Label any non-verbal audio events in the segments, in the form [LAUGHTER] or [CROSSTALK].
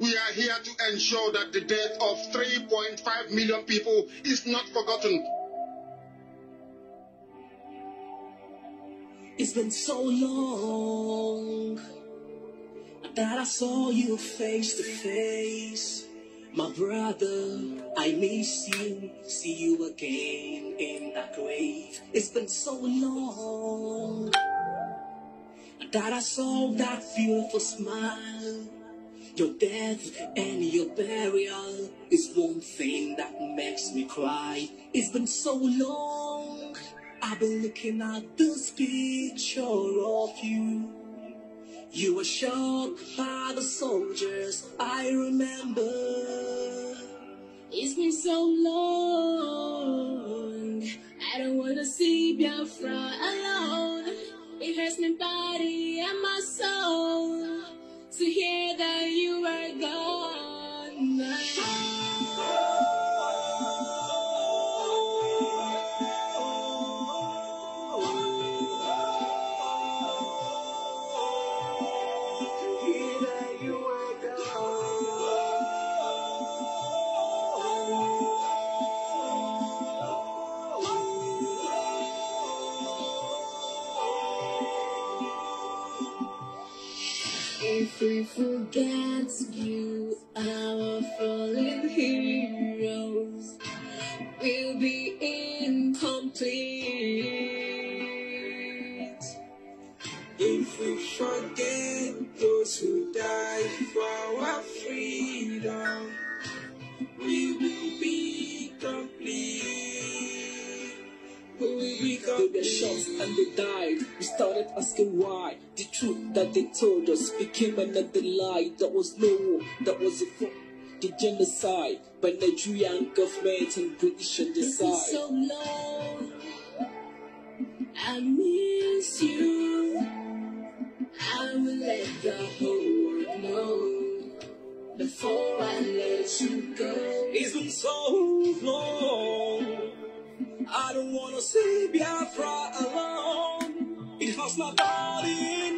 We are here to ensure that the death of 3.5 million people is not forgotten. It's been so long that I saw you face to face. My brother, I miss you. See you again in that grave. It's been so long that I saw that beautiful smile. Your death and your burial is one thing that makes me cry. It's been so long, I've been looking at this picture of you. You were shot by the soldiers, I remember. It's been so long, I don't wanna see Biafra alone. It hurts my body and my soul to hear that you are gone. asking why the truth that they told us became another lie that was no war, that was a fraud the genocide by Nigerian government and British on the side. So long, I miss you. I will let the whole world know before I let you go. It's been so long. I don't wanna see Biafra alone. It was not in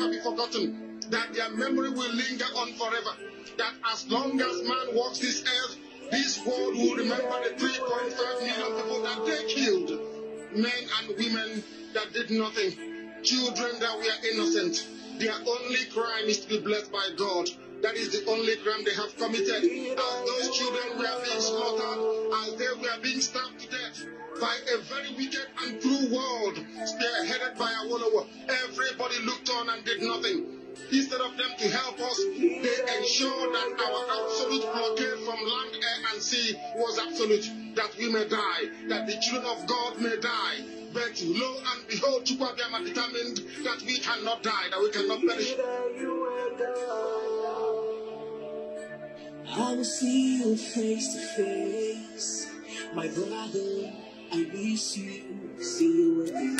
never be forgotten, that their memory will linger on forever, that as long as man walks this earth, this world will remember the 3.5 million people that they killed, men and women that did nothing, children that were innocent. Their only crime is to be blessed by God. That is the only crime they have committed. As those children were being slaughtered, as they were being stabbed to death, by a very wicked and cruel world they are headed by a Awolowo. Everybody looked on and did nothing. Instead of them to help us, they ensured that our absolute blockade from land, air, and sea was absolute, that we may die, that the children of God may die. But lo and behold, Chukwabiyama determined that we cannot die, that we cannot perish. I will see you face to face, my brother. I miss you. See you again.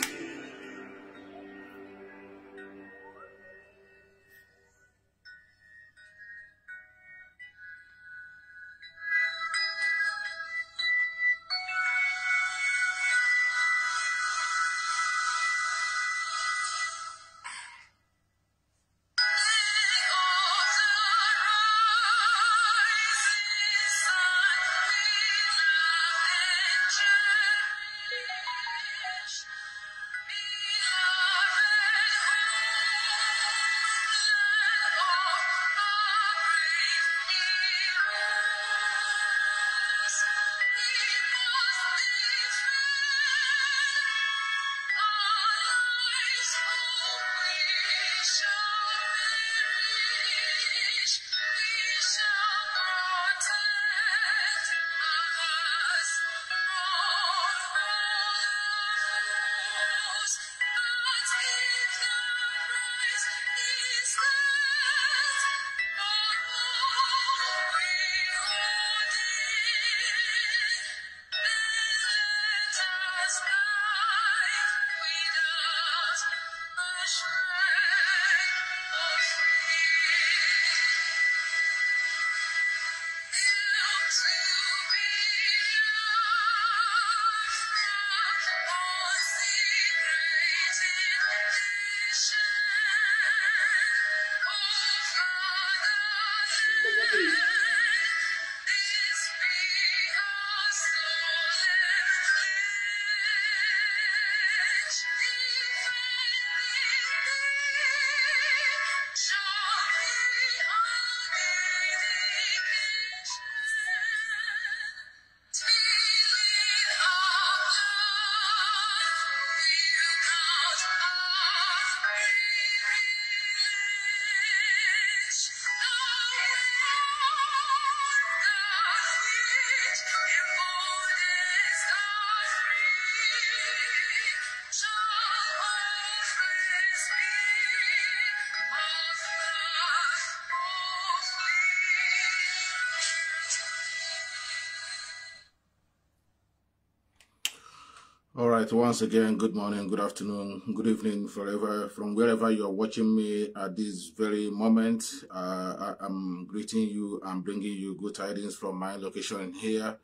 right, once again, good morning, good afternoon, good evening, forever, from wherever you're watching me at this very moment. Uh, I, am greeting you I'm bringing you good tidings from my location here.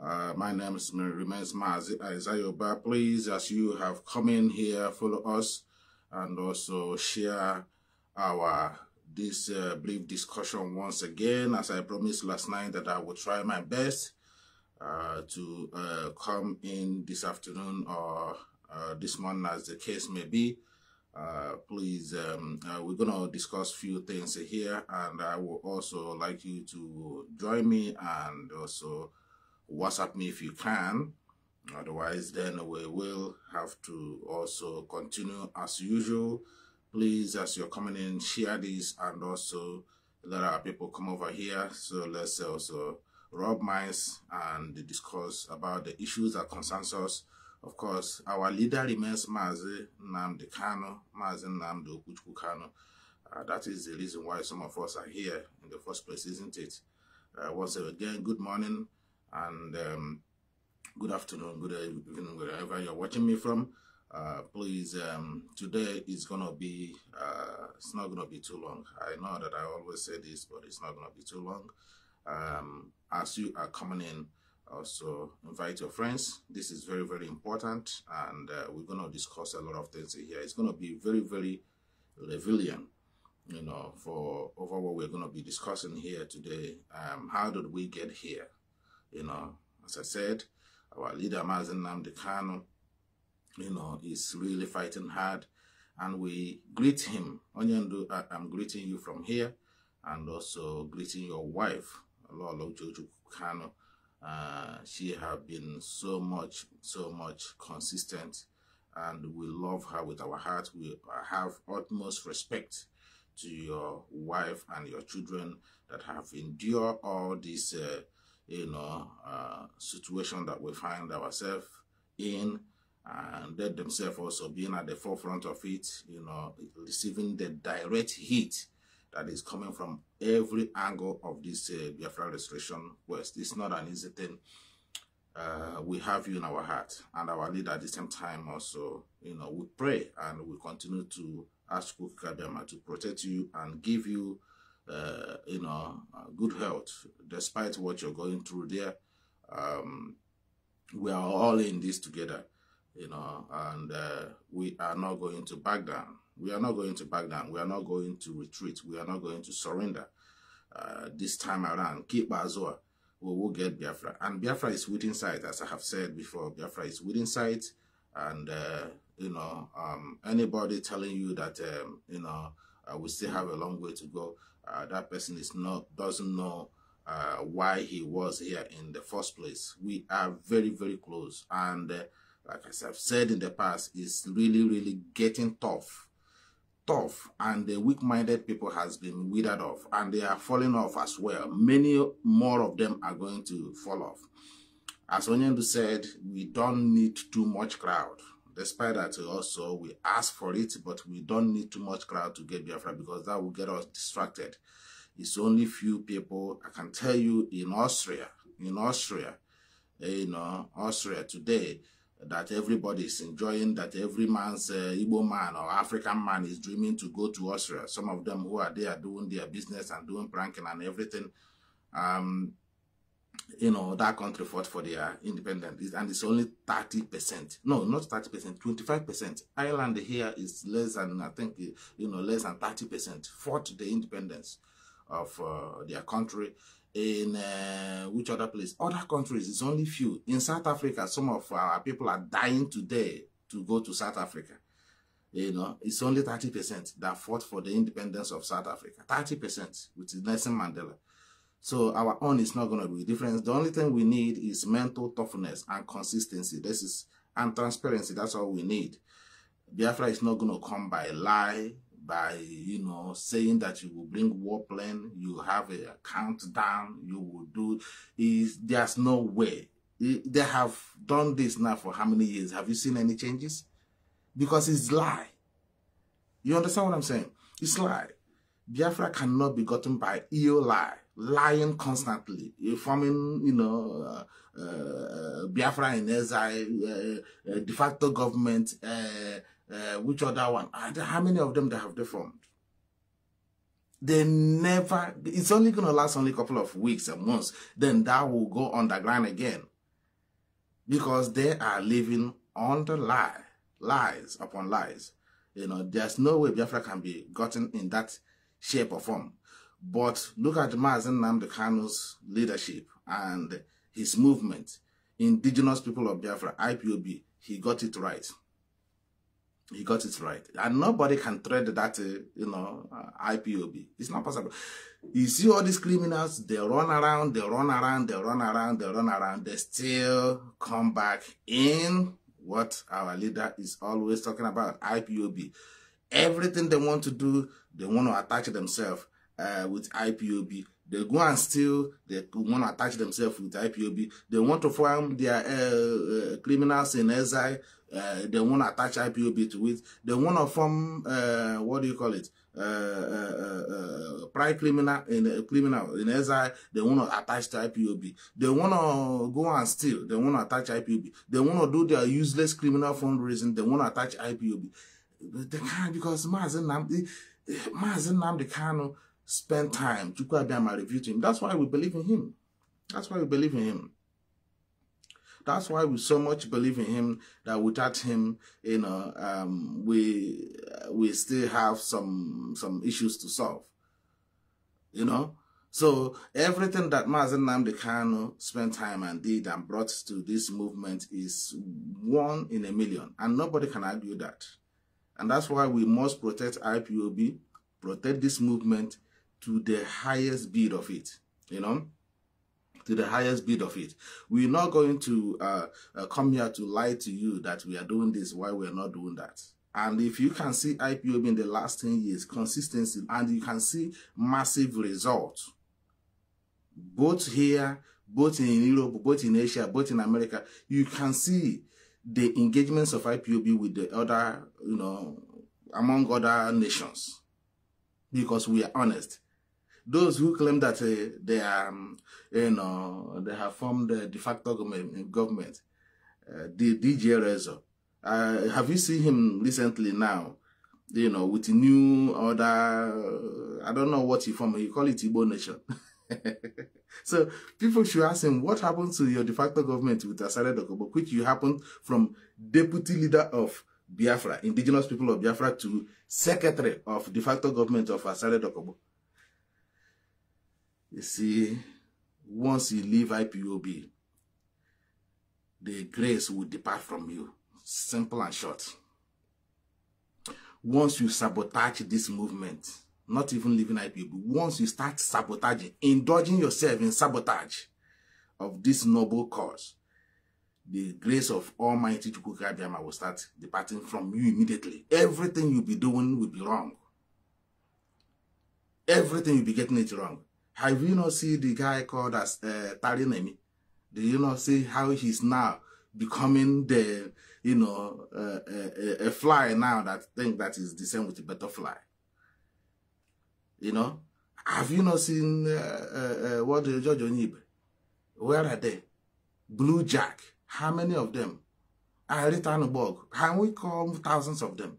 Uh, my name is, remains Isaiah. But Please, as you have come in here, follow us and also share our this uh, brief discussion once again. As I promised last night that I will try my best uh, to uh, come in this afternoon or uh, this morning, as the case may be. Uh, please, um, we're going to discuss few things here, and I would also like you to join me and also WhatsApp me if you can. Otherwise, then we will have to also continue as usual. Please, as you're coming in, share this and also let our people come over here. So let's also Rob minds and discuss about the issues that concerns us. Of course, our leader remains Mazi Namdi Kano, Mazi Namdi Okuchukwu Kano. Uh, that is the reason why some of us are here in the first place, isn't it? Uh, once again, good morning and um, good afternoon, good evening, wherever you're watching me from. Uh, please, um, today is gonna be, uh, it's not gonna be too long. I know that I always say this, but it's not gonna be too long um, as you are coming in also invite your friends this is very very important and uh, we're going to discuss a lot of things here it's going to be very very revealing you know for over what we're going to be discussing here today um, how did we get here you know as i said our leader Mazen Namdekano, you know is really fighting hard and we greet him Onyendu, i'm greeting you from here and also greeting your wife Allah Kano, uh, she have been so much, so much consistent and we love her with our heart. We have utmost respect to your wife and your children that have endured all this, uh, you know, uh, situation that we find ourselves in and they themselves also being at the forefront of it, you know, receiving the direct heat that is coming from every angle of this uh, Biafra Restoration West. It's not an easy thing. Uh, we have you in our heart and our leader at the same time also, you know, we pray and we continue to ask Kukabiyama to protect you and give you, uh, you know, good health despite what you're going through there. Um, we are all in this together, you know, and uh, we are not going to back down. We are not going to back down. We are not going to retreat. We are not going to surrender uh, this time around. Keep Azua. We will get Biafra. And Biafra is within sight, as I have said before. Biafra is within sight. And, uh, you know, um, anybody telling you that, um, you know, uh, we still have a long way to go, uh, that person is not doesn't know uh, why he was here in the first place. We are very, very close. And uh, like I've said in the past, it's really, really getting tough tough and the weak-minded people has been withered off and they are falling off as well. Many more of them are going to fall off. As Onyendu said, we don't need too much crowd. Despite that, also, we ask for it, but we don't need too much crowd to get Biafra because that will get us distracted. It's only few people. I can tell you in Austria, in Austria, eh, you know, Austria today, that everybody is enjoying, that every man's uh, Igbo man or African man is dreaming to go to Austria. Some of them who are there doing their business and doing pranking and everything. Um, you know, that country fought for their independence. And it's only 30%. No, not 30%, 25%. Ireland here is less than, I think, you know, less than 30% fought the independence of uh, their country in uh, which other place? Other countries, it's only few. In South Africa, some of our people are dying today to go to South Africa. You know, it's only 30% that fought for the independence of South Africa. 30%, which is Nelson Mandela. So our own is not going to be different. The only thing we need is mental toughness and consistency. This is and transparency. That's all we need. Biafra is not going to come by lie, by you know saying that you will bring war plane you have a, countdown you will do is there's no way they have done this now for how many years have you seen any changes because it's lie you understand what i'm saying it's lie biafra cannot be gotten by ill lie lying constantly forming you know uh, uh, biafra in exile uh, uh de facto government uh, uh, which other one? And how many of them that have deformed? They never, it's only going to last only a couple of weeks and months. Then that will go underground again. Because they are living on the lie, lies upon lies. You know, there's no way Biafra can be gotten in that shape or form. But look at Mazen Namdekano's leadership and his movement, Indigenous People of Biafra, IPOB, he got it right. He got it right. And nobody can thread that, uh, you know, uh, IPOB. It's not possible. You see all these criminals, they run around, they run around, they run around, they run around. They still come back in what our leader is always talking about, IPOB. Everything they want to do, they want to attach themselves uh, with IPOB. They go and steal, they want to attach themselves with IPOB. They want to form their uh, uh, criminals in exile Uh, they won't attach IPOB to it. They want to form uh, what do you call it? Uh, uh, uh, uh private criminal in a criminal in SI. They want to attach to IPOB. They want to uh, go and steal. They want to attach IPOB. They want to do their useless criminal fundraising. They want to attach IPOB. They can't because Mazen Namdi, Mazen Namdi Kano spend time. to Chukwu review to him. That's why we believe in him. That's why we believe in him. That's why we so much believe in him that without him, you know, um, we we still have some some issues to solve. You know, so everything that Mazen Namdi spent time and did and brought to this movement is one in a million, and nobody can argue that. And that's why we must protect IPOB, protect this movement to the highest bid of it. You know to the highest bid of it. We're not going to uh, uh, come here to lie to you that we are doing this while we're not doing that. And if you can see IPOB in the last 10 years, consistency, and you can see massive results, both here, both in Europe, both in Asia, both in America, you can see the engagements of IPOB with the other, you know, among other nations. Because we are honest those who claim that uh, they are, um, you know, they have formed the uh, de facto government, the uh, DJ Rezo. Uh, have you seen him recently now? You know, with new order, I don't know what he formed, he call it Igbo Nation. [LAUGHS] so people should ask him, what happened to your de facto government with Asare Dokobo, which you happened from deputy leader of Biafra, indigenous people of Biafra, to secretary of de facto government of Asare Dokobo? You see, once you leave IPOB, the grace will depart from you. Simple and short. Once you sabotage this movement, not even leaving IPOB, once you start sabotaging, indulging yourself in sabotage of this noble cause, the grace of Almighty Chukwukabiyama will start departing from you immediately. Everything you'll be doing will be wrong. Everything you'll be getting it wrong. Have you not seen the guy called as uh, Tarinemi? Do you not see how he's now becoming the, you know, uh, a, uh, a, fly now that think that is the same with the butterfly? You know? Have you not seen uh, uh, uh what the George Onyibe? Where are they? Blue Jack. How many of them? Ari Tanubog. Can we call thousands of them?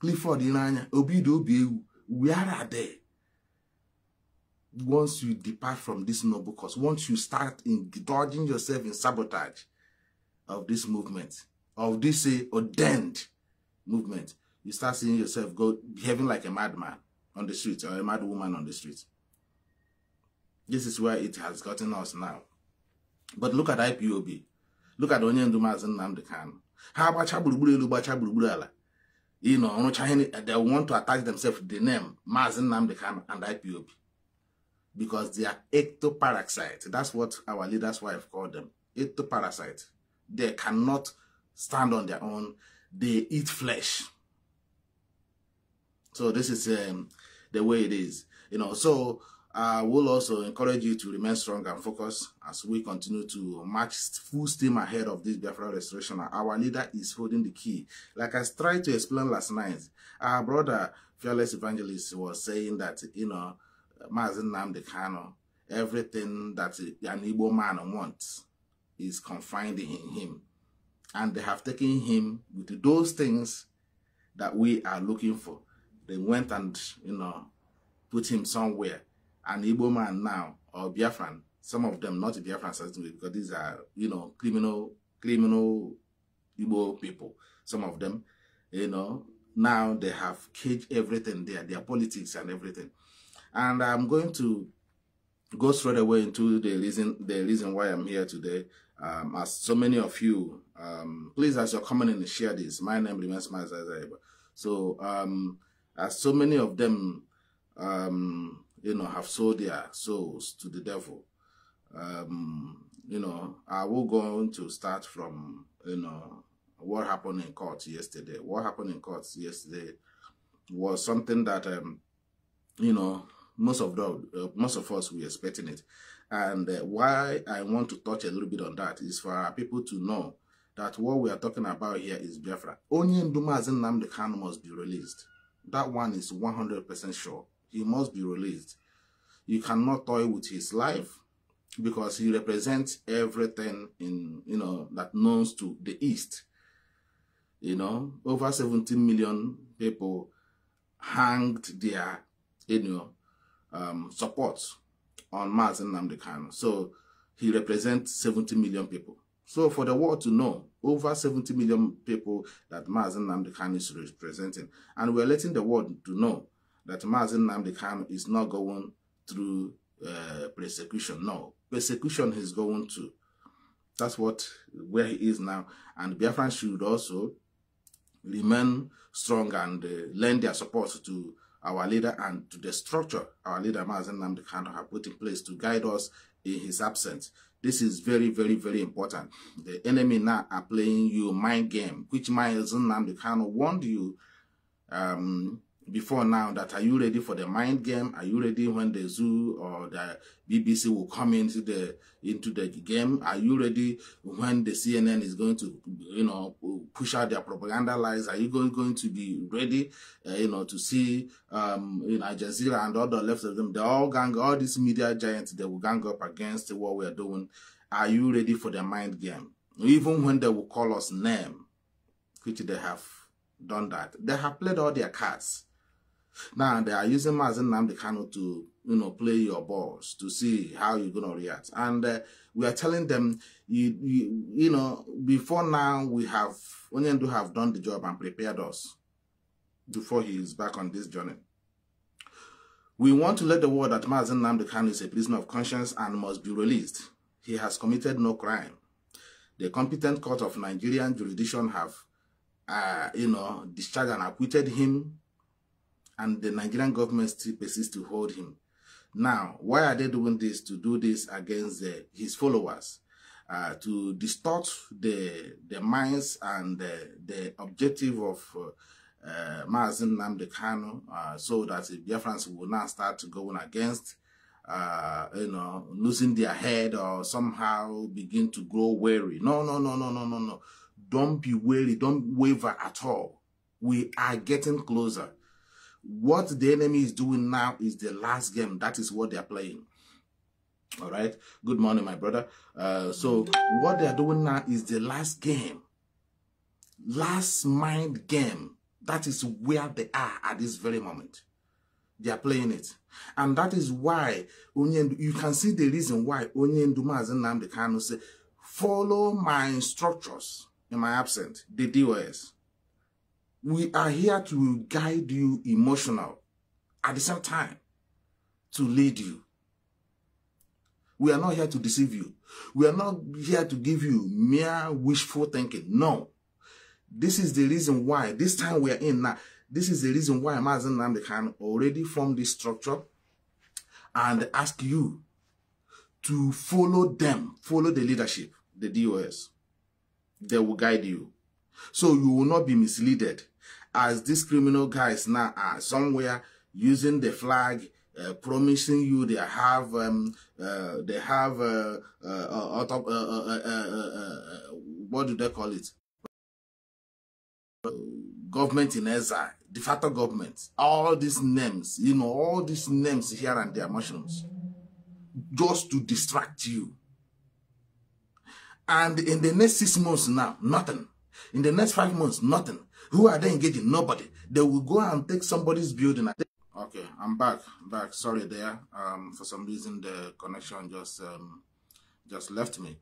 Clifford Inanya. Obido Obiewu. Where are they? once you depart from this noble cause, once you start indulging yourself in sabotage of this movement, of this uh, ordained movement, you start seeing yourself go behaving like a madman on the street or a mad woman on the street. This is where it has gotten us now. But look at IPOB. Look at Onyendu Mazin Namdekan. Ha gbacha gburugburu elu How about ala. You know, they want to attach themselves to the name Mazin Namdekan and IPOB because they are ectoparasites. That's what our leader's wife called them, ectoparasites. They cannot stand on their own. They eat flesh. So this is um, the way it is. You know, so I uh, will also encourage you to remain strong and focused as we continue to march full steam ahead of this Biafra restoration. Our leader is holding the key. Like I tried to explain last night, our brother, fearless evangelist, was saying that, you know, Mazi Nnamdi Kano, everything that an Igbo man wants is confined in him. And they have taken him with those things that we are looking for. They went and, you know, put him somewhere. An Igbo man now, or Biafran, some of them not Biafran, certainly, because these are, you know, criminal, criminal Igbo people, some of them, you know, now they have caged everything there, their politics and everything and I'm going to go straight away into the reason the reason why I'm here today. Um, as so many of you, um, please as you're coming in, share this. My name remains Mazazaiba. So um, as so many of them, um, you know, have sold their souls to the devil. Um, you know, I will go on to start from you know what happened in court yesterday. What happened in court yesterday was something that um, you know most of the, uh, most of us we expecting it and uh, why i want to touch a little bit on that is for our people to know that what we are talking about here is biafra only ndumazi the can must be released that one is 100 percent sure he must be released you cannot toy with his life because he represents everything in you know that knows to the east you know over 17 million people hanged there you know um, support on Mars and Namdekano. So he represents 70 million people. So for the world to know, over 70 million people that Mazen Namdekano is representing. And we're letting the world to know that Mazen Namdekano is not going through uh, persecution. No, persecution is going to. That's what where he is now. And Biafran should also remain strong and uh, lend their support to our leader and to the structure our leader Mazen Namdi Kano have put in place to guide us in his absence. This is very, very, very important. The enemy now are playing you mind game, which Mazen Namdi Kano warned you um, before now that are you ready for the mind game are you ready when the zoo or the bbc will come into the into the game are you ready when the cnn is going to you know push out their propaganda lies are you going, going to be ready uh, you know to see um you know jazeera and all the left of them they all gang all these media giants they will gang up against what we are doing are you ready for the mind game even when they will call us name which they have done that they have played all their cards now they are using Mazen Namdi Kano to you know play your balls to see how you're gonna react. And uh, we are telling them you, you you know before now we have Onyendu have done the job and prepared us before he is back on this journey. We want to let the world that Mazen Namdi Kano is a prisoner of conscience and must be released. He has committed no crime. The competent court of Nigerian jurisdiction have, uh, you know, discharged and acquitted him and the Nigerian government still persists to hold him. Now, why are they doing this? To do this against the, uh, his followers, uh, to distort the the minds and the, the objective of uh, uh, Mazin Namde Kano, uh, so that the Biafrans will not start going against, uh, you know, losing their head or somehow begin to grow weary. No, no, no, no, no, no, no. Don't be weary. Don't waver at all. We are getting closer what the enemy is doing now is the last game. That is what they are playing. All right. Good morning, my brother. Uh, so what they are doing now is the last game. Last mind game. That is where they are at this very moment. They are playing it. And that is why you can see the reason why Onyenduma as Nnamdi Kanu say, follow my instructors in my absence, the DOS we are here to guide you emotional at the same time to lead you we are not here to deceive you we are not here to give you mere wishful thinking no this is the reason why this time we are in now this is the reason why Mazen Namde can already form this structure and ask you to follow them follow the leadership the dos they will guide you so you will not be misled as these criminal guys now are somewhere using the flag, uh, promising you they have um, uh, they have uh, uh, uh, uh, what do they call it? Government in exile, de facto government. All these names, you know, all these names here and there, mushrooms, just to distract you. And in the next six months now, nothing. In the next five months, nothing. Who are they engaging? Nobody. They will go and take somebody's building. Okay, I'm back. Back. Sorry there. Um, for some reason the connection just um, just left me.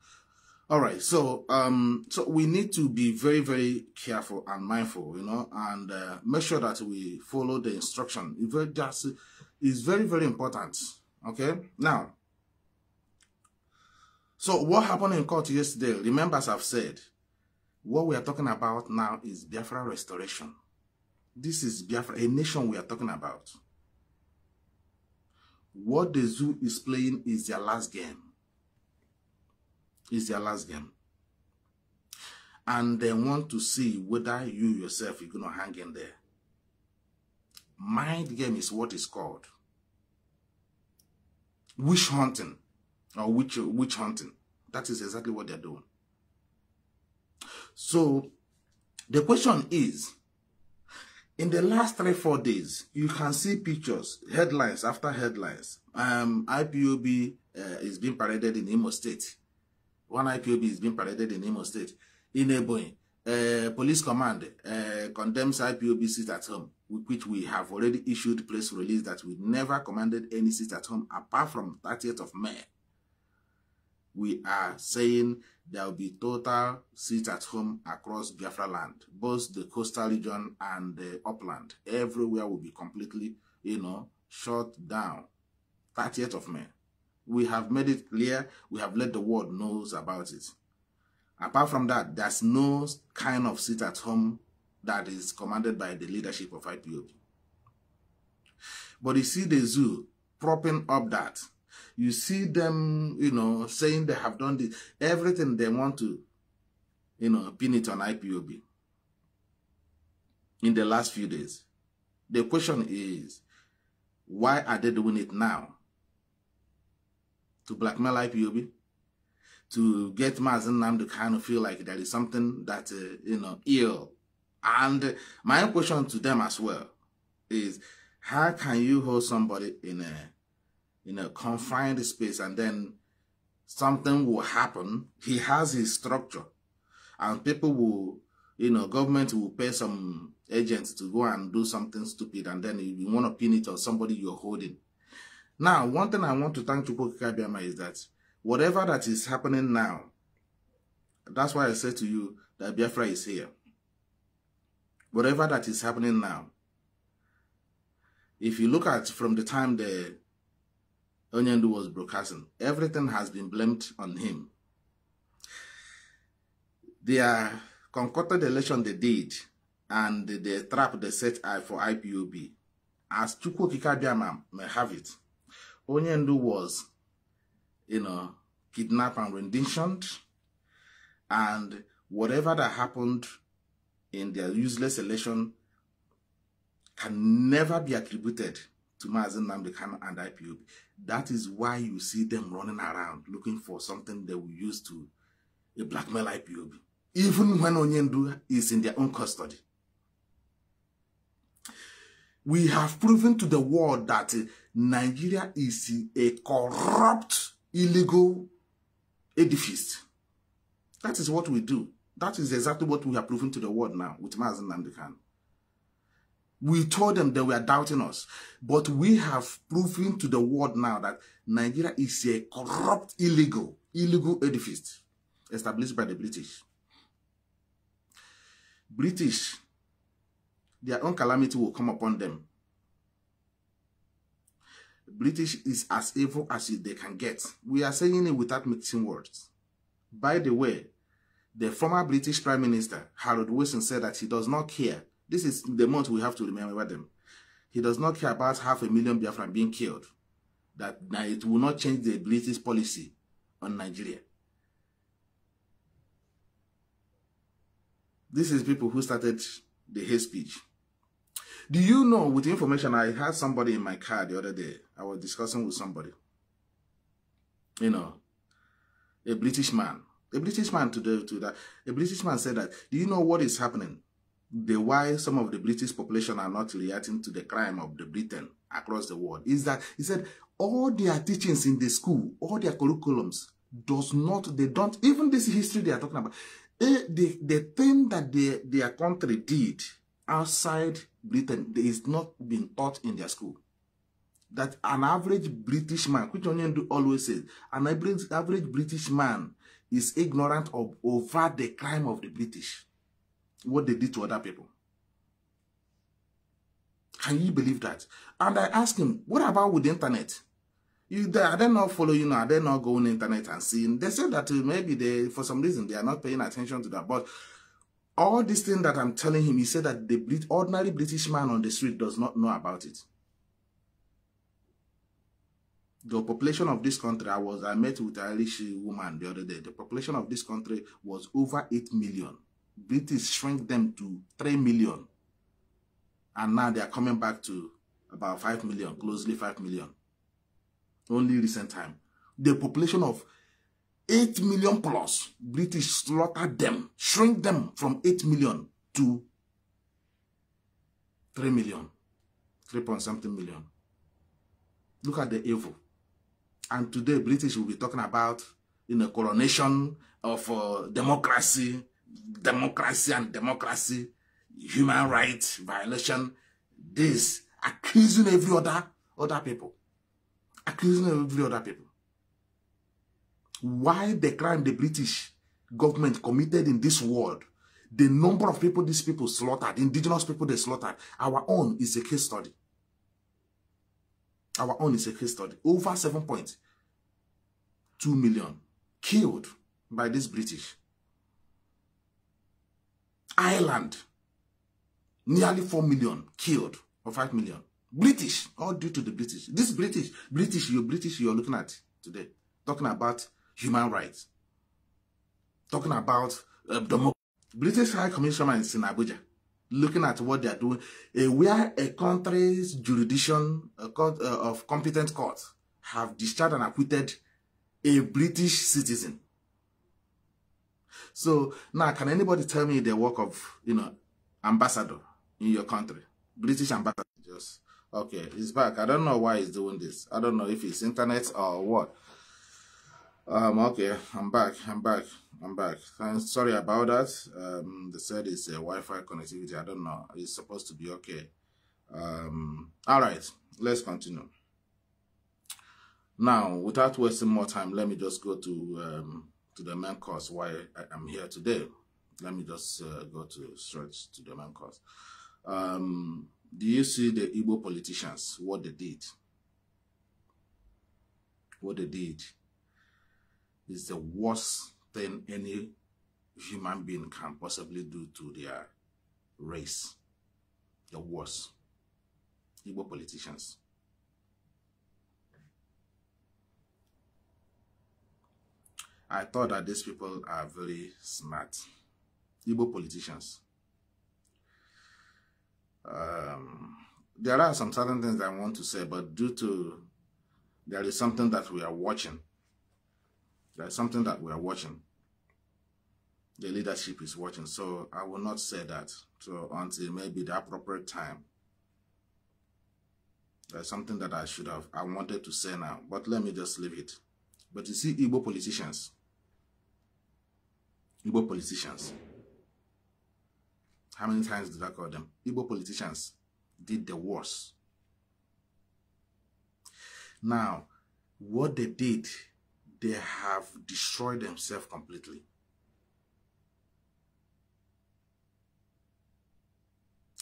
All right. So um, so we need to be very very careful and mindful, you know, and uh, make sure that we follow the instruction. If very just, is very very important. Okay. Now. So what happened in court yesterday? Remember, as I've said, what we are talking about now is Biafra restoration. This is Biafra, a nation we are talking about. What the zoo is playing is their last game. Is their last game. And they want to see whether you yourself are going to hang in there. Mind game is what is called. Witch hunting or witch, witch hunting. That is exactly what they're doing. So the question is, in the last three, four days, you can see pictures, headlines after headlines. Um, IPOB uh, is being paraded in Imo State. One IPOB is being paraded in Imo State. In Ebony, uh, police command uh, condemns IPOB sit at home, which we have already issued press release that we never commanded any sit at home apart from 30th of May we are saying there will be total seats at home across Biafra land, both the coastal region and the upland. Everywhere will be completely, you know, shut down. 30th of May. We have made it clear. We have let the world knows about it. Apart from that, there's no kind of seat at home that is commanded by the leadership of IPOB. But you see the zoo propping up that you see them, you know, saying they have done this. Everything they want to, you know, pin it on IPOB in the last few days. The question is, why are they doing it now? To blackmail IPOB? To get Mazen Nam to kind of feel like there is something that, uh, you know, ill. And my question to them as well is, how can you hold somebody in a you know, confined space and then something will happen. He has his structure and people will, you know, government will pay some agents to go and do something stupid and then you want to pin it on somebody you're holding. Now, one thing I want to thank Chukwu Kabiama is that whatever that is happening now, that's why I said to you that Biafra is here. Whatever that is happening now, if you look at from the time the Onyendu was broadcasting. Everything has been blamed on him. Their concocted election they did and the trap they set eye for IPOB, as Chukwokika Biama may have it, Onyendu was, you know, kidnapped and renditioned, and whatever that happened in their useless election can never be attributed to Mazen Namdekan and IPOB. That is why you see them running around looking for something they will use to a blackmail IPOB, even when Onyendu is in their own custody. We have proven to the world that eh, Nigeria is a corrupt, illegal edifice. That is what we do. That is exactly what we are proving to the world now with Mazen Nandekan. We told them they were doubting us. But we have proven to the world now that Nigeria is a corrupt, illegal, illegal edifice established by the British. British, their own calamity will come upon them. British is as evil as they can get. We are saying it without mixing words. By the way, the former British Prime Minister, Harold Wilson, said that he does not care this is the month we have to remember them. He does not care about half a million Biafran being killed. That, it will not change the British policy on Nigeria. This is people who started the hate speech. Do you know, with information, I had somebody in my car the other day. I was discussing with somebody. You know, a British man. A British man to, the, to that. A British man said that, do you know what is happening? the why some of the British population are not reacting to the crime of the Britain across the world is that he said all their teachings in the school, all their curriculums does not, they don't, even this history they are talking about, eh, the, the thing that they, their country did outside Britain is not being taught in their school. That an average British man, which Onyendu always says, an average, average British man is ignorant of over the crime of the British what they did to other people. Can you believe that? And I asked him, what about with the internet? You, they, are they not following? Are they not going internet and seeing? They said that uh, maybe they, for some reason, they are not paying attention to that. But all this thing that I'm telling him, he said that the ordinary British man on the street does not know about it. The population of this country, I was I met with a Irish woman the other day. The population of this country was over 8 million. British shrink them to 3 million. And now they are coming back to about 5 million, closely 5 million. Only recent time. The population of 8 million plus, British slaughtered them, shrink them from 8 million to 3 million, 3 point something million. Look at the evil. And today, British will be talking about in you a coronation of uh, democracy, democracy and democracy, human rights violation, this, accusing every other, other people. Accusing every other people. Why the crime the British government committed in this world, the number of people these people slaughtered, indigenous people they slaughtered, our own is a case study. Our own is a case study. Over 7.2 million killed by these British. Ireland, nearly 4 million killed or 5 million. British, all due to the British. This British, British, you're British, you're looking at today, talking about human rights, talking about uh, democracy. British High Commissioner is in Abuja, looking at what they are doing. Uh, where a country's jurisdiction a court, uh, of competent courts have discharged and acquitted a British citizen So now, can anybody tell me the work of, you know, ambassador in your country? British ambassador, just. Okay, he's back. I don't know why he's doing this. I don't know if it's internet or what. Um, okay, I'm back. I'm back. I'm back. I'm sorry about that. Um, they said it's a Wi-Fi connectivity. I don't know. It's supposed to be okay. Um, all right, let's continue. Now, without wasting more time, let me just go to um, to the main course why I am here today. Let me just uh, go to straight to the main course. Um, do you see the Igbo politicians, what they did? What they did is the worst thing any human being can possibly do to their race. The worst. Igbo politicians. I thought that these people are very smart. Igbo politicians. Um, there are some certain things I want to say, but due to there is something that we are watching. There is something that we are watching. The leadership is watching, so I will not say that so until maybe the appropriate time. There's something that I should have, I wanted to say now, but let me just leave it. But you see, Igbo politicians, Igbo politicians. How many times did I call them? Igbo politicians did the worst. Now, what they did, they have destroyed themselves completely.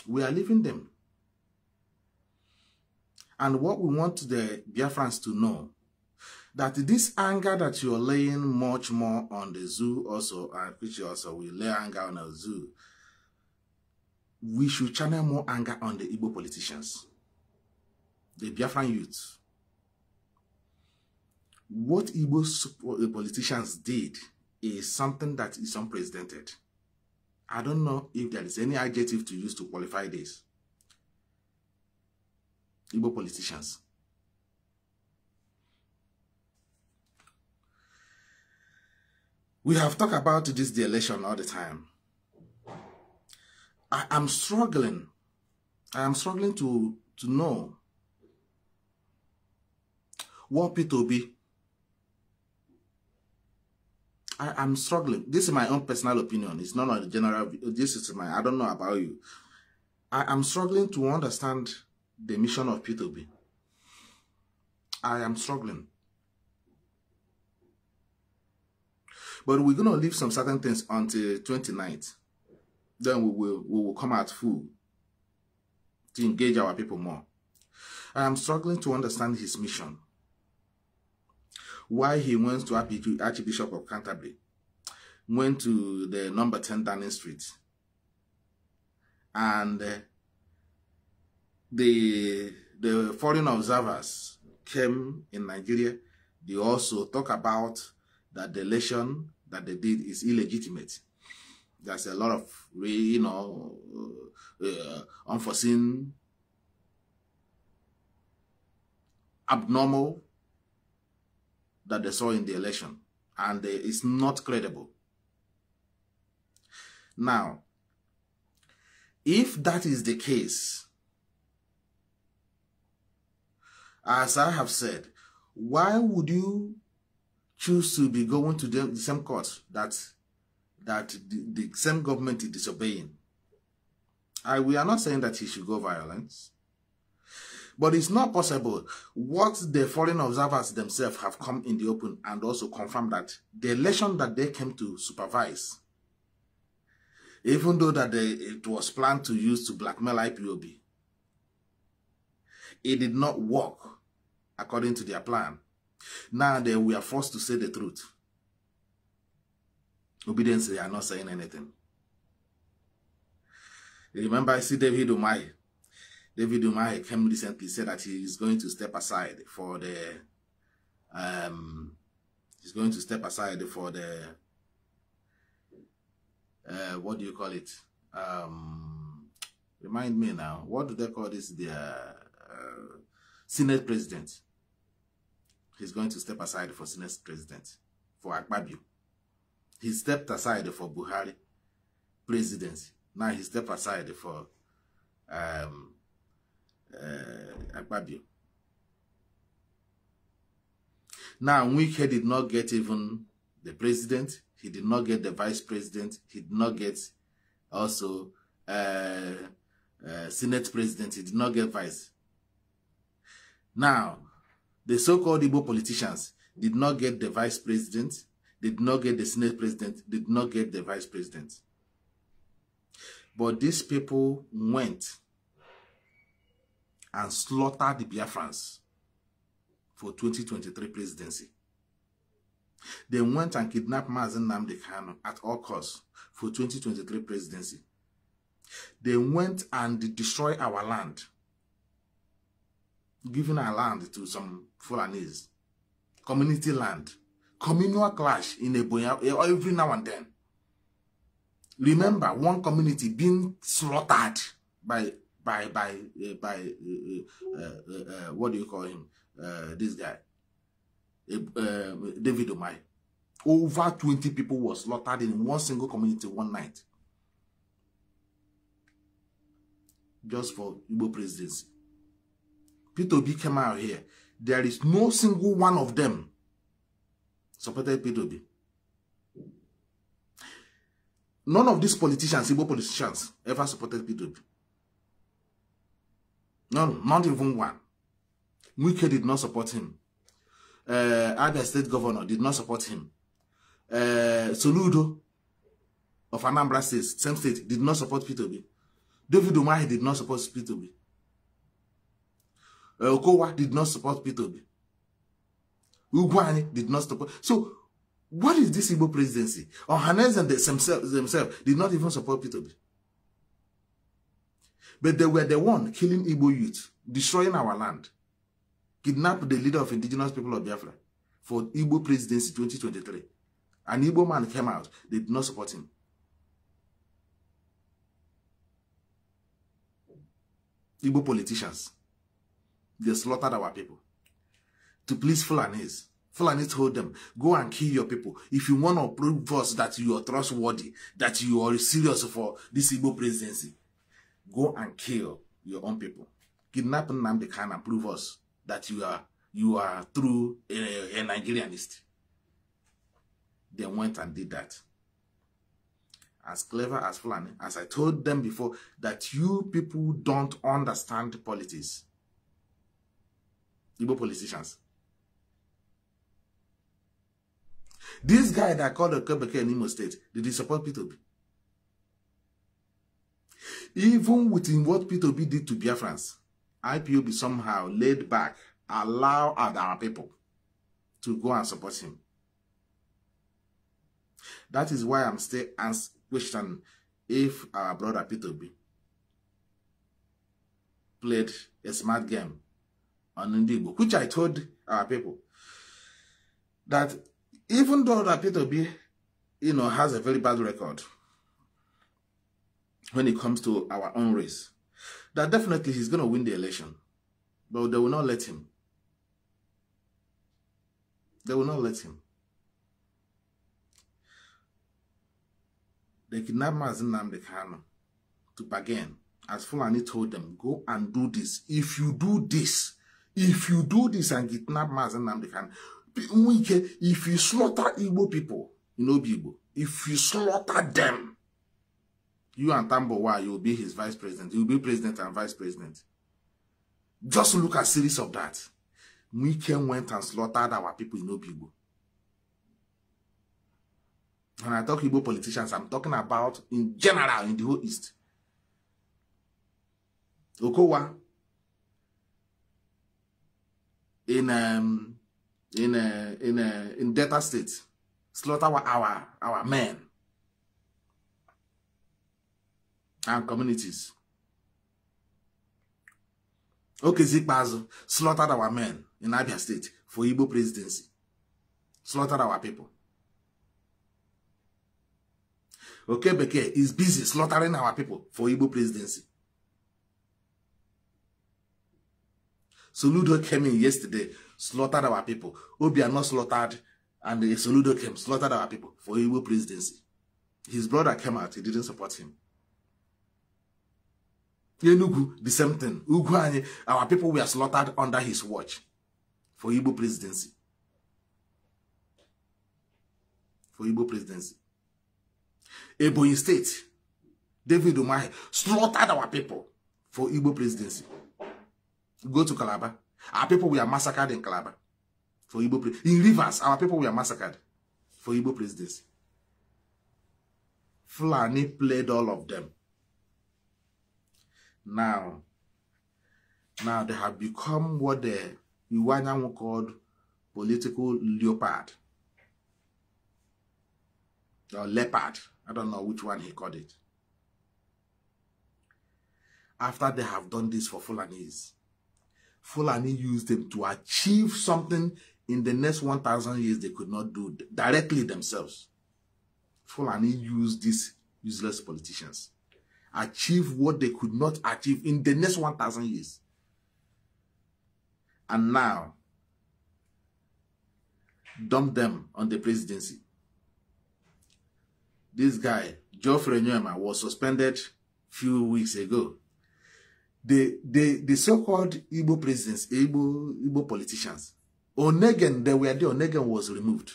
We are leaving them. And what we want the Biafrans to know that this anger that you're laying much more on the zoo also, and which also will lay anger on the zoo, we should channel more anger on the Igbo politicians, the Biafran youth. What Igbo uh, politicians did is something that is unprecedented. I don't know if there is any adjective to use to qualify this. Igbo politicians We have talked about this the election all the time. I am struggling. I am struggling to, to know what P2B. I am struggling. This is my own personal opinion. It's not the general. This is my. I don't know about you. I am struggling to understand the mission of P2B. I am struggling. But we're going to leave some certain things until 29th. Then we will, we will come out full to engage our people more. I am struggling to understand his mission. Why he went to Archbishop of Canterbury, went to the number 10 Downing Street, and uh, the, the foreign observers came in Nigeria. They also talk about that the election that they did is illegitimate. There's a lot of, you know, uh, uh, unforeseen, abnormal that they saw in the election. And it's not credible. Now, if that is the case, as I have said, why would you choose to be going to the, the same court that that the, the same government is disobeying. I, we are not saying that he should go violence. But it's not possible. What the foreign observers themselves have come in the open and also confirmed that the election that they came to supervise, even though that they, it was planned to use to blackmail IPOB, it did not work according to their plan. Now that we are forced to say the truth. Obedience, they are not saying anything. Remember, I see David Umay. David Umay came recently, said that he is going to step aside for the um, he's going to step aside for the uh, what do you call it um, remind me now what do they call this the uh, senate president he's going to step aside for Senate President, for Akpabio. He stepped aside for Buhari presidency. Now he stepped aside for um, uh, Akpabio. Now, Wike did not get even the president. He did not get the vice president. He did not get also uh, uh, Senate president. He did not get vice. Now, the so-called Igbo politicians did not get the vice president, did not get the senate president, did not get the vice president. But these people went and slaughtered the Biafrans for 2023 presidency. They went and kidnapped Mazen Namdi Kano at all costs for 2023 presidency. They went and destroyed our land giving our land to some Fulanese. Community land. Communal clash in Ebonya every now and then. Remember one community being slaughtered by by by uh, by uh, uh, what do you call him? this guy, David Omai. Over 20 people were slaughtered in one single community one night. Just for Igbo presidency. Peter Obi came out here. There is no single one of them supported Peter Obi. None of these politicians, civil politicians, ever supported Peter Obi. None, not even one. Wike did not support him. Uh, Abia State Governor did not support him. Uh, Soludo of Anambra State, same state, did not support Peter Obi. David Umahi did not support Peter Obi. Eh, Okowa did not support Peter. 2 Ugwani did not support. So, what is this Igbo presidency? Ohanes and themselves, themselves did not even support Peter. But they were the one killing Igbo youth, destroying our land, kidnapped the leader of indigenous people of Biafra for Igbo presidency 2023. An Igbo man came out. They did not support him. Igbo politicians. They slaughtered our people. To please Fulanese. Fulanese told them, go and kill your people. If you want to prove us that you are trustworthy, that you are serious for this Igbo presidency, go and kill your own people. Kidnap Nnamdi Khan and prove us that you are you are true a, eh, a Nigerianist. They went and did that. As clever as Fulani, as I told them before, that you people don't understand politics. Igbo politicians. This guy that called Okebeke in Imo State, did he support P2B? Even within what P2B did to Biafrans, IPOB somehow laid back, allow our people to go and support him. That is why I'm still asking question if our brother P2B played a smart game on Indigo, which I told our people that even though that Peter B, you know, has a very bad record when it comes to our own race, that definitely he's going to win the election, but they will not let him. They will not let him. They kidnapped Mazin Namdekano to bargain as Fulani told them, go and do this. If you do this, If you do this and kidnap Mazen Namdekan, if you slaughter Igbo people, you know Igbo, if you slaughter them, you and Tambowa, you'll be his vice president. You'll be president and vice president. Just look at series of that. Mwike went and slaughtered our people in Obigbo. When I talk Igbo politicians, I'm talking about in general in the whole East. Okowa, in um, in a uh, in a uh, in Delta State, slaughter our our, our men and communities. Okay, has slaughtered our men in Abia State for Igbo presidency, slaughtered our people. Okay, Beke is busy slaughtering our people for Igbo presidency. Soludo came in yesterday, slaughtered our people. are not slaughtered, and eh, Soludo came, slaughtered our people for Igbo presidency. His brother came out, he didn't support him. Enugu, the same thing. Uguanye, our people were slaughtered under his watch for Igbo presidency. For Igbo presidency. Ebonyi State, David Umahi slaughtered our people for Igbo presidency. Go to Calabar. Our people were massacred in Calabar for Igbo in rivers. Our people were massacred for Igbo presidency. Fulani played all of them. Now, now they have become what the Iwanyan called political leopard or leopard. I don't know which one he called it. After they have done this for Fulanese, Fulani used them to achieve something in the next 1,000 years they could not do directly themselves. Fulani used these useless politicians, achieve what they could not achieve in the next 1,000 years. And now, dump them on the presidency. This guy, Geoffrey Nyema, was suspended few weeks ago the, the, the so-called Igbo presidents, Igbo, Igbo politicians, Onegen, they were there, Onegen was removed.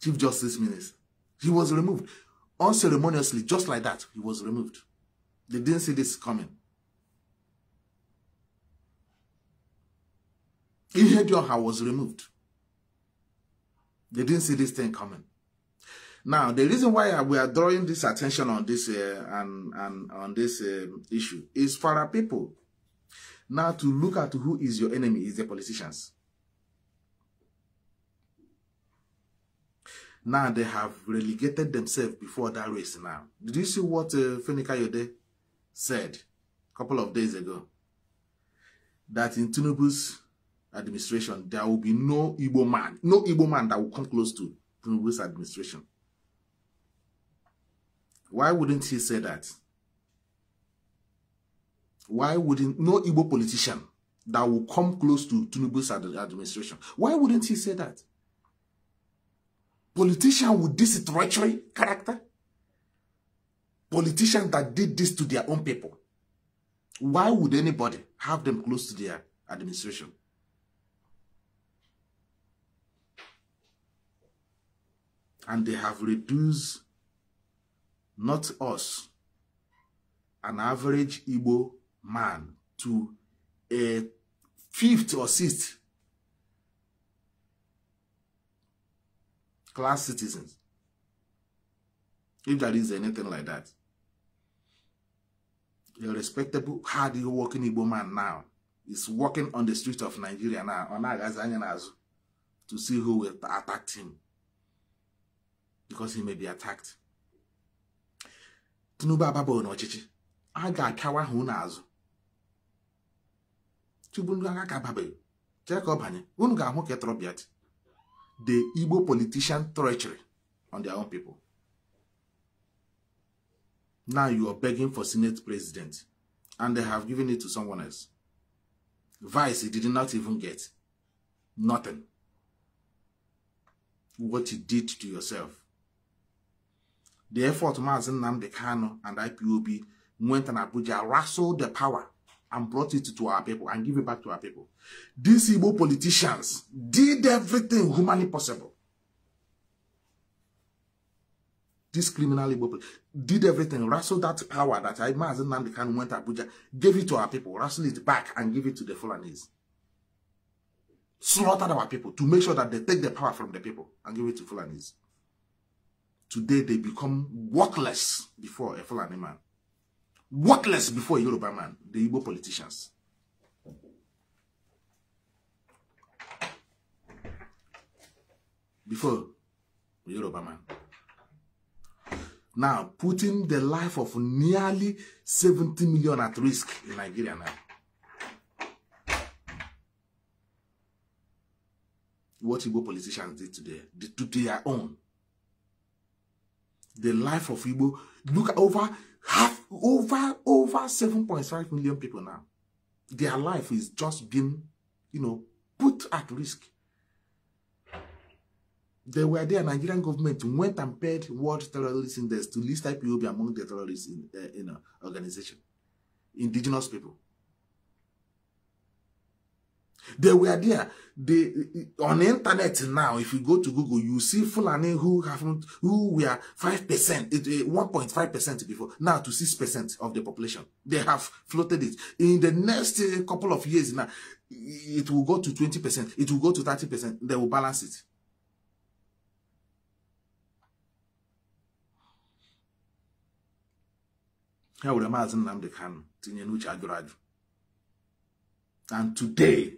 Chief Justice Minister. He was removed. Unceremoniously, just like that, he was removed. They didn't see this coming. Ihedioha was removed. They didn't see this thing coming. Now, the reason why we are drawing this attention on this uh, and, and on this um, issue is for our people now to look at who is your enemy is the politicians. Now they have relegated themselves before that race now. Did you see what uh, Fenika Yode said a couple of days ago? That in Tinubu's administration, there will be no Igbo man, no Igbo man that will come close to Tinubu's administration. Why wouldn't he say that? Why wouldn't no Igbo politician that will come close to Tinubu's administration, why wouldn't he say that? Politician with this treachery character? Politician that did this to their own people? Why would anybody have them close to their administration? And they have reduced not us, an average Igbo man, to a fifth or sixth class citizens. If there is anything like that. A respectable, hard-working Igbo man now is walking on the streets of Nigeria now on Agazanyanazu to see who will attack him. Because he may be attacked. tinubu ababaghị n'ọchịchị a ga-akawa ahụ unu azụ chigbu ndị agha ka ababeghị chee ka ọ banye unu ga-ahụ ka etrọbiat the igbo politician treachery on their own people now you are begging for senate president and they have given it to someone else vice he did not even get nothing what you did to yourself the effort Mazi Nnamdi Kanu and IPOB went and Abuja wrestled the power and brought it to our people and give it back to our people. These Igbo politicians did everything humanly possible. This criminal Igbo did everything, wrestled that power that Mazi Nnamdi went to Abuja, gave it to our people, wrestled it back and gave it to the Fulanese. Slaughtered our people to make sure that they take the power from the people and give it to Fulanese. Today they become worthless before a Fulani man. Worthless before a Yoruba man, the Igbo politicians. Before a Yoruba man. Now, putting the life of nearly 70 million at risk in Nigeria now. What Igbo politicians did today, did to their own the life of Igbo. Look at over half, over, over 7.5 million people now. Their life is just being, you know, put at risk. They were there, Nigerian government went and paid World Terrorist Index to list IPOB among the terrorists in, uh, in uh, organization, indigenous people. They were there. They on the internet now. If you go to Google, you see Fulani who have who were five percent, it eh, one point five percent before now to six percent of the population. They have floated it. In the next eh, couple of years now, it will go to twenty percent. It will go to thirty percent. They will balance it. ha were maazị nnamdị kanụ tinye n'uche ajụrụ ajụ and today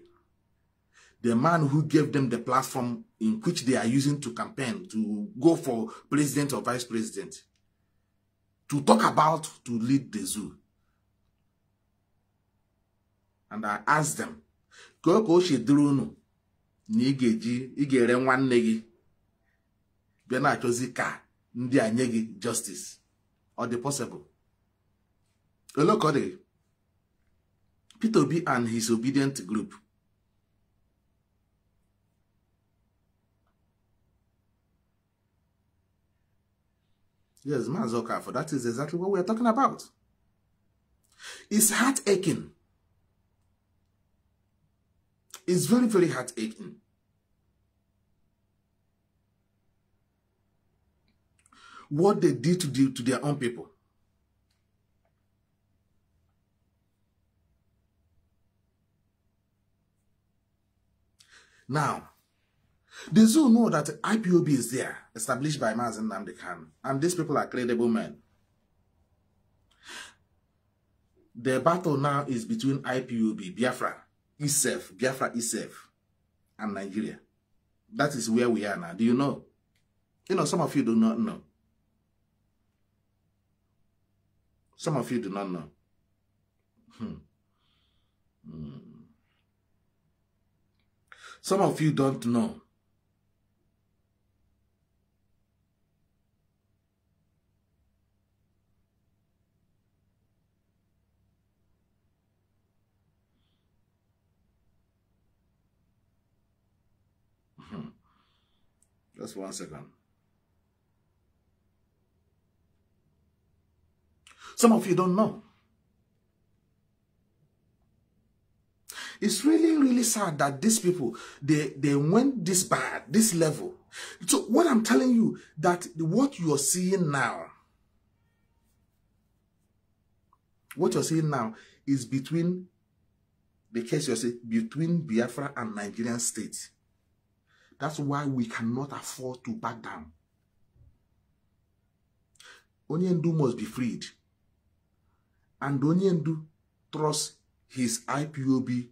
the man who gave them the platform in which they are using to campaign, to go for president or vice president, to talk about, to lead the zoo. And I asked them, ka ka o si dịrị unu na ị ga-eji ị ga nwanne gị bịa na-achọzi ka ndi a nye justice or the possible ole ka ọ Peter Obi and his obedient group Yes, Mazoka. For that is exactly what we are talking about. It's heart aching. It's very, very heart aching. What they did to, do to their own people. Now, they zoo know that IPOB is there, established by Mazin Namdekan, and these people are credible men. The battle now is between IPOB, Biafra, ISEF, Biafra ISEF, and Nigeria. That is where we are now. Do you know? You know, some of you do not know. Some of you do not know. Hmm. Hmm. Some of you don't know Just one second. Some of you don't know. It's really, really sad that these people, they, they went this bad, this level. So what I'm telling you, that what you're seeing now, what you're seeing now is between, the case you're seeing, between Biafra and Nigerian state. That's why we cannot afford to back down. Onyendu must be freed. And Onyendu trusts his IPOB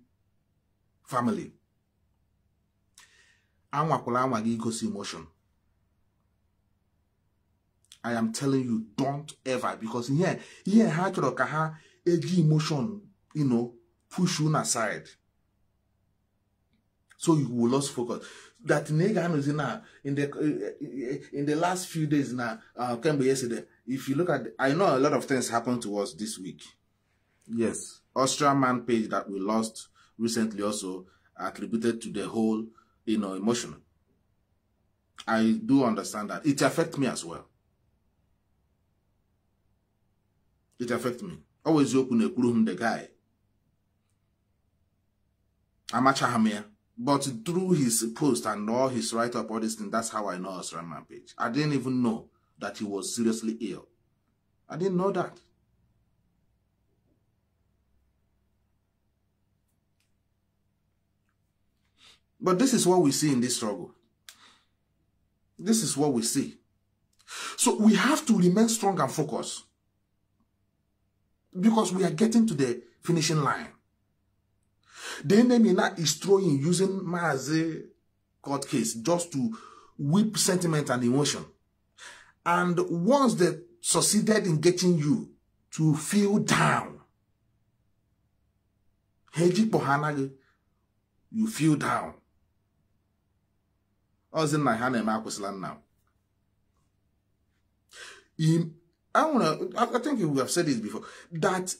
family. Anwakwala anwa gị igosi emotion. I am telling you, don't ever, because here, here, ha chọrọ ka ha eji emotion, you know, push you aside. So you will lose focus. that Nega is in now uh, in the uh, in the last few days now uh yesterday if you look at I know a lot of things happened to us this week yes Austrian man page that we lost recently also attributed to the whole you know emotion I do understand that it affect me as well it affect me always open a room the guy amachahamia but through his post and all his write-up, all this thing, that's how I know Osram Rampage. I didn't even know that he was seriously ill. I didn't know that. But this is what we see in this struggle. This is what we see. So we have to remain strong and focused. Because we are getting to the finishing line. The enemy now is throwing using Maze court case just to whip sentiment and emotion. And once they succeeded in getting you to feel down, you feel down. in my Ọzị land now. I don't know, I think we have said this before that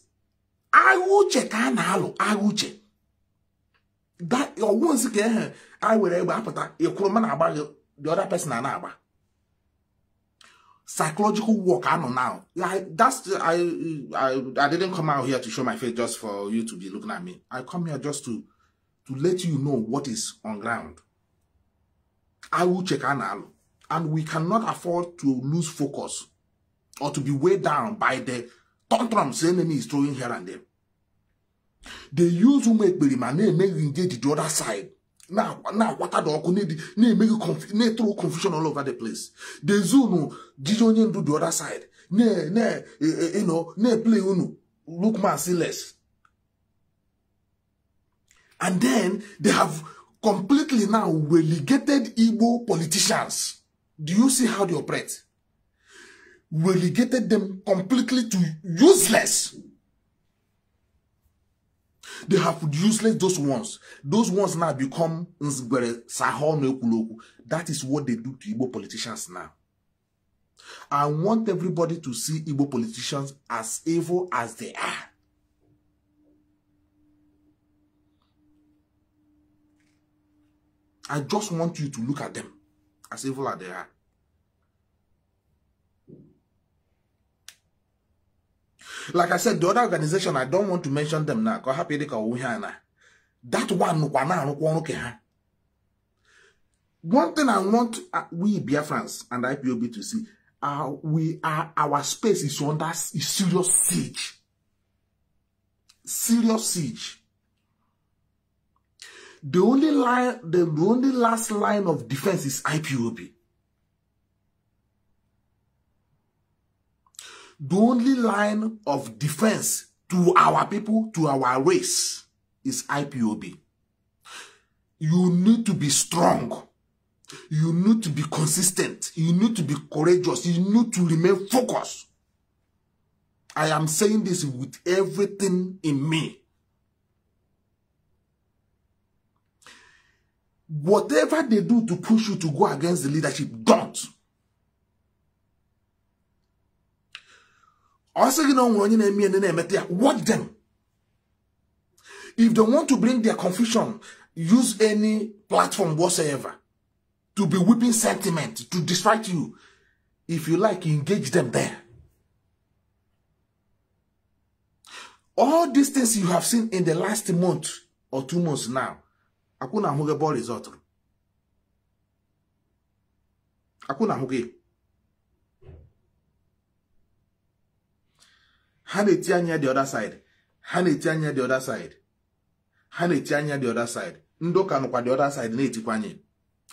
I uche check, I will I agha check that nsi ka get. I will egbe apụta ịkwụrụ mma na man about the other person I na psychological work I know now. Like that's I, I I didn't come out here to show my face just for you to be looking at me. I come here just to to let you know what is on ground. I will check anal and we cannot afford to lose focus or to be weighed down by the tantrums the enemy is throwing here and there. they use ụmụ ekperima na-emeghị engage the other side na-akwata dị ọkụ na-emeghị na-etụrụ confusion all over the place the zunu jiji onye ndu the other side na-eple eh, eh, unu look merciless and then they have completely now relegated Igbo politicians do you see how they operate relegated them completely to useless they have useless those ones those ones now become nzgbere sahọ that is what they do to igbo politicians now i want everybody to see igbo politicians as evil as they are i just want you to look at them as evil as they are like i said the other organization i don't want to mention them now Because happy hapụ dịka owu ihe a na that one nụkwa na-arụkwa ọrụ ke ha one thing i want uh, we biafrans and ipob to see uh, we are uh, our space is under is serious siege serious siege the only line the, the only last line of defense is ipob the only line of defense to our people, to our race, is IPOB. You need to be strong. You need to be consistent. You need to be courageous. You need to remain focused. I am saying this with everything in me. Whatever they do to push you to go against the leadership, don't. Also, you know, when nwere onye na-eme ndị them if they want to bring their confusion use any platform whatsoever to be whipping sentiment to distract you if you like engage them there all these things you have seen in the last month or two months now akuna na ahụghị bọl rizọtụrụ ha tianya the other side ha tianya the other side ha tianya the other side Ndoka nụkwa the other side na-etikwa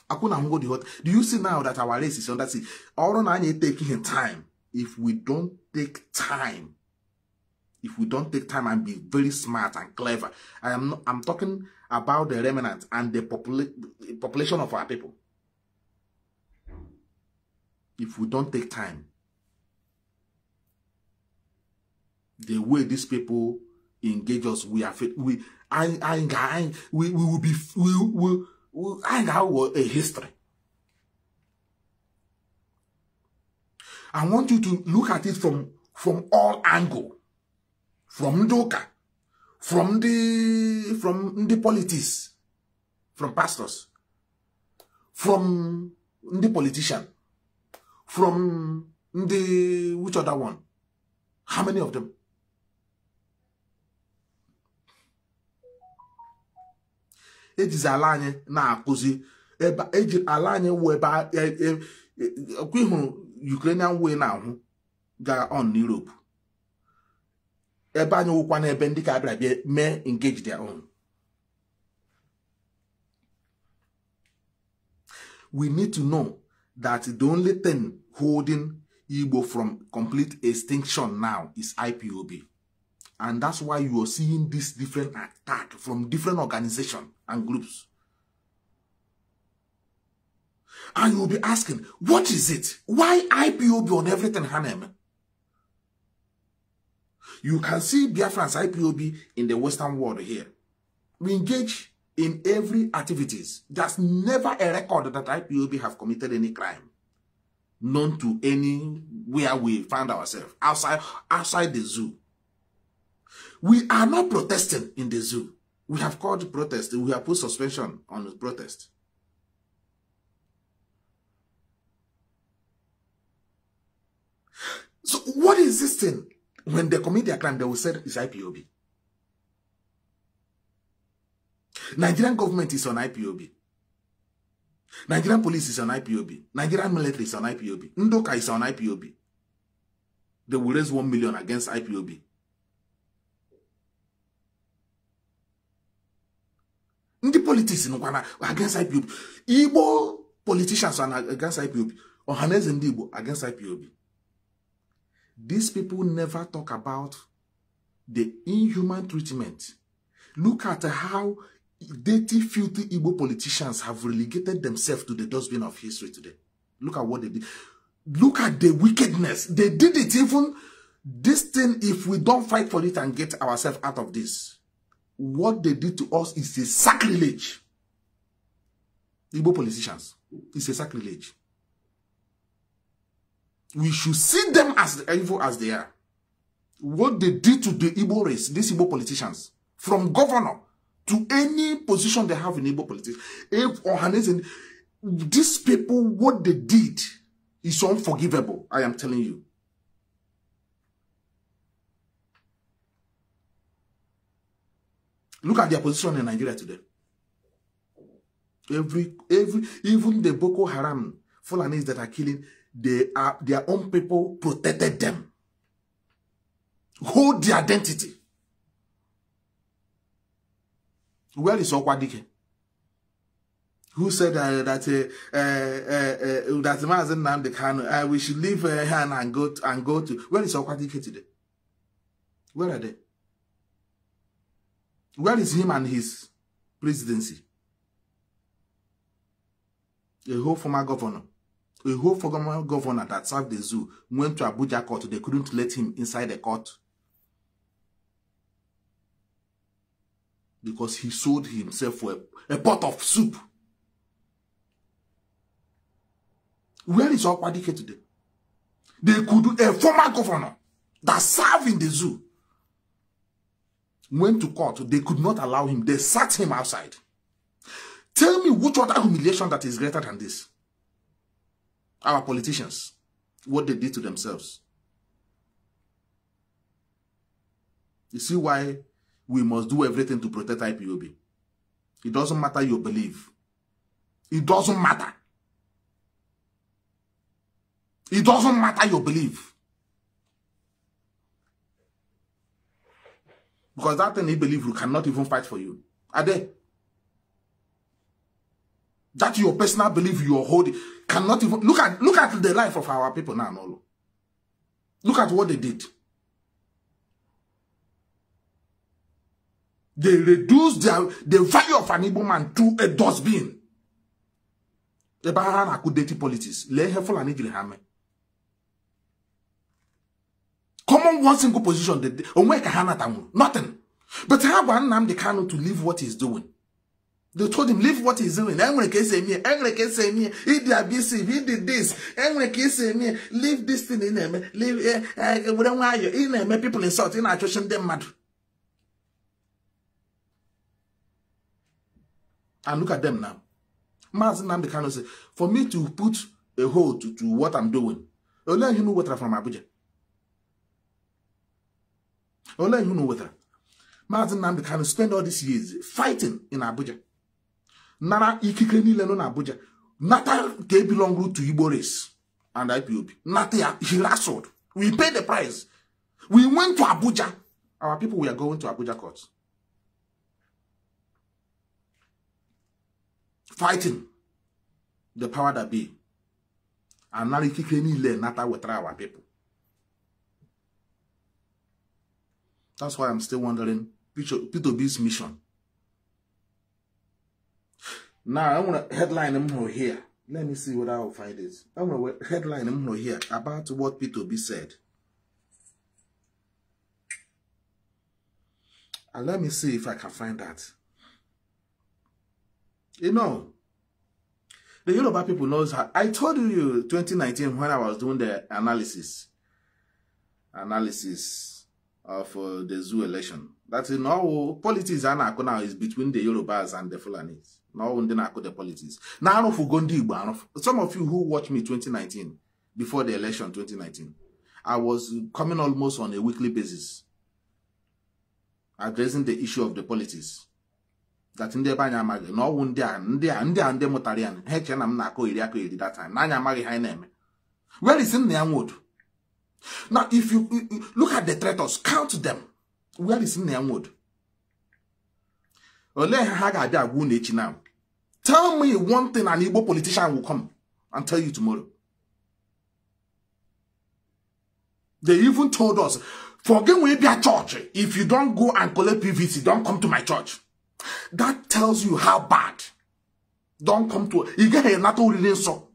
Akuna akwụ na hot do you see now that our race is under sea ọrụ na anyị take time if we don't take time if we don't take time and be very smart and clever i am not, i'm talking about the remnant and the, popula the population of our people if we don't take time the way these people engage us, we are We, I, I, I, we, we will be, we, we, we I a history. I want you to look at it from, from all angle. From Ndoka, from the, from the politics, from pastors, from the politician, from the, which other one? How many of them? ejizi ala anyị na-akụzi eji ala anyị wụ ebe e, e, e, ọkwa ịhụrụ Ukrainian way na-ahụ gaa on n'Europe ebe anyị wụkwa n'ebe ndị ka abịara bịa mee engage their own we need to know that the only thing holding Igbo from complete extinction now is IPOB And that's why you are seeing this different attack from different organizations and groups. And you'll be asking, what is it? Why IPOB on everything, Hanem? You can see Biafran's IPOB in the Western world here. We engage in every activities. There's never a record that IPOB have committed any crime. None to anywhere we find ourselves outside outside the zoo. We are not protesting in the zoo. We have called protest. We have put suspension on the protest. So what is this thing? When they commit their crime, they will say it's IPOB. Nigerian government is on IPOB. Nigerian police is on IPOB. Nigerian military is on IPOB. Ndoka is on IPOB. They will raise one million against IPOB. politics nụkwana against IPOB igbo politicians are against IPOB ọhaneze ndị igbo against IPOB these people never talk about the inhuman treatment look at how dirty filthy igbo politicians have relegated themselves to the dustbin of history today look at what they did look at the wickedness they did it even this thing if we don't fight for it and get ourselves out of this what they did to us is a sacrilege. Igbo politicians, it's a sacrilege. We should see them as evil as they are. What they did to the Igbo race, these Igbo politicians, from governor to any position they have in Igbo politics, if or these people, what they did is unforgivable, I am telling you. Look at their position in Nigeria today. Every, every, even the Boko Haram Fulanis that are killing, they are their own people protected them. Hold the identity. Where is Okwadike? Who said uh, that uh, uh, uh, uh that Mazen Namdi Kanu, uh, we should leave uh, her and go to, and go to. Where is Okwadike today? Where are they? Where is him and his presidency? A whole former governor, a whole former governor that served the zoo went to Abuja court. They couldn't let him inside the court because he sold himself for a, a pot of soup. Where is Okwadike today? They could do a former governor that served in the zoo went to court. They could not allow him. They sat him outside. Tell me which other humiliation that is greater than this? Our politicians, what they did to themselves. You see why we must do everything to protect IPOB. It doesn't matter your belief. It doesn't matter. It doesn't matter your belief. Because that thing he believe you cannot even fight for you. Are they? That your personal belief you are holding cannot even look at look at the life of our people now. No. Look at what they did. They reduced their, the value of an Igbo man to a dustbin. The Bahana could date politics. Let her fall and common one single position that onwe ka hanata nwụrụ nothing but ha gwa Nnamdi Kanu to leave what he's doing they told him leave what he's doing enwere ka esi eme enwere ka esi eme he did abusive he did this enwere ka esi eme leave this thing ị na-eme leave were nwayọ ị na-eme people insult ị na-achụchi ndị mmadụ and look at them now Maazị Nnamdi Kanu say for me to put a hold to, to what I'm doing olee ihe m wetara from Abuja I'll let you know whether. Mazin Namdi can spend all these years fighting in Abuja. Nara ikike niile Abuja. n'Abuja. Nata they belong to Iboris and IPOB. Nata he wrestled. We paid the price. We went to Abuja. Our people were going to Abuja court. Fighting the power that be. And now ikike niile will try our people. That's why I'm still wondering Peter bs mission. Now, I want to headline them here. Let me see what I'll find is. I want to headline them here about what Peter b said. And let me see if I can find that. You know, the Yoruba people knows how. I told you 2019 when I was doing the analysis. Analysis of uh, the zoo election. that is now politics a na-akụ now is between the Yorubas and the Fulanis. Now ndi ndị na-akụ the politics. Na arụfugo ndị Igbo arụfụ. Some of you who watched me 2019, before the election 2019, I was coming almost on a weekly basis, addressing the issue of the politics. That ndị ebe anyị amaghị na ọwụ ndị a ndị a ndị a ndị mụtara ya ha eche na m na-akụ iri akụ iri that time na anyị amaghị ha anyị na-eme. Where is nna ya nwodu? Now, if you, you, you look at the traitors, count them. Where is Nehemwood? now. Tell me one thing an Igbo politician will come and tell you tomorrow. They even told us, forget we be a church. If you don't go and collect PVC, don't come to my church. That tells you how bad. Don't come to, you get a NATO so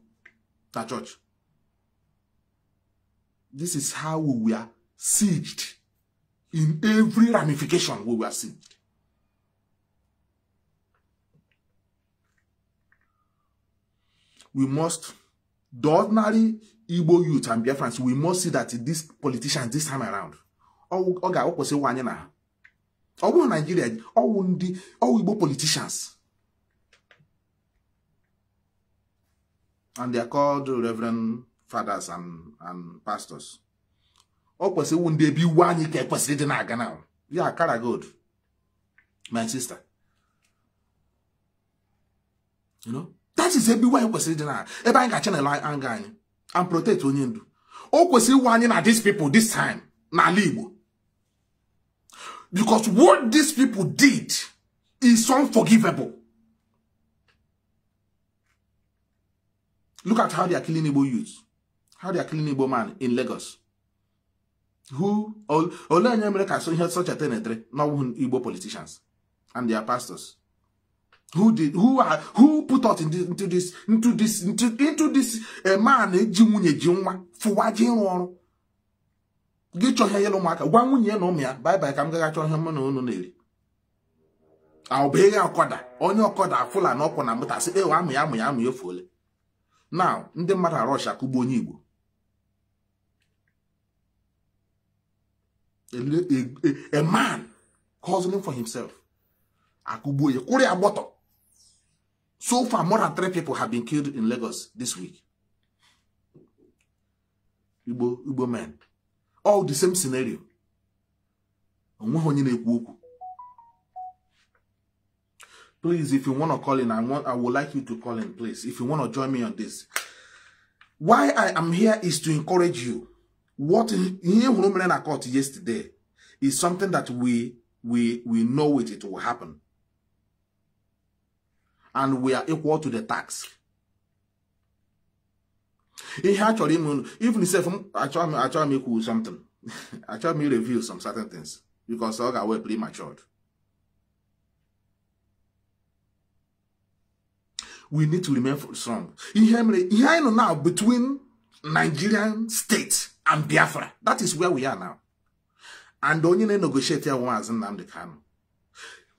that church. This is how we were sieged in every ramification we were sieged. We must, the ordinary Igbo youth and Biafrans, we must see that these politicians this time around, ọ ga-awụkwụsị nwa anyị na ha ọ bụrụ naijiria ọwụ ndị ọwụ igbo politicians and they are called reverend fathers and and pastors ọ kwesịrị iwu be one, iwu anyị ka ekwesịrị ịdị now. Yeah, ya kara good, my sister you know that is ebe iwu anyị kwesịrị ịdị na ebe anyị ga chanel anga anyị and protect onye ndu o kwesịrị iwu anyị na these people this time n'ala igbo because what these people did is unforgivable look at how they are killing able youths how they are killing Igbo man in Lagos who olee onye mere ka ihe socheta na-etere n'ọwụ Igbo politicians and their pastors who did who are who put out into, into this into this into, this a eh, man e ji nwunye ji nwa fụwa ji ịrụ ọrụ gị chọọ ihe yere ụmụaka gwa nwunye ya na ụmụ ya baịbaị ka m gaga chọọ ihe mụ na unu na-eri aụbụghị ọkọda onye ọkọda fụla na ọkwụ na mbụtasị ewe amụ ya amụ ya amụ ya efuole na ndị mmadụ arọsha kụgbu onye Igbo a, a, a man hustling for himself. Akubuye, Kuri Aboto. So far, more than three people have been killed in Lagos this week. Igbo, Igbo men. All the same scenario. Please, if you want to call in, I want I would like you to call in, please. If you want to join me on this. Why I am here is to encourage you What he who mere na court yesterday is something that we we we know it, it will happen. And we are equal to the tax. Ihe a chọrọ ime unu, even self achọrọ m make you something, [LAUGHS] I try m review some certain things because ọ ga-awe prematured. We need to remain strong. Ihe mere now between Nigerian states. and Biafra. That is where we are now. And onye na-negotiate ya nwaazị Nnamdị kanu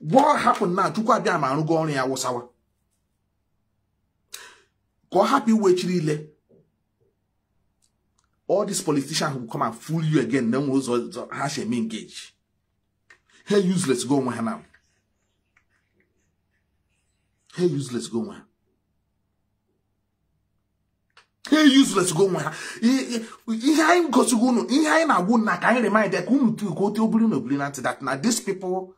What happened now? Chukwu abịa ma arụgo ọrụ ya wụsawa. Ka ọ hapụ iwechiri ile. All these politicians who come and fool you again na nwe ụzọ ha si eme engage. Ha useless go onwe ha na. Ha useless go onwe ha. Hey, useless go on. nwa ha ihe anyị go unu ihe anyị na-agwụ na ka anyị remind ka unu tu ka ote obiri na obiri na ntị that now these people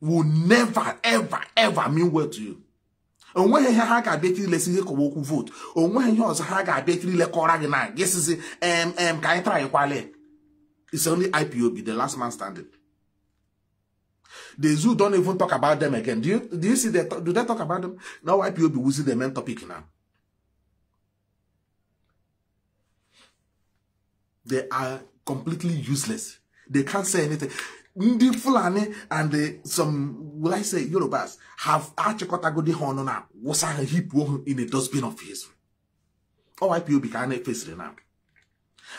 will never ever ever mean well to you And onweghị ihe ha ga-abịa ekiri lesi ihe kọwa can vote And onweghị ihe ọzọ ha ga-abịa ekiri lekọra gị na gị sizi mm Can you try kwale it's only ipob the last man standing the zoo don't even talk about them again do you, do you see that? do they talk about them now ipob will wuzi the main topic now They are completely useless. They can't say anything. Ndi Fulani and the, some, will I say, Yorubas, have Achikotagodi Honona, was a heap in a dustbin of his. OIPOB can face it now.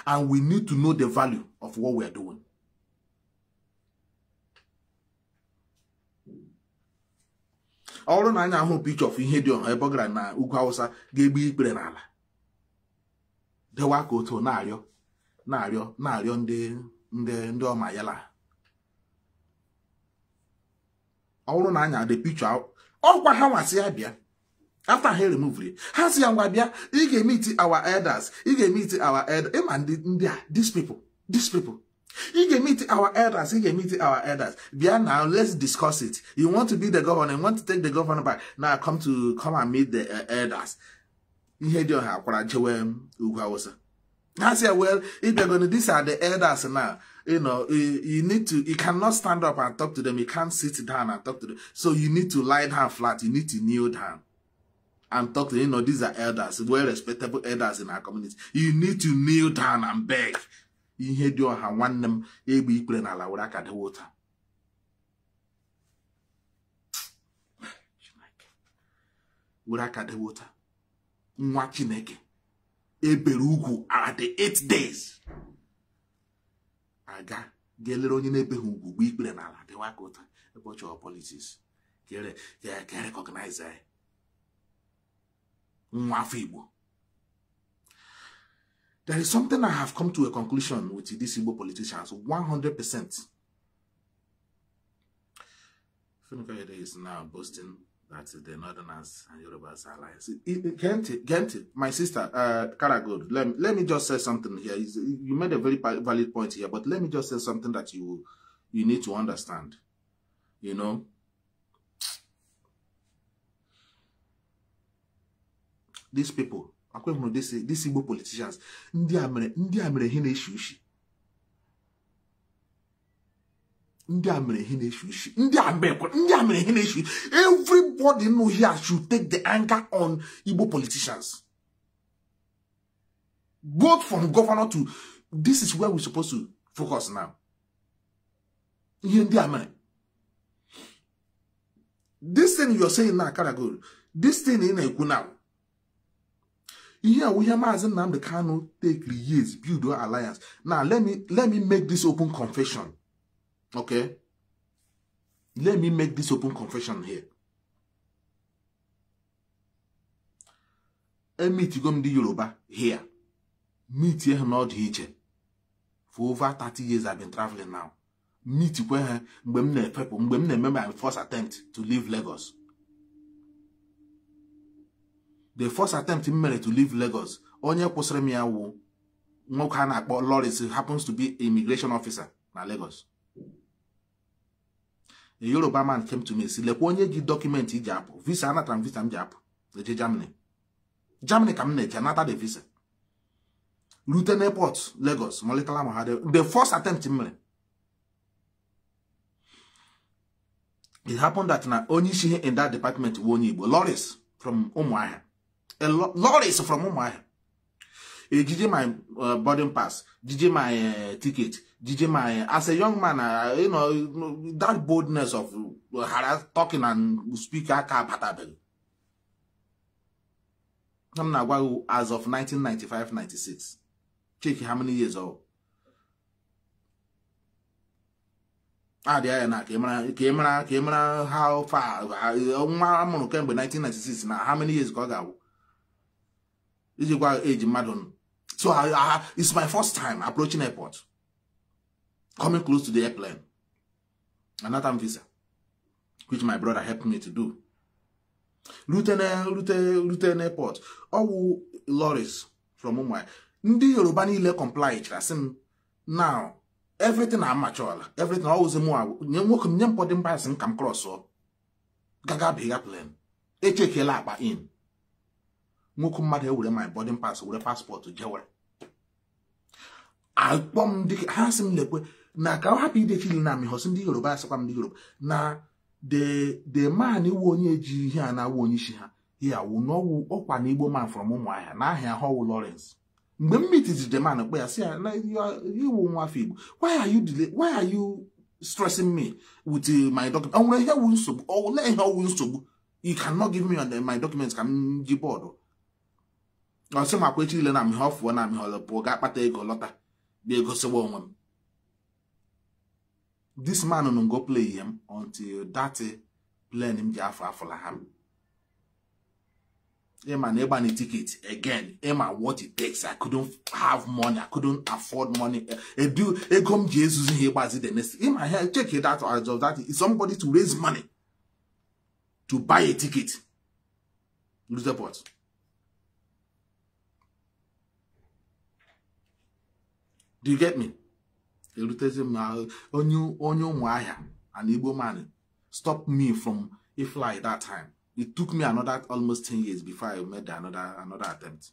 And we need to know the value of what we are doing. ọ bụrụ na anyị ahụ picture of ihe dị ọha ebe ọ gara na ugwu awụsa ga-egbu ikpere n'ala dewa ka otu na-arịọ na-arịọ na-arịọ ndị ndị ndị ọma yala ọ bụrụ na anya dị picha ọkwa ha nwasị ya bịa after ha remove ha si ya ngwa bịa ị ga-emiti our elders ị ga-emiti our elders ịma ndị ndị a these people these people ị ga-emiti our elders ị ga-emiti our elders bịa na let's discuss it you want to be the governor you want to take the governor back now come to come and meet the eh, elders ihe dị ọha akwara jewe ugwu awụsa I said, well, if they're going to, these are the elders now. You know, you, eh, you, need to, you cannot stand up and talk to them. You can't sit down and talk to them. So you need to lie down flat. You need to kneel down and talk to You know, these are elders, well-respectable elders in our community. You need to kneel down and beg. You dị ọha nwanne m egbe ikpere n'ala were aka dewe ụta were aka dewe water. nwa ebere ugwu the eight days aga ga-elere onye na-ebeghị ugwu gba ikpere n'ala dịwa ka ụta ụbọchị politiks ga-erekọgnaiz anyị eh. nwa afọ igbo there is something i have come to a conclusion with these igbo politicians 100 percent is now boasting that is the Northerners and Yorubas alliance. Gente, Gente, my sister, uh, Karagod, let let me just say something here. You made a very valid point here, but let me just say something that you you need to understand. You know, these people, akwai these Igbo politicians, ndị a mere ihe na-eshi ushi ndị a mere ihe na-efu isi ndị a mere ihe na-efu isi everybody know here should take the anger on Igbo politicians both from governor to this is where we supposed to focus now ihe ndị a mere this thing you are saying now Karagold this thing ị na-ekwu now ihe awụ ihe maazị Nnamdi Kanu take years build alliance now let me let me make this open confession Okay? Let me make this open confession here. emitigo m ndị Yoruba here meet ha n'ọdụ iche for over 30 years I've been traveling now meet kwe ha mgbe m na-efepụ mgbe m na-eme my first attempt to leave Lagos the first attempt m mere to leave Lagos onye kwụsịrị m ya wụ nwoke a na-akpọ Lawrence happens to be immigration officer na Lagos a Yoruba man came to me si lekwa onye ji dọkụmentị iji apụ visa anatara m visa m ji apụ eje Germany Germany ka m na-eje anata the visa rute n'airport Lagos molitala m ha the first attempt m mere it happened that na onye isi ihe in that department bụ onye Igbo loris from Ụmụahịa Lawrence from Ụmụahịa ejije my uh, boarding pass jije my uh, ticket DJ anyị as a young man, uh, you know, that boldness of uh, talking and speaking, I'm not well, as of 1995 96. Check how many years old. Ah, there, na camera, camera, camera, how far? Nwa amụrụ kemgbe 1996 na how many years ka ọ ga-awụ? Iji gwa age mmadụ. So, I, it's my first time approaching airport. coming close to the airplane. Another visa, which my brother helped me to do. rute Luton, Luton Airport. All Loris from Mumbai. Ndị Yoruba niile comply chasị m now everything amachọla everything ọwụzi mụ nye nwoke m nye mpọdụ mba asị m ka m krọsụọ gaga biga plan echekela akpa in nwoke mmadụ ewere my boarding pass were paspọtụ jewere akpọ ha sị m lekwe na ka ọ hapụ idechi na amị amịghọsị ndị yoruba asịkwa m ndị yoruba na de man iwu onye ji ihe a na-awụ onye isi ha ya wu n'ọwụ ọkwa na igbo man from ụmụahịa na ahịa họwụ lawrence mgbe m mitizi the man kpe ya si ya na iwu nwafọ igbo why are you why are you stressing me with uh, my document onwere ihe wu nsogbu olee ihe ọwụ nsogbu you cannot give me uh, my documents ka m ji bọọdụ ọsị makwa echi ile na m ihe ọfụọ na m ihe ọlọpụọ ga-akpata ego lọta bịa egosiwa onwe m this man no go play him until that eh, plane him ji afọ afụla ha ịma na ịgba na ticket again ịma what it takes i couldn't have money i couldn't afford money edu ego m ji ezuzu ihe ịgbazi the next ịma ha check it out as of that is somebody to raise money to buy a ticket Lose the Lutherport do you get me erutezi m na onye ụmụahịa an igbo man stop me from fly that time it took me another almost 10 years before i made another another attempt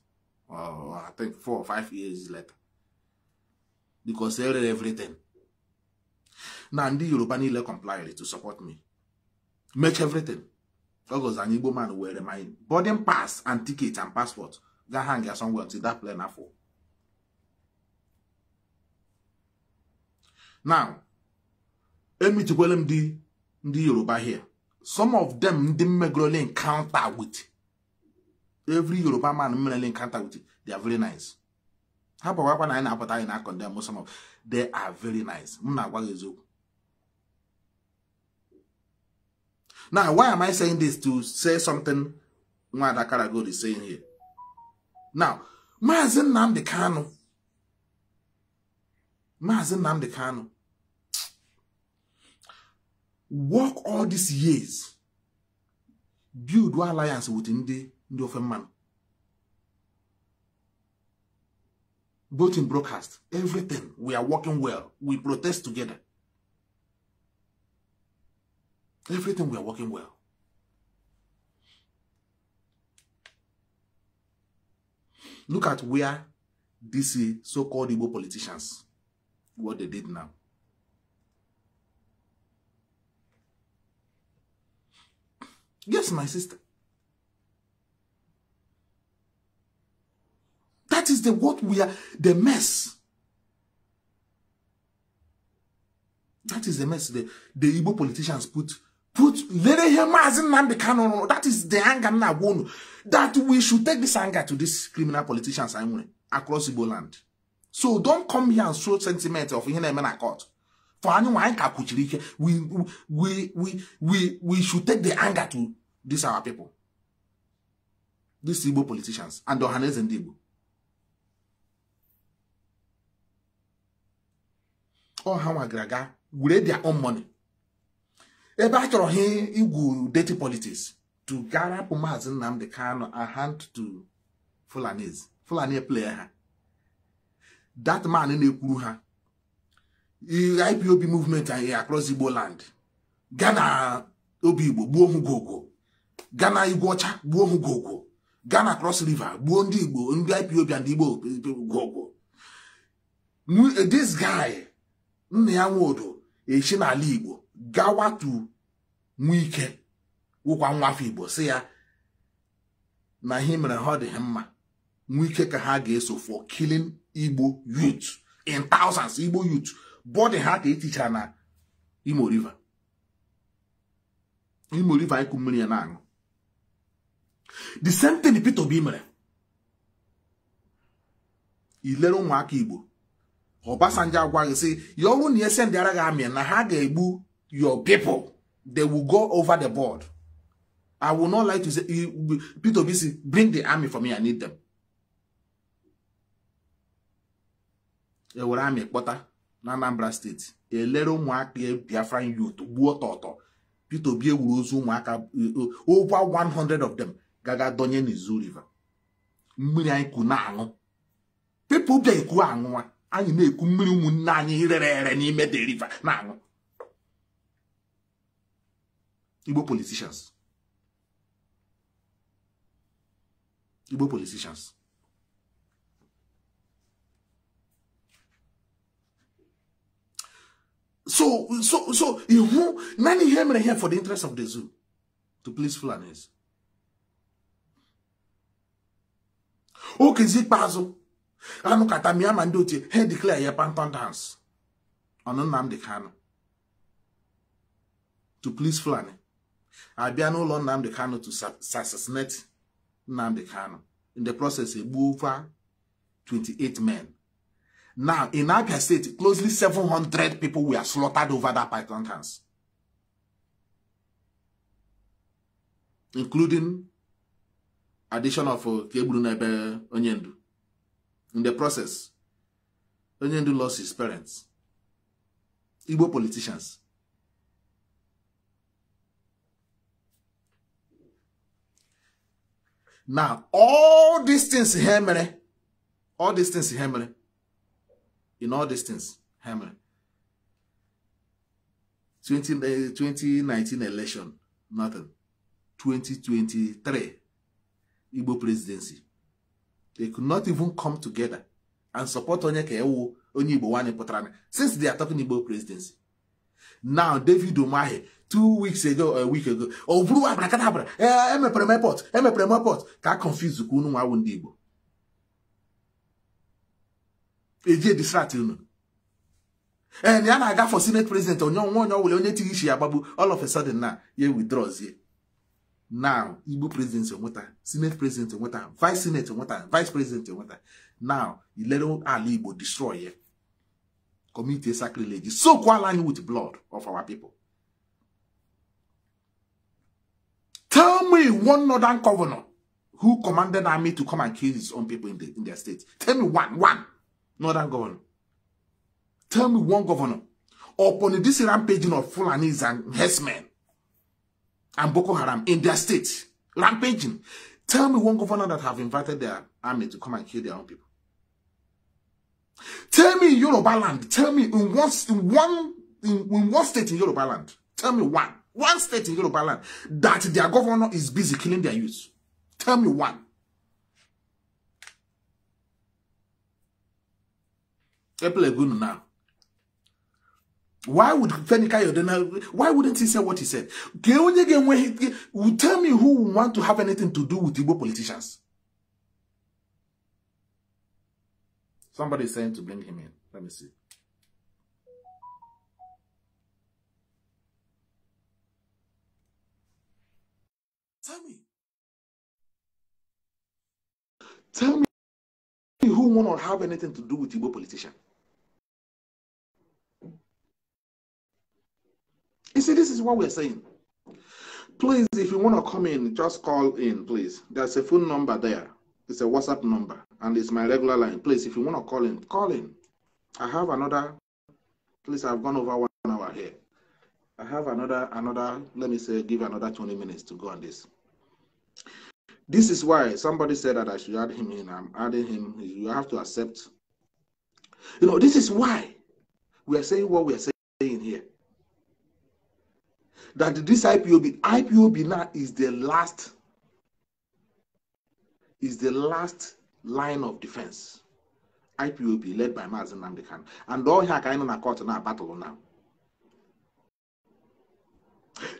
or oh, i think four or five years later because I read everything na ndị yoruba niile complied to support me make everything ogos an igbo man were my boarding pass and ticket and passport ga hang ya somewhere until that plane afọ now emitikwele m ndị ndị yoruba here some of them ndị mmegorole encounter with every yoruba man mmerele encounter with they are very nice ha bụkwakwa na anyị na-apụta anyị na condemn some of they are very nice m na-agwa gị eziokwu now why am i saying this to say something nwada karagod is saying here now maazị nnamdị kanụ Maazị Nnamdi Kanu work all these years build one alliance with ndị ndị ofe mmanụ both in broadcast everything we are working well we protest together everything we are working well look at where these so-called Igbo politicians what they did now. Yes, my sister. That is the what we are, the mess. That is the mess the, the Igbo politicians put put lere hemazin nambi canon. That is the anger now. That we should take this anger to these criminal politicians across Igbo land so don't come here and show sentiment of ihe na-eme na court for anyị nwa anyị ka kwuchiri ike we we we we we should take the anger to these our people these Igbo politicians and ọhaneze ndị Igbo ọ ha nwa gara were their own money ebe a chọrọ ha igwu dirty politics to garapụ maazị Nnamdi Kanu a hand to Fulanis Fulani e player. ha that man na-ekwuru ha IPOB movement anyị across Igbo land gaa obi Igbo gbuo ohugogo gaa na igwe ọcha gbuo ohugogo gaa na cross river gbuo ndị Igbo ndị IPOB ndị Igbo gogo this guy nna ya nwodo echi n'ala Igbo gawa to Nwike wụkwa nwa afọ Igbo si ya na ihe mere ha ọ dị mma Nwike ka ha ga-eso for killing igbo youth in thousands igbo youth bọdị ha ka etichara na imo river imo river anyị kụ mmiri ya na-aṅụ the same thing Peter Obi mere ilere ụmụaka igbo Obasanjo agwaghị sị ya ọrụ na ese ndị ara gị amị na ha ga-egbu your people they will go over the board I will not like to say Peter Obi si bring the army for me I need them. ewere amị kpọta na Anambra steeti elere ụmụaka e Biafra youth gbuo tọtọ Peter Obi ewuru ozu ụmụaka e, over 100 of them gaga donye n'izu river mmiri anyị ku na-aṅụ pipo bịa ekwu aṅụwa anyị na-ekwu mmiri ụmụnne anyị rere ere n'ime the river na-aṅụ Igbo politicians Igbo politicians So, so, so, many nani and here for the interest of the zoo to please Fulanis. Okay, zikpazo. Anu katamia mandoti, he declare ye panton dance. Anu Nnamdi Kanu. To please Fulani. Abia no lọ Nnamdi Kanu to assassinate Nnamdi Kanu. In the process, he moved 28 men. Now, in Abia State, closely 700 people were slaughtered over that python dance. Including addition of Kebulunebe uh, Onyendu. In the process, Onyendu lost his parents. Igbo politicians. Now, all these things here, all these things here, in all these things ha 2019 eh, election nothing 2023 Igbo presidency they could not even come together and support onye ka ewu onye Igbo nwanyị pụtara since they are talking Igbo presidency now David Umahi two weeks ago a week ago ọ oh, bụrụ abrakadabra ee eh, emepere m airport emepere m airport ka a confuse ka unu nwa awụ ndị Igbo eje distract unu ee eh, na ya na-aga for senate president onye ọnwa onye ọbụla onye tighi ishi ya gbagbu all of a sudden na ya withdraws now igbo president enweta senate president enweta vice senate enweta vice president enweta now ilere ala igbo destroy ye community sacrilege sokwala anyị with blood of our people tell me one northern governor who commanded army to come and kill his own people in, the, in their state tell me one one not that governor. Tell me one governor upon this rampaging of Fulanis and Hessmen and Boko Haram in their state, rampaging. Tell me one governor that have invited their army to come and kill their own people. Tell me in Yoruba land. Tell me in one in one in, in one state in Yoruba land. Tell me one one state in Yoruba land that their governor is busy killing their youth. Tell me one. Epelegunu now. Why would Fenika Yodena, why wouldn't he say what he said? tell me who want to have anything to do with Igbo politicians. Somebody is saying to bring him in. Let me see. Tell me. Tell me who want to have anything to do with Igbo politicians. You see, this is what we're saying. Please, if you want to come in, just call in, please. There's a phone number there. It's a WhatsApp number, and it's my regular line. Please, if you want to call in, call in. I have another. Please, I've gone over one hour here. I have another, another. Let me say, give another 20 minutes to go on this. This is why somebody said that I should add him in. I'm adding him. You have to accept. You know, this is why we are saying what we are saying here that this IPOB, IPOB now is the last, is the last line of defense. IPOB led by Mazin Namdekan. And all here can in a court now battle now.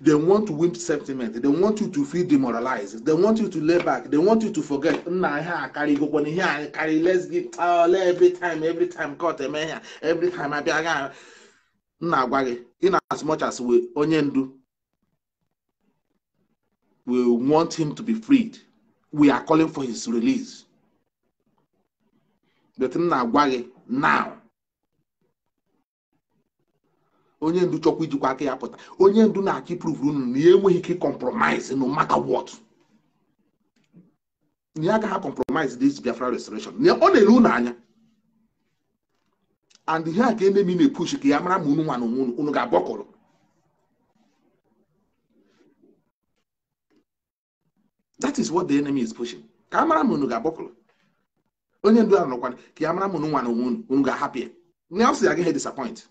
They want to win sentiment. They want you to feel demoralized. They want you to lay back. They want you to forget. Nah, here carry go when here carry. Let's get uh, all every time, every time court eme eh, here, every time I be again. Nah, gwagi. In as much as we onye do. we want him to be freed we are calling for his release but m na-agwa gị now onye ndu chọkwa ijikwa aka ya pụta onye ndu na-achọ iprove unu na ya e enweghị ike compromise no matter what na ya agaghị compromise this Biafra restoration na ọ na-ele unu anya and ihe a ka enemi na-epush ka ya mara ma unu nwa na onwe unu unu ga-agbakọrọ that is what the enemy is pushing ka a mara ma unu ga-agbakọrọ onye ndu ahụ nọkwana ka ya mara ma nwa na unu ga-ahapụ ya ọ sị ya agaghị e disappoint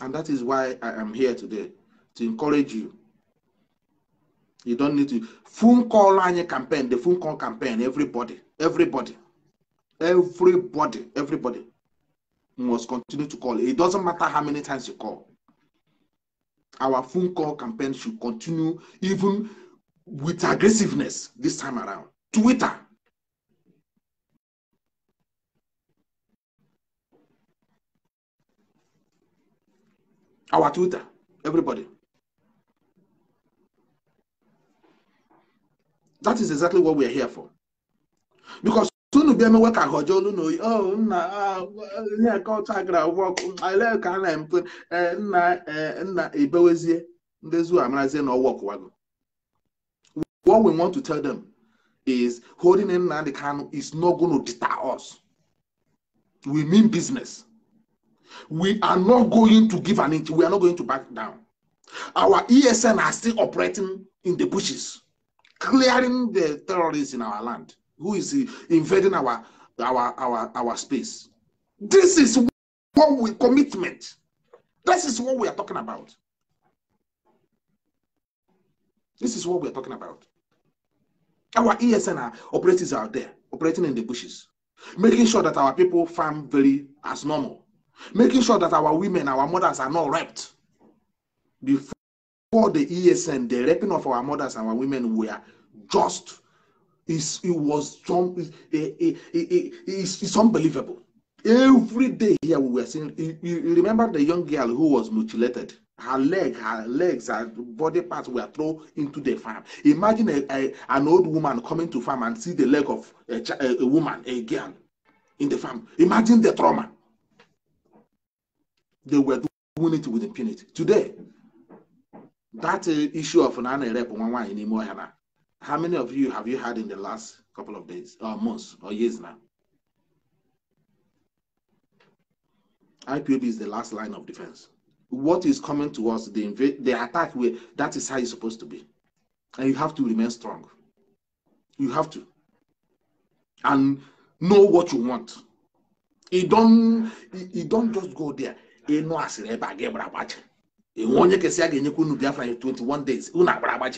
and that is why i am here today to encourage you you don't need to phone call anyị campaign the phone call campaign everybody everybody everybody everybody must continue to call it doesn't matter how many times you call Our phone call campaign should continue even with aggressiveness this time around. Twitter. Our Twitter, everybody. That is exactly what we are here for. Because ka olu oh, ah, ka nna nna what we want to tell them is holding in the can is not going to deter us we mean business we are not going to give an inch we are not going to back down our ESN are still operating in the bushes clearing the terrorists in our land who is invading our our our our space. This is what we commitment. This is what we are talking about. This is what we are talking about. Our ESN operators are there, operating in the bushes, making sure that our people farm very as normal, making sure that our women, our mothers are not raped. Before the ESN, the raping of our mothers and our women were just It's, it was some, it, it, it, it's, it's unbelievable. Every day here we were seeing. You, you remember the young girl who was mutilated? Her leg, her legs, her body parts were thrown into the farm. Imagine a, a, an old woman coming to farm and see the leg of a, a woman, a girl, in the farm. Imagine the trauma. They were doing it with impunity. Today, that uh, issue of an rep one one in Imoyana How many of you have you had in the last couple of days or uh, months or years now? IPOB is the last line of defense. What is coming to us, the, inv- the attack, way, that is how it's supposed to be. And you have to remain strong. You have to. And know what you want. You don't, you don't just go there. You know, as a rebel, I get a batch. You want to 21 days. You know,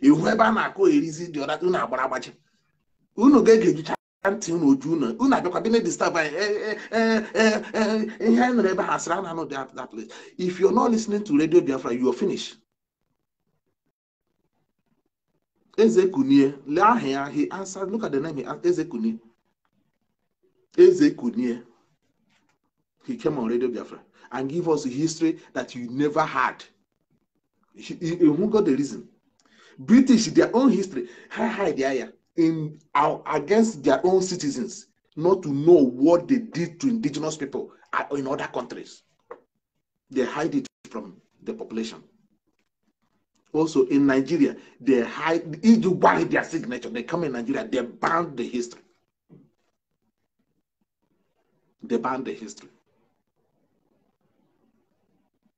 ihu ebe a na-akụ erizi dị ọda unu agbara agbaji unu ga-ege ejicha ntị unu oju unu unu abịakwa dị na-edistab e, e, e, ihe anyị nụrụ ebe ha sịrị a na-anụ that place if you're not listening to radio biafra you're finished eze kunie lee aha ya he answered look at the name eze kunie eze kunie he came on radio biafra and give us a history that you never had you, you, you the reason British, their own history, hi the there, in uh, against their own citizens, not to know what they did to indigenous people in other countries. They hide it from the population. Also in Nigeria, they hide buy their signature. They come in Nigeria, they ban the history. They ban the history.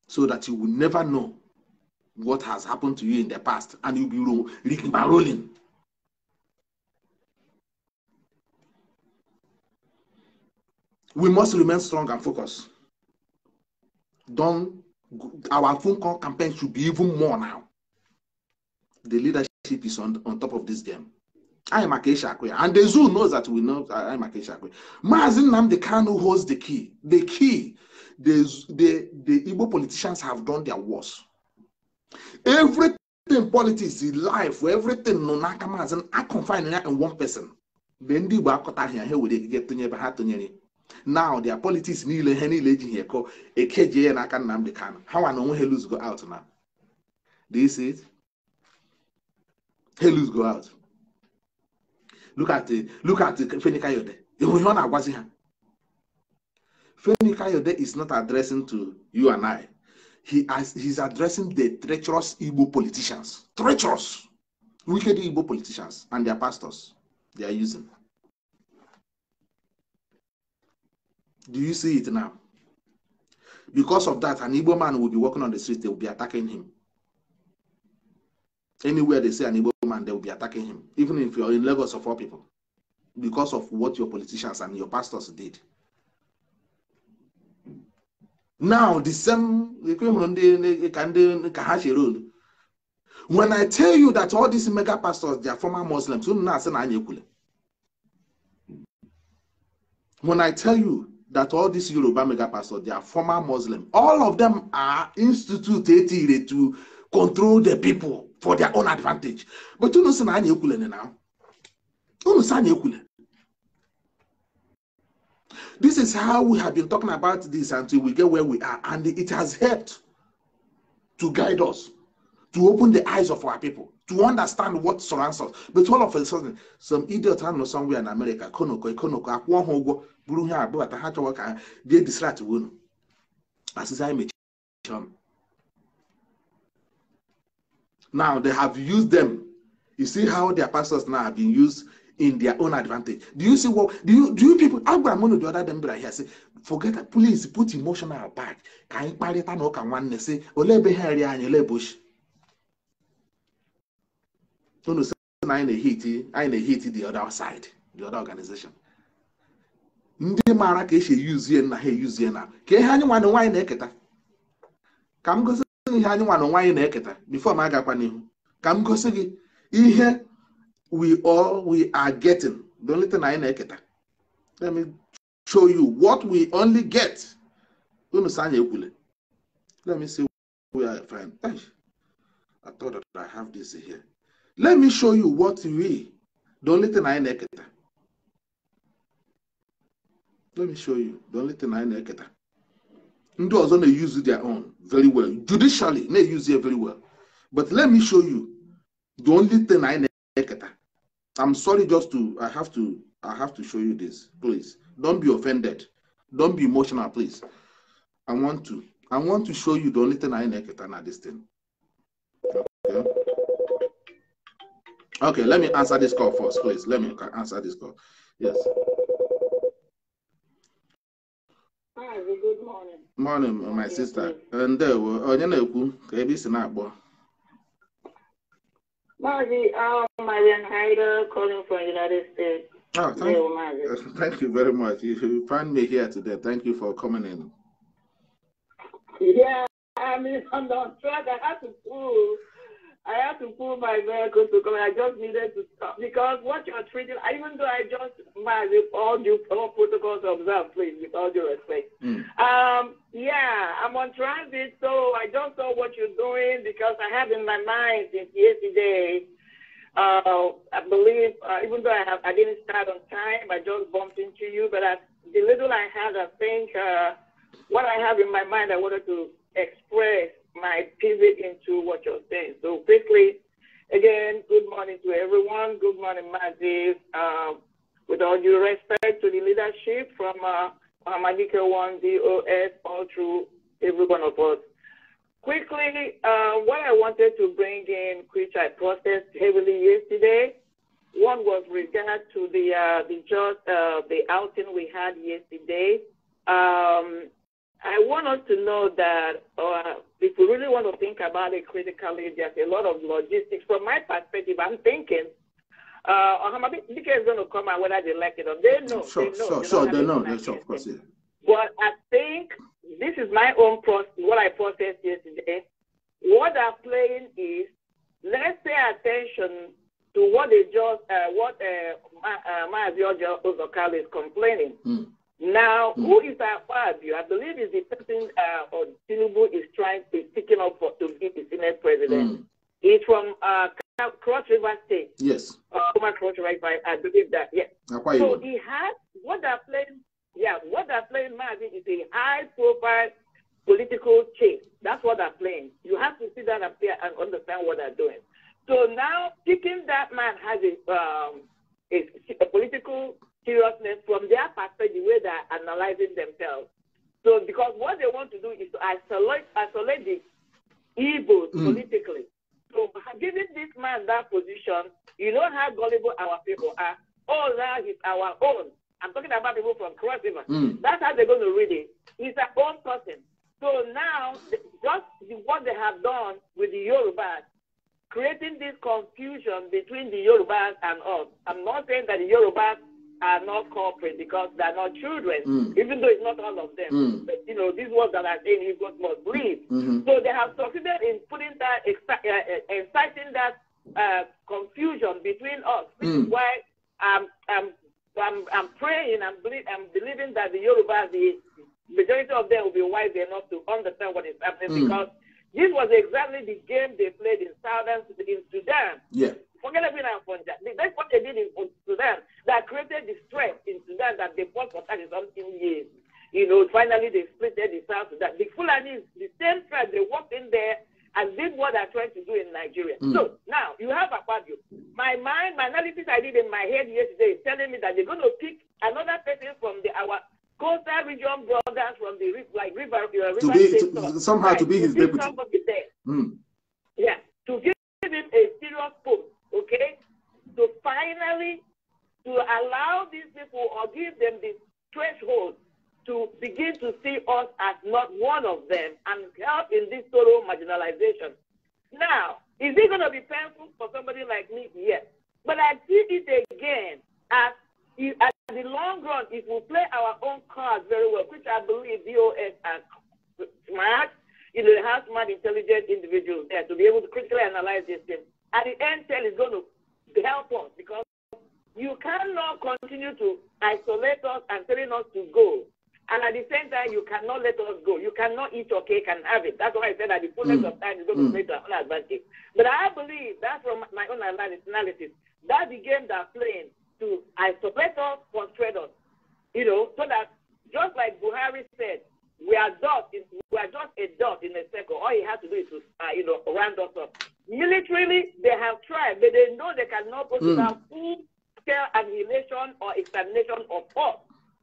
So that you will never know what has happened to you in the past, and you'll be rigging rolling. We must remain strong and focused. Don't our phone call campaign should be even more now. The leadership is on, on top of this game. I am Akesha Akwe, and the zoo knows that we know I am Akesha Akwe. Mazin can who holds the key. The key. The, the, the Igbo politicians have done their worst everything politics life everything nọ n'aka maazị a confine ya in one person mgbe ndị Igbo akọtaghị ya ha were ekike tụnye ebe ha tụnyere now their politics niile ihe niile ejighị ekọ ekejie ya n'aka Nnamdi kan ha nwa na onwe ha lose go out na do you see it ha lose go out look at look at Femi Kayode ihe ọ na-agwazi ha Femi Kayode is not addressing to you and I he has, he's addressing the treacherous Igbo politicians, treacherous, wicked Igbo politicians and their pastors they are using. Do you see it now? Because of that, an Igbo man will be walking on the street, they will be attacking him. Anywhere they see an Igbo man, they will be attacking him, even if you're in Lagos of all people, because of what your politicians and your pastors did. now the same ka ndị ka ha chere olu when i tell you that all these mega pastors they are former muslims unu na-asị na anya ekwule when i tell you that all these yoruba mega pastors they are former muslims all of them are institute instituted to control the people for their own advantage but unu sị na anya ekwule na unu sị anya ekwule This is how we have been talking about this until we get where we are, and it has helped to guide us, to open the eyes of our people, to understand what surrounds us. But all of a sudden, some idiot I know somewhere in America, they Konoko, to win. As is I Now they have used them. You see how their pastors now have been used in their own advantage. Do you see what do you do you people agwara m unu the other day mbịara here say forget please put emotional back ka anyị kparịta na ụka nwanne si ole ebe ha eri anyị ole ebe ochi unu si na anyị na-ehiti anyị na-ehiti the other side the other organization ndị maara ka esi eyuzie na ha eyuzie na ka ihe anyị nwanne nwaanyị na-eketa ka m gosi ihe anyị nwanne nwaanyị na-eketa bifo m agakwa n'ihu ka m gosi gị ihe we all we are getting. The only thing I need Let me show you what we only get. Let me see where I find. I thought that I have this here. Let me show you what we. The only thing I neketa. Let me show you. The only thing I neketa. Ndị ọzọ na-use their own very well. Judicially, na-use it very well. But let me show you the only thing I neketa. I'm sorry just to I have to I have to show you this. Please don't be offended. Don't be emotional, please. I want to. I want to show you the only thing I know this thing. Okay. Okay, let me answer this call first, please. Let me answer this call. Yes. Hi, good morning. Morning, my sister. And there uh, were onye na-ekwu ka it's a na-akpọ. Margie, um, Marian Hyder calling from United States. Oh, thank, you. [LAUGHS] thank you very much. If you find me here today, thank you for coming in. Yeah, I mean, [LAUGHS] I'm on track. I have to prove I had to pull my vehicle to come. I just needed to stop because what you're treating, even though I just my all due all protocols observed, please, with all due respect. Mm. Um, yeah, I'm on transit, so I don't know what you're doing because I have in my mind since yesterday. Uh, I believe, uh, even though I have, I didn't start on time. I just bumped into you, but I, the little I had, I think uh, what I have in my mind, I wanted to express my pivot into what you're saying. So quickly, again, good morning to everyone. Good morning, Mazis. Um, with all due respect to the leadership from uh, Madika 1 DOS all through every one of us. Quickly, uh, what I wanted to bring in, which I processed heavily yesterday, one was regard to the uh, the just uh, the outing we had yesterday. Um, I want us to know that uh, if we really want to think about it critically, there's a lot of logistics. From my perspective, I'm thinking uh, Bika is going to come out whether they like it or they know. Sure, they know. sure, they sure. They know. Yes, of course. Yeah. But I think this is my own process, what I processed yesterday. What I'm playing is let's pay attention to what they just, uh, what uh, Ma- uh, is complaining. Mm. Now, who is our You, I believe is the person uh, or Tinubu is trying to picking up for, to be the Senate president. Mm. He's from uh, Cross River State. Yes. uh, Cross River, I believe that. Yes. so he has what they're playing. Yeah, what they're playing, Marvin, is a high-profile political chase. That's what they're playing. You have to see that up there and understand what they're doing. So now, picking that man has a um, a, a political seriousness from their perspective, the way they're analyzing themselves. So, because what they want to do is to isolate, isolate the evil mm. politically. So, giving this man that position, you know how gullible our people are. All that is our own. I'm talking about people from Cross River. Mm. That's how they're going to read it. He's a own person. So now, just what they have done with the Yorubas, creating this confusion between the Yorubas and us. I'm not saying that the Yorubas are not corporate because they're not children, mm. even though it's not all of them. Mm. But, you know, these ones that are saying you got must live. Mm-hmm. So they have succeeded in putting that, uh, exciting uh, that uh, confusion between us. which mm. is why I'm, I'm, I'm, I'm praying, I'm, believe, I'm believing that the Yoruba, the majority of them will be wise enough to understand what is happening mm. because this was exactly the game they played in southern in Sudan. Yeah. Forget everything I'm from that. That's what they did in Sudan that created the stress in Sudan that they fought for 30 something years. You know, finally they split the South Sudan. The Fulani, the same tribe, they walked in there and did what they're trying to do in Nigeria. Mm. So now you have Akpabio. My mind, my analysis I did in my head yesterday is telling me that they're going to pick another person from the our coastal region brothers from the like river, your river to be, to, somehow right, to be his to deputy. Somebody Mm. Yeah, to give him a serious post, okay? To finally to allow these people or give them the threshold to begin to see us as not one of them and help in this total marginalization. Now, is it going to be painful for somebody like me? Yes. But I see it again as at the long run, if we play our own cards very well, which I believe DOS are smart, you know, they have smart, intelligent individuals there to be able to critically analyze this thing. At the end, tell is going to help us because you cannot continue to isolate us and telling us to go. And at the same time, you cannot let us go. You cannot eat your cake and have it. That's why I said that the fullness mm. of time is going to mm. play to our own advantage. But I believe that from my own analysis, that the game they're playing to isolate us frustrate us, you know, so that just like Buhari said, we are just we are just a dot in a circle. All he has to do is to, uh, you know, round us up. Militarily, they have tried, but they know they cannot go to mm. full-scale annihilation or extermination of us.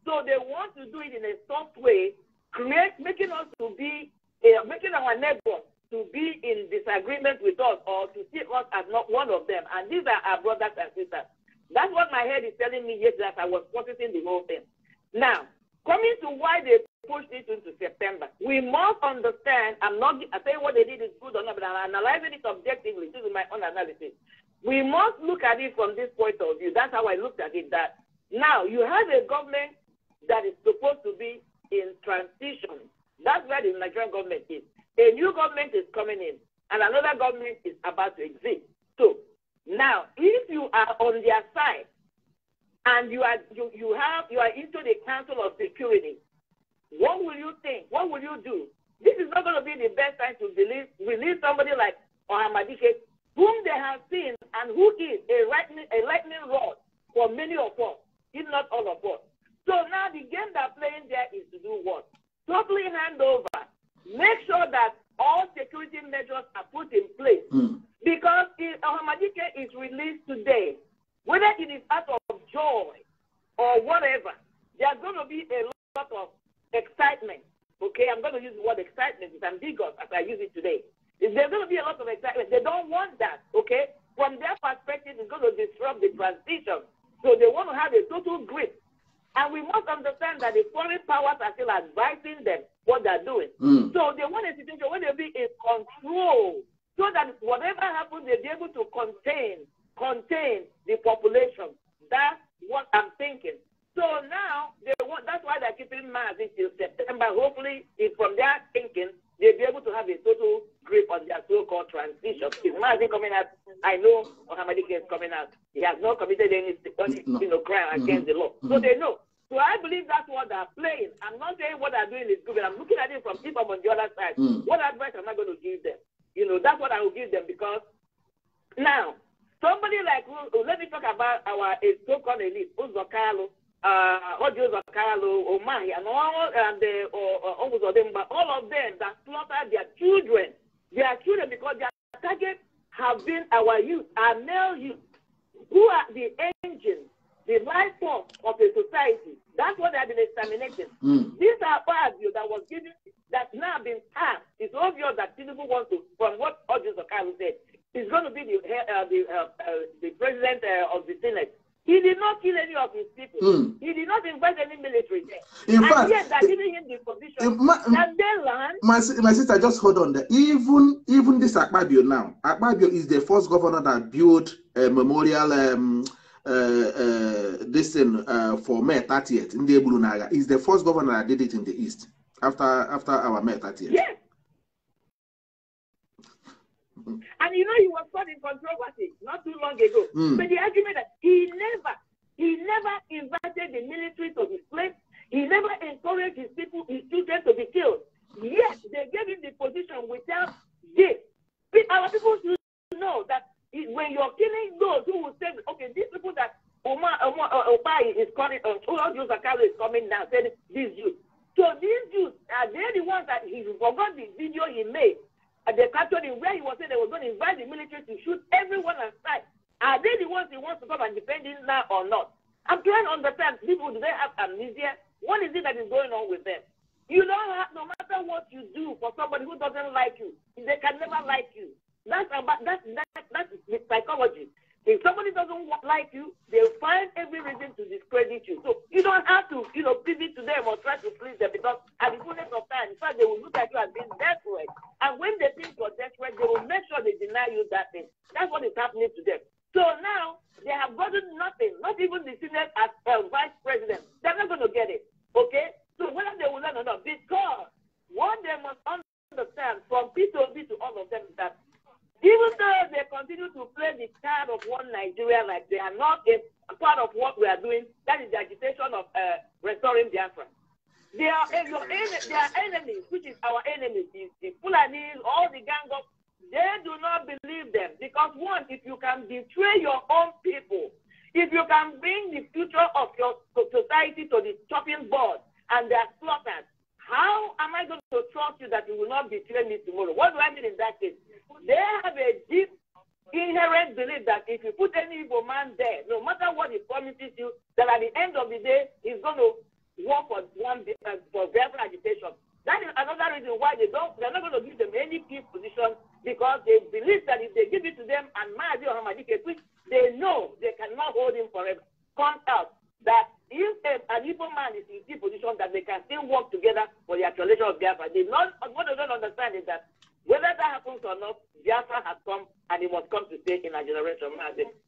So they want to do it in a soft way, create, making us to be, uh, making our neighbors to be in disagreement with us or to see us as not one of them. And these are our brothers and sisters. That's what my head is telling me yesterday as I was processing the whole thing. Now, coming to why they pushed it into September, we must understand. I'm not I tell you what they did is good or not, but I'm analyzing it objectively. This is my own analysis. We must look at it from this point of view. That's how I looked at it. That now you have a government that is supposed to be in transition. That's where the Nigerian government is. A new government is coming in, and another government is about to exist. So now, if you are on their side and you are you, you have you are into the Council of Security, what will you think? What will you do? This is not going to be the best time to release release somebody like Ohamadike, whom they have seen and who is a lightning a lightning rod for many of us, if not all of us. So now the game they're playing there is to do what? Totally hand over. Make sure that all security measures are put in place. Mm. Because if Ahmadike is released today, whether it is out of joy or whatever, there's going to be a lot of excitement. Okay, I'm going to use the word excitement. It's ambiguous as I use it today. There's going to be a lot of excitement. They don't want that. Okay, from their perspective, it's going to disrupt the transition. So they want to have a total grip and we must understand that the foreign powers are still advising them what they're doing. Mm. So they want a situation where they'll be in control so that whatever happens, they'll be able to contain, contain the population. That's what I'm thinking. So now they want, that's why they're keeping March until September. Hopefully, if from their thinking, they'll be able to have a total grip on their so-called transition. If coming out, I know Mohammed is coming out. He has not committed any, you know, crime mm-hmm. against mm-hmm. the law. So mm-hmm. they know so I believe that's what they're playing. I'm not saying what they're doing is good, but I'm looking at it from people on the other side. Mm. What advice am I going to give them? You know, that's what I will give them because now, somebody like, oh, let me talk about our so called elite, Uzokalo, uh, Odio Omahi, and all, and the, or, uh, uh, or, Odemba, all of them that slaughter their children, their children, because their target have been our youth, our male youth, who are the engines the form of a society. That's what they have been exterminating. Mm. These are Fabio that was given, that now been passed. It's obvious that Tinubu wants to, from what Audrey Zakaru said, he's going to be the, uh, the, uh, uh, the president uh, of the Senate. He did not kill any of his people. Mm. He did not invite any military there. In and fact, yet they're eh, giving him the position eh, my, that they My, my sister, just hold on there. Even even this Akpabio now, Akpabio is the first governor that built a memorial um, uh, uh, this thing uh, for May 30th in the Ebulunaga is the first governor that did it in the East after after our May 30th. Yeah. And you know he was caught in controversy not too long ago. Mm. But the argument that he never, he never invited the military to his place. He never encouraged his people, his children to be killed. Yes, they gave him the position without this. Our people should know that when you're killing those who will say, okay, these people that Omar, Omar uh, is calling, uh, all is coming now, saying these Jews. So these Jews, are they the ones that he forgot the video he made? And they captured him where he was saying they were going to invite the military to shoot everyone outside. Are they the ones he wants to come and defend him now or not? I'm trying to understand people, do they have amnesia? What is it that is going on with them? You know, no matter what you do for somebody who doesn't like you, they can never like you. That's about that that that's the psychology. If somebody doesn't like you, they'll find every reason to discredit you. So you don't have to, you know, pivot to them or try to please them because at the fullness of time, in fact, they will look at you as being desperate. And when they think you're desperate, they will make sure they deny you that thing. That's what is happening to them. So now they have gotten nothing, not even the senior as uh, vice president. They're not going to get it. Okay? So whether they will learn or not, because what they must understand from P2B to all of them is that even though they continue to play the card of one Nigeria like they are not a part of what we are doing, that is the agitation of uh, restoring Biafra. They are, your, they are enemies, which is our enemies, the, the Fulanis, all the gang of, they do not believe them. Because one, if you can betray your own people, if you can bring the future of your society to the chopping board and they are slaughtered, how am I going to trust you that you will not betray me tomorrow? What do I mean in that case? They have a deep inherent belief that if you put any evil man there, no matter what he promises you, that at the end of the day, he's going to work for one uh, for verbal agitation. That is another reason why they don't they're not going to give them any peace position because they believe that if they give it to them and Mahdi or a which they know they cannot hold him forever, come out that if eh, an evil man is in a position that they can still work together for the actualization of Biafra, they not, what they don't understand is that whether that happens or not, Biafra has come and it must come to stay in our generation.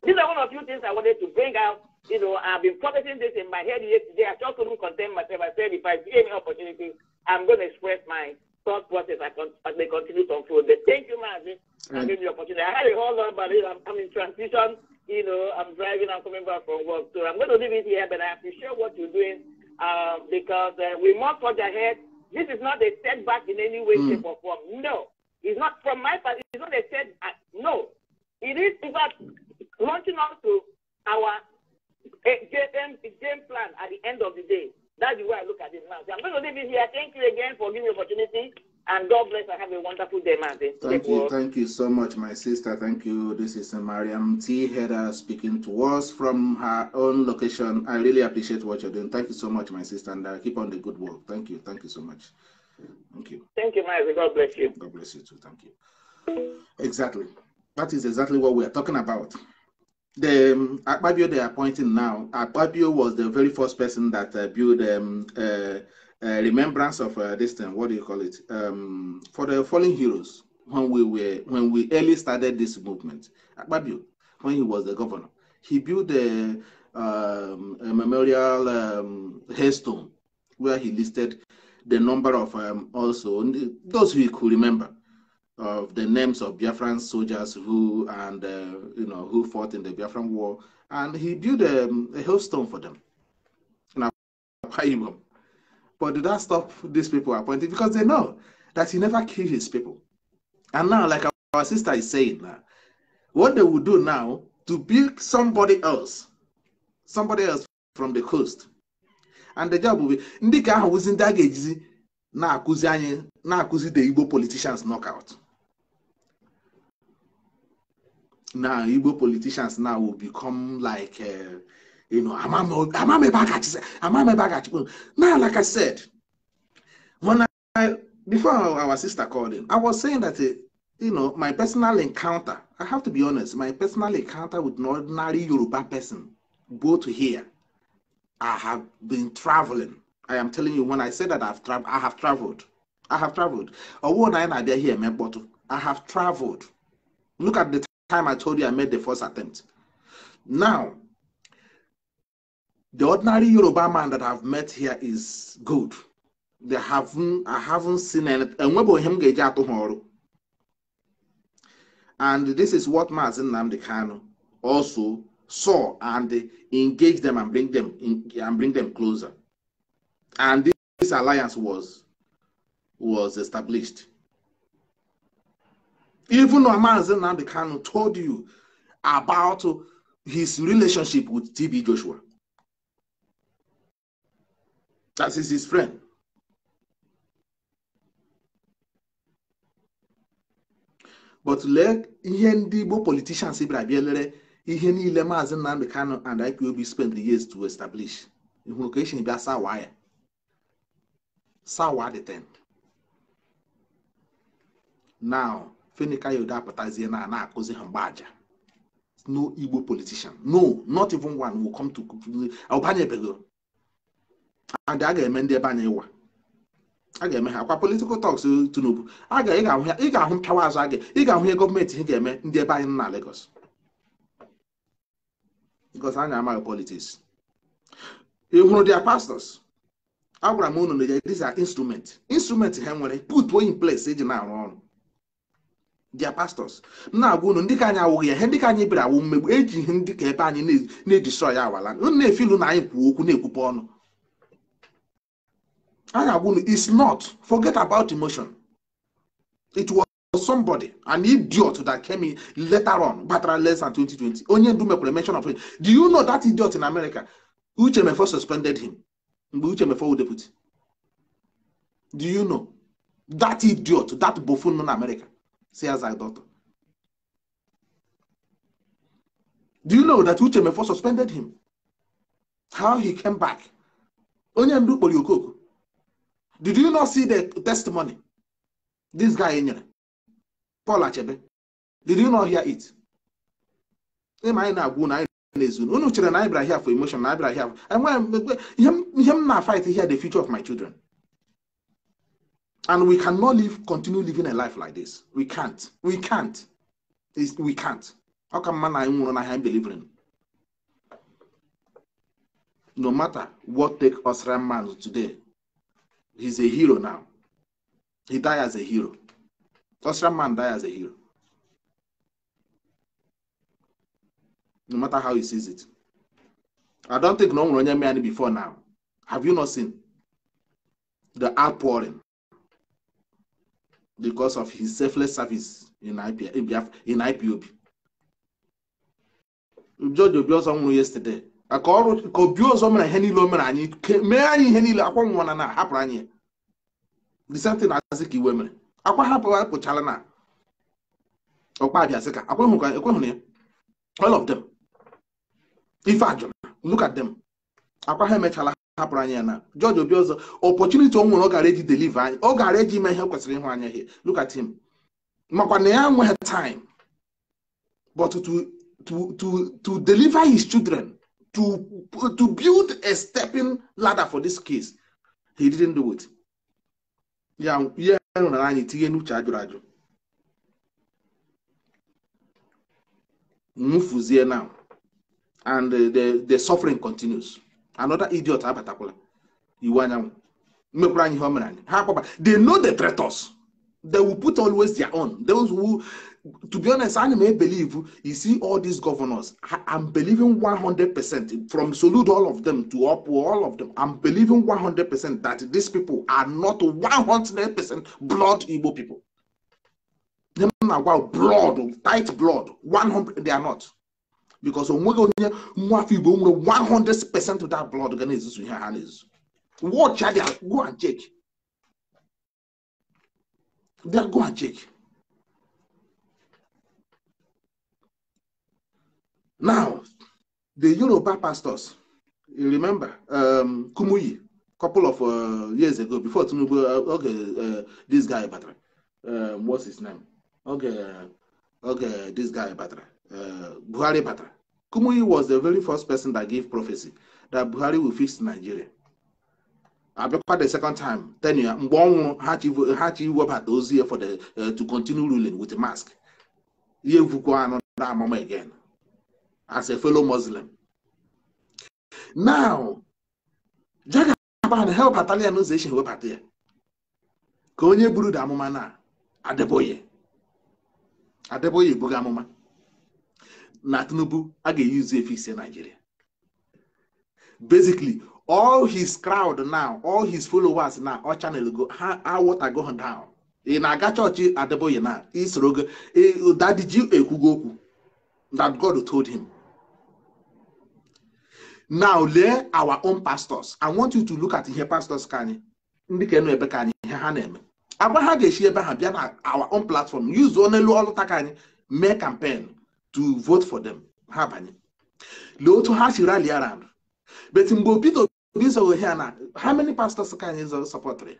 These are one of the few things I wanted to bring out. You know, I've been processing this in my head yesterday. I just couldn't contain myself. I said, if I see any opportunity, I'm going to express my thought process as they continue to unfold. Thank you, Mazi. I mm. gave me the opportunity. I had a whole lot, but I'm in transition you know, I'm driving, I'm coming back from work. So I'm going to leave it here, but I appreciate what you're doing uh, because uh, we must forge ahead. This is not a setback in any way, mm. shape, or form. No. It's not from my part, it's not a setback. No. It is, in fact, launching on to our game, game plan at the end of the day. That's the way I look at it now. So I'm going to leave it here. Thank you again for giving me the opportunity. And God bless and have a wonderful day, Madam. Thank you. Work. Thank you so much, my sister. Thank you. This is Mariam T. Heda speaking to us from her own location. I really appreciate what you're doing. Thank you so much, my sister. And uh, keep on the good work. Thank you. Thank you so much. Thank you. Thank you, Martin. God bless you. God bless you too. Thank you. Exactly. That is exactly what we are talking about. The um, they are appointing now, Akpabio was the very first person that uh, built um, uh, uh, remembrance of uh, this thing. What do you call it? Um, for the fallen heroes. When we were when we early started this movement, Akpabio, when he was the governor, he built a, um, a memorial um, headstone where he listed the number of um, also those who could remember of the names of Biafran soldiers who and uh, you know who fought in the Biafran war, and he built um, a, a headstone for them. But did that stop these people appointing? Because they know that he never killed his people. And now, like our sister is saying now, what they will do now to build somebody else, somebody else from the coast. And the job will be ndị ka ahụ wụzi ndị a na-akụzi anyị na-akụzi the Igbo politicians knockout. Now Igbo politicians now will become like uh, you know, I'm I'm now, like I said, when I before our sister called in, I was saying that eh, you know my personal encounter. I have to be honest, my personal encounter with an ordinary Yoruba person, both here, I have been traveling. I am telling you, when I said that I've traveled, I have traveled. I have traveled. Although I am here, I have traveled. Look at the time I told you I made the first attempt. Now, the ordinary Yoruba man that I've met here is good. They haven't, I haven't seen anything. And this is what Mazin Namdekano also saw and engage them and bring them in, and bring them closer. And this, this alliance was was established. Even though Mazin Namdekano told you about his relationship with TB Joshua That is his friend. But lee ihe ndị Igbo politicians bịara bịa lere ihe niile Maazị Nnamdi Kanu and IPOB spent the years to establish hụrụ ka esi bịa sawa ya sawa the end now Fenika Yoda apụtazie na ana akụzi ha mgbaaja no Igbo politician no not even one will come to ọbanyebeghị and a ga-eme ndị ebe anyị ịwa a ga-eme ha kwa politikal tọks Tinubu ị ga-ahụ mpịawa azụ aga ị ga-ahụ ihe gọọmenti ha ga-eme ndị ebe anyị na Lagos because anyị amaghị politiks ị hụrụ dia agwara m unu na ya these are instrument ha nwere put in ples eji na-arụ ọrụ dia m na-agwa unu ndị ka anyị awụghị ya he ndị ka anyị bịara awụ mmegbu eji ihe ndị ka ebe anyị na-edestroy ya awala na-efilu na anyị kwuo okwu na-ekwupe ọnụ Arabuni is not. Forget about emotion. It was somebody, an idiot that came in later on, better less than 2020. Only Dumekule mention of it. Do you know that idiot in America? Uchemefo suspended him. Uchemefo would put. Do you know? That idiot, that buffoon in America, says I daughter. Do you know that Uchemefo suspended him? How he came back? Onye ndu kpọrọ okoko. Did you not see the testimony this guy nyere Paul Achebe did you not hear it ịma anyị na-agwụ na anyị na-ezu unu chere na anyị bịara here for emotion na anyị bịara here enweghị ihe m na-fight here the future of my children and we cannot live continue living a life like this we can't we can't we can't ọ ka mma na anyị nwụrụ n'ahịa no matter what take us man today he's a hero now. He died as a hero. Austrian man died as a hero. No matter how he sees it. I don't think no one ran any before now. Have you not seen the outpouring because of his selfless service in, IPOB? in IPOB? George Obi yesterday. ka ọrụ ka obi ọzọ mere ihe niile o mere anyị mee anyị ihe niile akwa nwa na na hapụrụ anyị disentị na-asị ka iwe mere akwa hapụrụ apụchala na ọkpa abịasị ka akwa hụrụ ka ekwehụrụ ya all of them ife ajụrụ look at them akwa ha emechala hapụrụ anyị ya na George Obi ọzọ opportunity o nwere ọ gara eji deliver anyị ọ gara eji ime ihe kwesịrị ịhụ anya ihe look at him makwa na ya nweghị time but to to to to deliver his children to, to build a stepping ladder for this case. He didn't do it. Yeah, yeah, now. And uh, the, the suffering continues. Another idiot, Abatakula. Iwanyam. They know the traitors. They will put always their own. Those who to be honest, I may believe you see all these governors. I, am believing 100% from salute all of them to up all of them. I'm believing 100% that these people are not 100% blood Igbo people. Them are blood, tight blood. 100, they are not. Because when we go near 100% of that blood organizes in your hands. Watch out, go and check. They'll go and check. Now, the Yoruba pastors, you remember, um, Kumuyi, couple of uh, years ago, before Tinubu, uh, okay, uh, this guy, um, what's his name? Okay, uh, okay, this guy, Batra, uh, Buhari Batra. Kumuyi was the very first person that gave prophecy that Buhari will fix Nigeria. Abekwa the second time, years, Mbonwo had to had to work at those here for the uh, to continue ruling with the mask. Ye vukwa another moment again. as a fellow Muslim. Now, Jagaban help Atalia Nozation webata ya ka onye buru da amụma na Adeboye Adeboye ebughị amụma na Tinubu a ga-eyuzu efe ise Nigeria. Basically, all his crowd now, all his followers na all channel go, ha water down. ị e na-aga chọọchị Adeboye na isoro ụda e, ekwugo okwu that God told him. now lee our own pastors i want you to look at ihe pastors ka anyị ndị ka nọ ebe ka anyị ihe ha na-eme agwa ha ga-esi ebe ha bịa na our own platform use onelu ọlụta ka anyị mee campaign to vote for them ha banye lee otu ha si rally around but mgbe obido Obi zọghị ya na how many pastors ka anyị zọrọ sọpọtịrị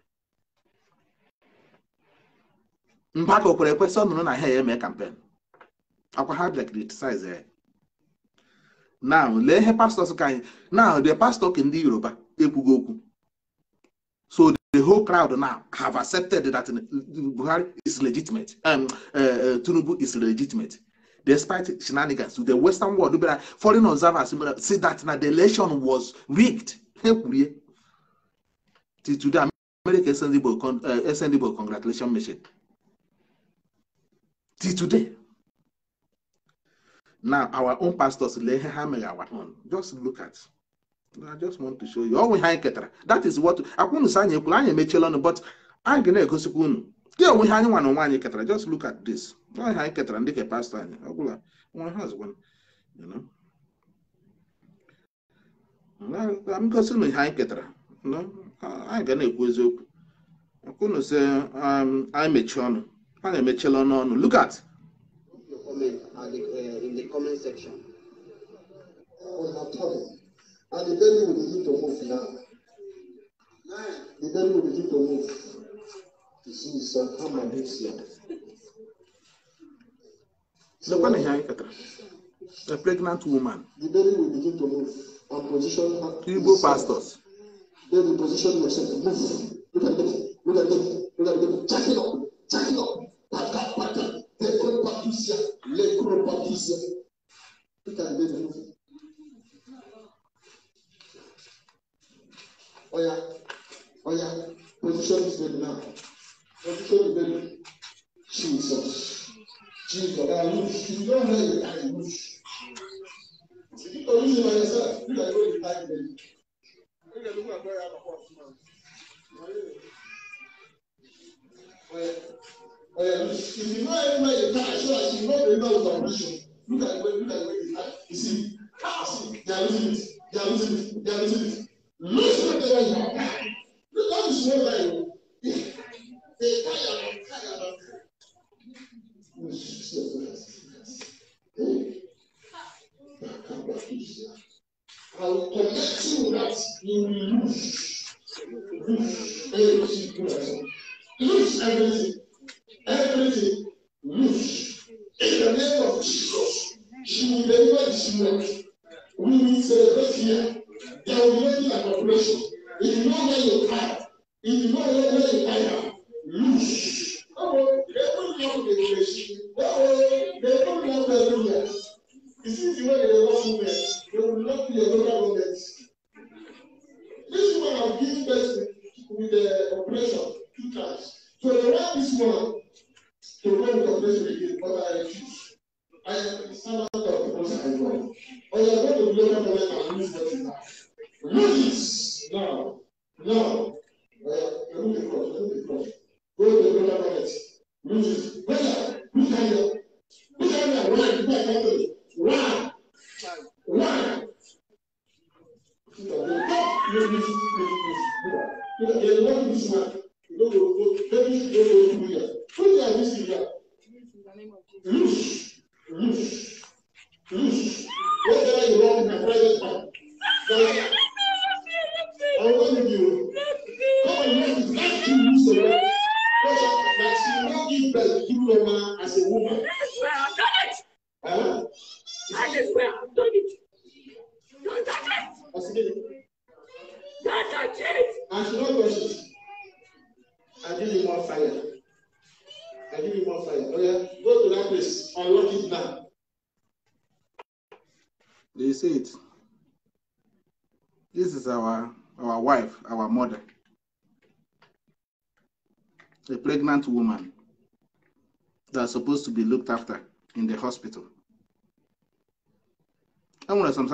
mba ka o kwere ekwesị ọ na ha ya eme campaign akwa ha bịa criticize ya now lee ihe pastọs ka anyị now the pastor ka ndị yoruba ekwugo okwu so the whole crowd now have accepted that buhari is legitimate um, uh, uh tinubu is legitimate despite shenanigans the western world bịara foreign observers say that na the election was rigged ha kwurie till today america sendable uh, igbo congratulation message till today Now, our own pastors, our own just look at. I just want to show you. Ọnwụ ihe anyị ketara. That is what akwụnụ sa anyị ekwuru anyị emechiela ọnụ but anyị ga na-egosikwa unu. Dị onwe ihe anyị nwa na onwe anyị ketara. Just look at this. Ọnwụ ihe anyị ketara ndị ka pastọ anyị. Ọ bụla nwa ha zụkwa. m gosi na ihe anyị ketara. Anyị ga na-ekwu eziokwu. Akwụnụ sị um, anyị mechie ọnụ. Anyị emechiela ọnụ ọnụ. Look at the, uh, in the comment section. On her tablet. And the baby will begin to move now. The baby will begin to move. You see, it's a hammer moves here. The one here, a pregnant woman. The baby will begin to move and position her. Igbo pastors. Baby, position yourself. Move. Look at them. Look at them. ṣiṣẹ́ peter ń bẹ̀rẹ̀ fún ọ̀yà ọ̀yà position is ready now position is ready jesus jesus i lose you don know you i lose If you don't lose nígbà yóò di táyì lẹ́yìn. nígbà tó kún àgbẹ̀rẹ̀ àpapọ̀ àtúmọ̀ ọ̀yà ọ̀yà ìdìbò ẹ̀ ń bá yìí ká aṣọ àti ìmọ̀ ìdìbò ìgbà ọ̀ṣun.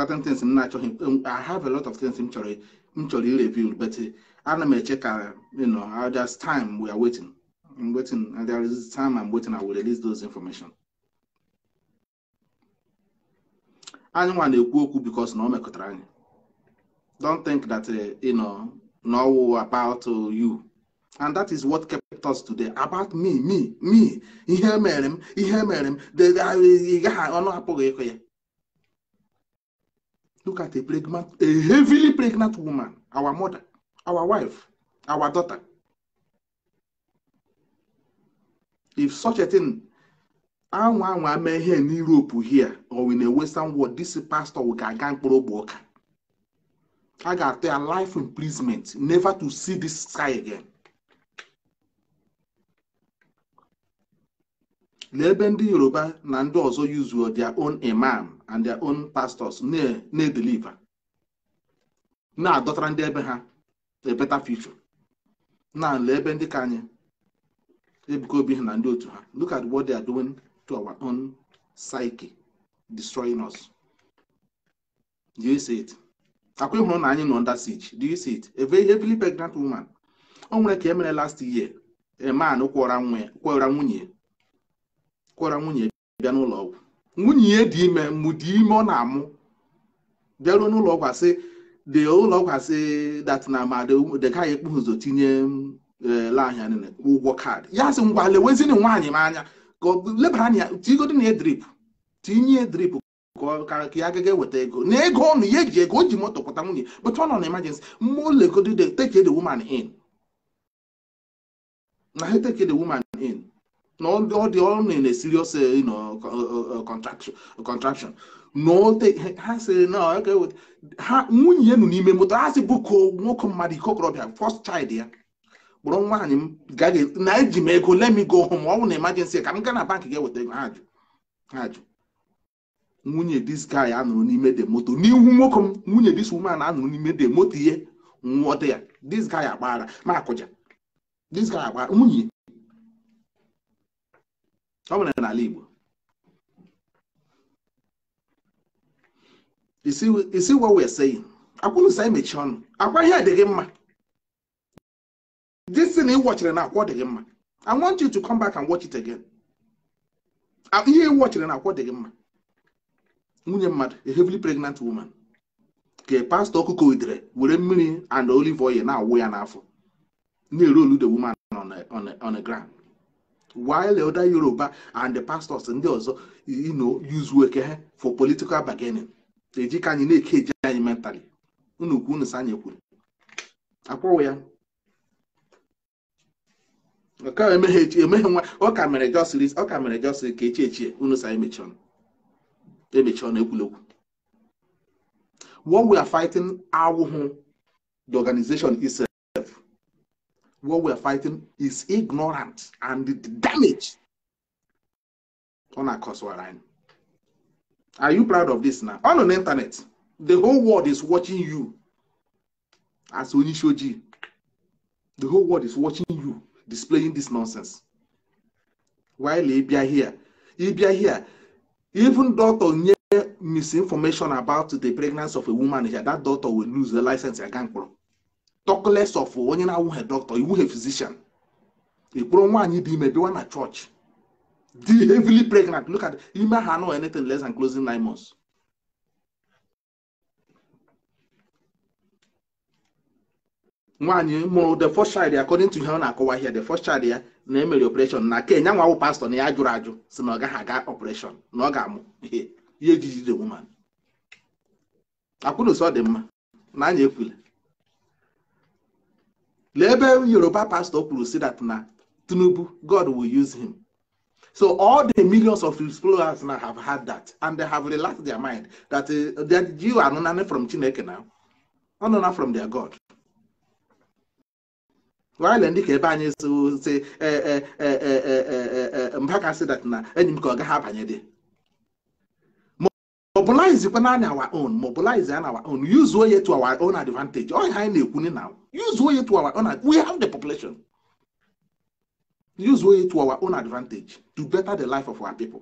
certain things m na-achọghị I have a lot of things m chọrọ m chọrọ ireview but ana m eche check. you know there's time we are waiting I'm waiting and there is time I'm waiting I will release those information Anyone nwa na because no one mekotara mekọtara anyị don't think that uh, you know no about uh, you and that is what kept us today about me me me ihe mere m ihe mere m gaghị ọnụ apụghị ịkụ ya look at a pregnant, a heavily pregnant woman, our mother, our wife, our daughter. If such a thing, anwa anwa mee ihe in Europe here or in a Western world, this pastor ga-aga mkpụrụ oka i A ga-atụ life imprisonment, never to see this sky again. lee ebe ndị yoruba na ndị ọzọ yuzuo their own imam and their own pastors na-edeliva na-adọtara ndị ebe ha a better future na lee ebe ndị ka anyị ebuka obi ha na ndị otu ha look at what they are doing to our own psyche destroying us do you see it akwa ịhụrụ na anyị nọ under siege do you see it a very heavily pregnant woman o nwere ka e mere last year a man kwọra nwunye kwara nwunye bịa n'ụlọ ọgwụ nwunye ya dị ime mgbu dị ime ọ na-amụ bịaruo n'ụlọ ọgwụ asị dị ụlọ ọgwụ asị dat na ma dịka ya ekpu ụzọ tinye ele eh, anya ụgwọ kaadị ya sị ngwa lewezini nwaanyị m anya lebara anya tigodi na edrip tinye drip ka ya agaghị eweta ego na ego ọnụ ya eji ego o ji moto pụta nwunye but ọ nọ na emergency mmụọ legodi take the woman in na ha teke the woman in na ọ dị ọrụ na serious contraction ha sịrị na ha nwunye nụ n'ime moto ha si bụko nwoke mmadụ ikokorobịa korobịa first child ya kpọrọ nwaanyị m gaghị na eji m ego let me go home ọ bụ na emergency ka m gaa na bank ga-eweta ego ha jụ ha jụ nwunye this guy anụrụ n'ime de moto n'ihu nwoke m nwunye dis woman anụrụ n'ime de moto ihe nwụọ dị ya this guy agbaghara ma akụja this guy agbaghara nwunye ọ nwere n'ala Igbo isi wa wee sị akwụrụ sa emechi ọnụ akwa ihe gị mma this thing ị wọchiri na akwọ ọ dịghị mma I want you to come back and watch it again ihe ị wọchiri na akwọ ọ dịghị mma nwunye mmadụ a heavily pregnant woman ka pastọ ọkụkọ idere were mmiri and olive oil na-awụ ya n'afọ na-eru olu the woman on the ground while elder Yoruba and the pastors ndị ọzọ you know use ha for political bargaining eji ka anyị na-eke eji anyị mentally unu kwu unu sanye kwuru akwụwụ ya emeghe nwa ọ ka mere jọsiri ọka ka mere jọsiri ka echi echi unu sa emechi ọnụ e ekwulekwu what we are fighting awụhụ the organization what we're fighting is ignorant and the damage on our we Are you proud of this now? On the internet, the whole world is watching you as Onishoji. The whole world is watching you displaying this nonsense. While Ibia here, Ibia here, even doctor misinformation about the pregnancy of a woman here, that doctor will lose the license again. talk of onye na-awụghị dọkịta iwughe physician ịkpụrụ nwaanyị dị ime bịwa na chọọchị dị heavily pregnant look at ime ha anụ anything less than closing nine months nwaanyị mụrụ the first child according to ihe ọ na-akọwa ihe the first child ya na emere operation na ke nyanwa awụ pastọ na ya jụrụ ajụ si na ọ gaghị aga operation na ọ ga-amụ ihe ihe ejiji the woman akwụnụsọ dị mma na anya ekwule lee ebe yoruba pastor kwuru si that na tinubu god will use him so all the millions of explorers now have had that and they have relaxed their mind that uh, that you are not from chineke now not from their god while ndị ka ebe anyị si mba ka sị dat na enyi m ka ọ gaghị abanye dị mobilize kwa naanị our own mobilize and our own use oye to our own advantage onye anyị na-ekwu ni na use oye to our own we have the population use oye to our own advantage to better the life of our people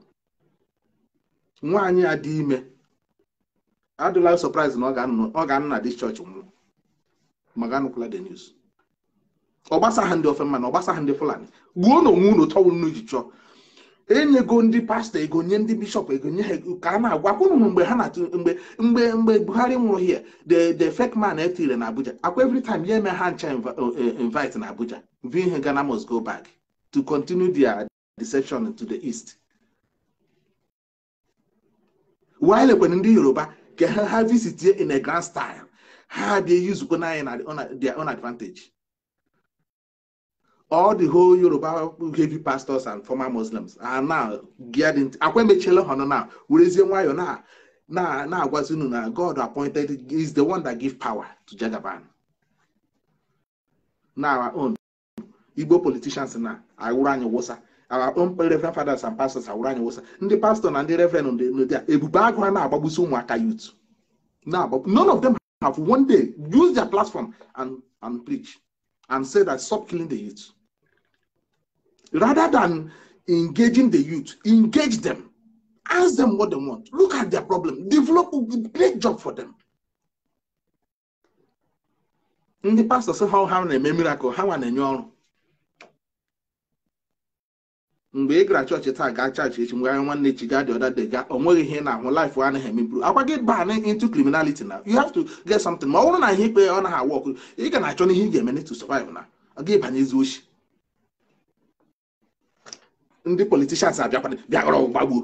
nwaanyị a dị ime adịla surprise na ọ ga-anụ na dis church nwụọ maga anụkwala the news ọ gbasagha ndị ofema na ọ gbasagha ndị fulani gbuo na onwe unu tọwụ unu ji chọọ enyego ndị pastọ ego nye ndị bishọp ego nye ha ego ka a na agwa ụnụ mgbe ha na-atụ mgbe mgbe mgbe buhari nwụrụ hie the the fake man etire na abuja akwa evritim ya eme ha ncha uh, uh, invite na abuja vi ihe ghana must go back to continue their deception to the east while ekwenye ndị yoruba ka ha ha visit in a grand style ha dị eyizukwa n'anyị na the own all the whole Yoruba heavy pastors and former Muslims are now getting akwa emechela now nọ now werezie nwayọ na na na na God appointed is the one that give power to Jagaban na our own Igbo politicians na awụrụ anyị wụsa our own reverend fathers and pastors awụrụ anyị wụsa ndị pastor na ndị reverend ndị a ebube agụ ha na-agbagbusi ụmụaka youth none of them have one day use their platform and and preach and say that stop killing the youth rather than engaging the youth, engage them, ask them what they want, look at their problem, develop a great job for them. ndị pastọ sị ha ha na-eme miracle ha nwa na-enye ọrụ mgbe ị gara chọọchị taa gaa chọọchị echi mgbe anya nwanne echi gaa dị ọda dị gaa o nweghị ihe na-ahụ life anaghị emeburu akwa gị baa na into criminality na you have to get something ma ọ bụrụ na ihe ikpe ọ naghị awa ọkụ ị ga na-achọ n'ihe ị ga-eme to survive na ọ ga ezi ochi ndị politishans abịakwana bịaghọrọ gbagbuo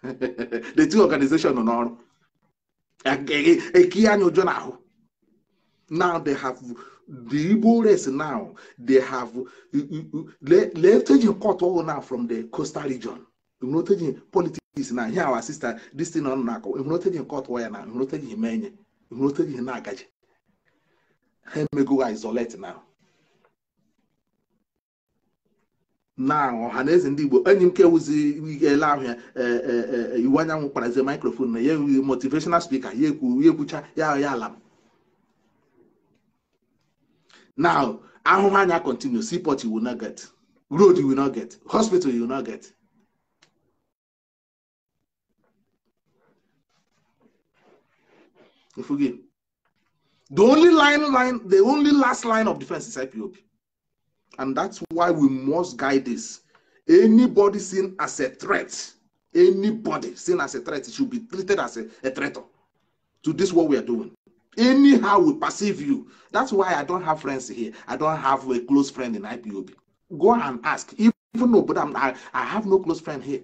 [LAUGHS] the two organization nọ n'ọrụ eki e, e, e anya ụjọ n'ahụ now they have the Igbo race now they have lefteji court all na from the coastal region huroteji politics na here our sister this na huroteji court waya na huroteji menye huroteji na agaji ha isolate now na ọha na eze ndị igbo enyi m kewuzi ele ahụ ya e, e, e, iwu anyanwụ kparazie maikrofon na ya ewughị motivational speaker ya ekwu ya ekwucha ya ya ala m now ahụhụ anya continue seaport you will not get road you will not get hospital you will not get the only line line the only last line of defense is IPOB And that's why we must guide this. Anybody seen as a threat, anybody seen as a threat should be treated as a, a to this what we are doing. Anyhow we perceive you. That's why I don't have friends here. I don't have a close friend in IPOB. Go and ask. Even though, but I'm, I, I have no close friend here.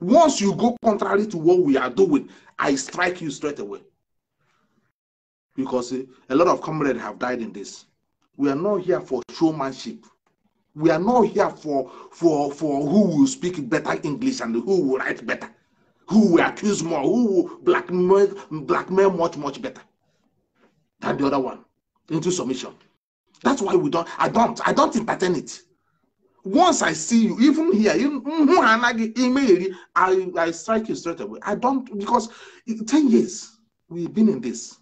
Once you go contrary to what we are doing, I strike you straight away. Because a lot of comrades have died in this. We are not here for showmanship. We are not here for, for, for who will speak better English and who will write better, who will accuse more, who will blackmail, blackmail much, much better than the other one into submission. That's why we don't, I don't, I don't entertain it. Once I see you, even here, I, I strike you straight away. I don't, because 10 years we've been in this.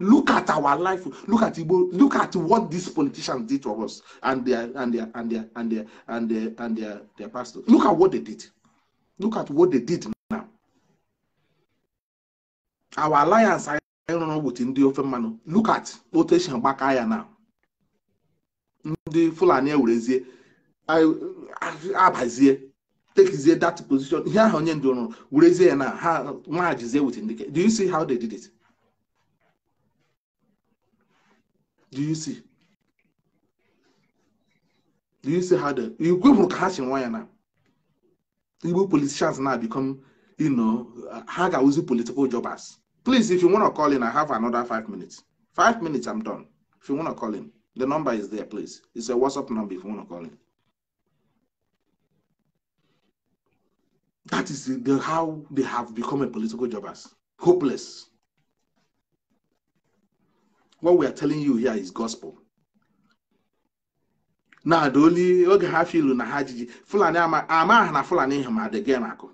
Look at our life. Look at Igbo. Look at what these politicians did to us and their and their and their and their and their and their, their pastors. Look at what they did. Look at what they did now. Our alliance I don't with ndị ofe mmanụ. Look at otu esi gbaka ya now. Ndị Fulani ewerezie abazie tekizie that position ihe ahụ onye ndị ọrụ werezie ya na ha nwajizie with ndị do you see how they did it? Do you see? Do you see how the Igbo people catch in wire now? Igbo politicians now become, you know, how can we political jobbers? Please, if you want to call in, I have another five minutes. Five minutes, I'm done. If you want to call in, the number is there, please. It's a WhatsApp number if you want to call in. That is the, how they have become a political jobbers, hopeless. what we are telling you here is gospel na adaoli oge ha filu na ha jiji fulani ama aha na fulani ihe ma adịghị na akụ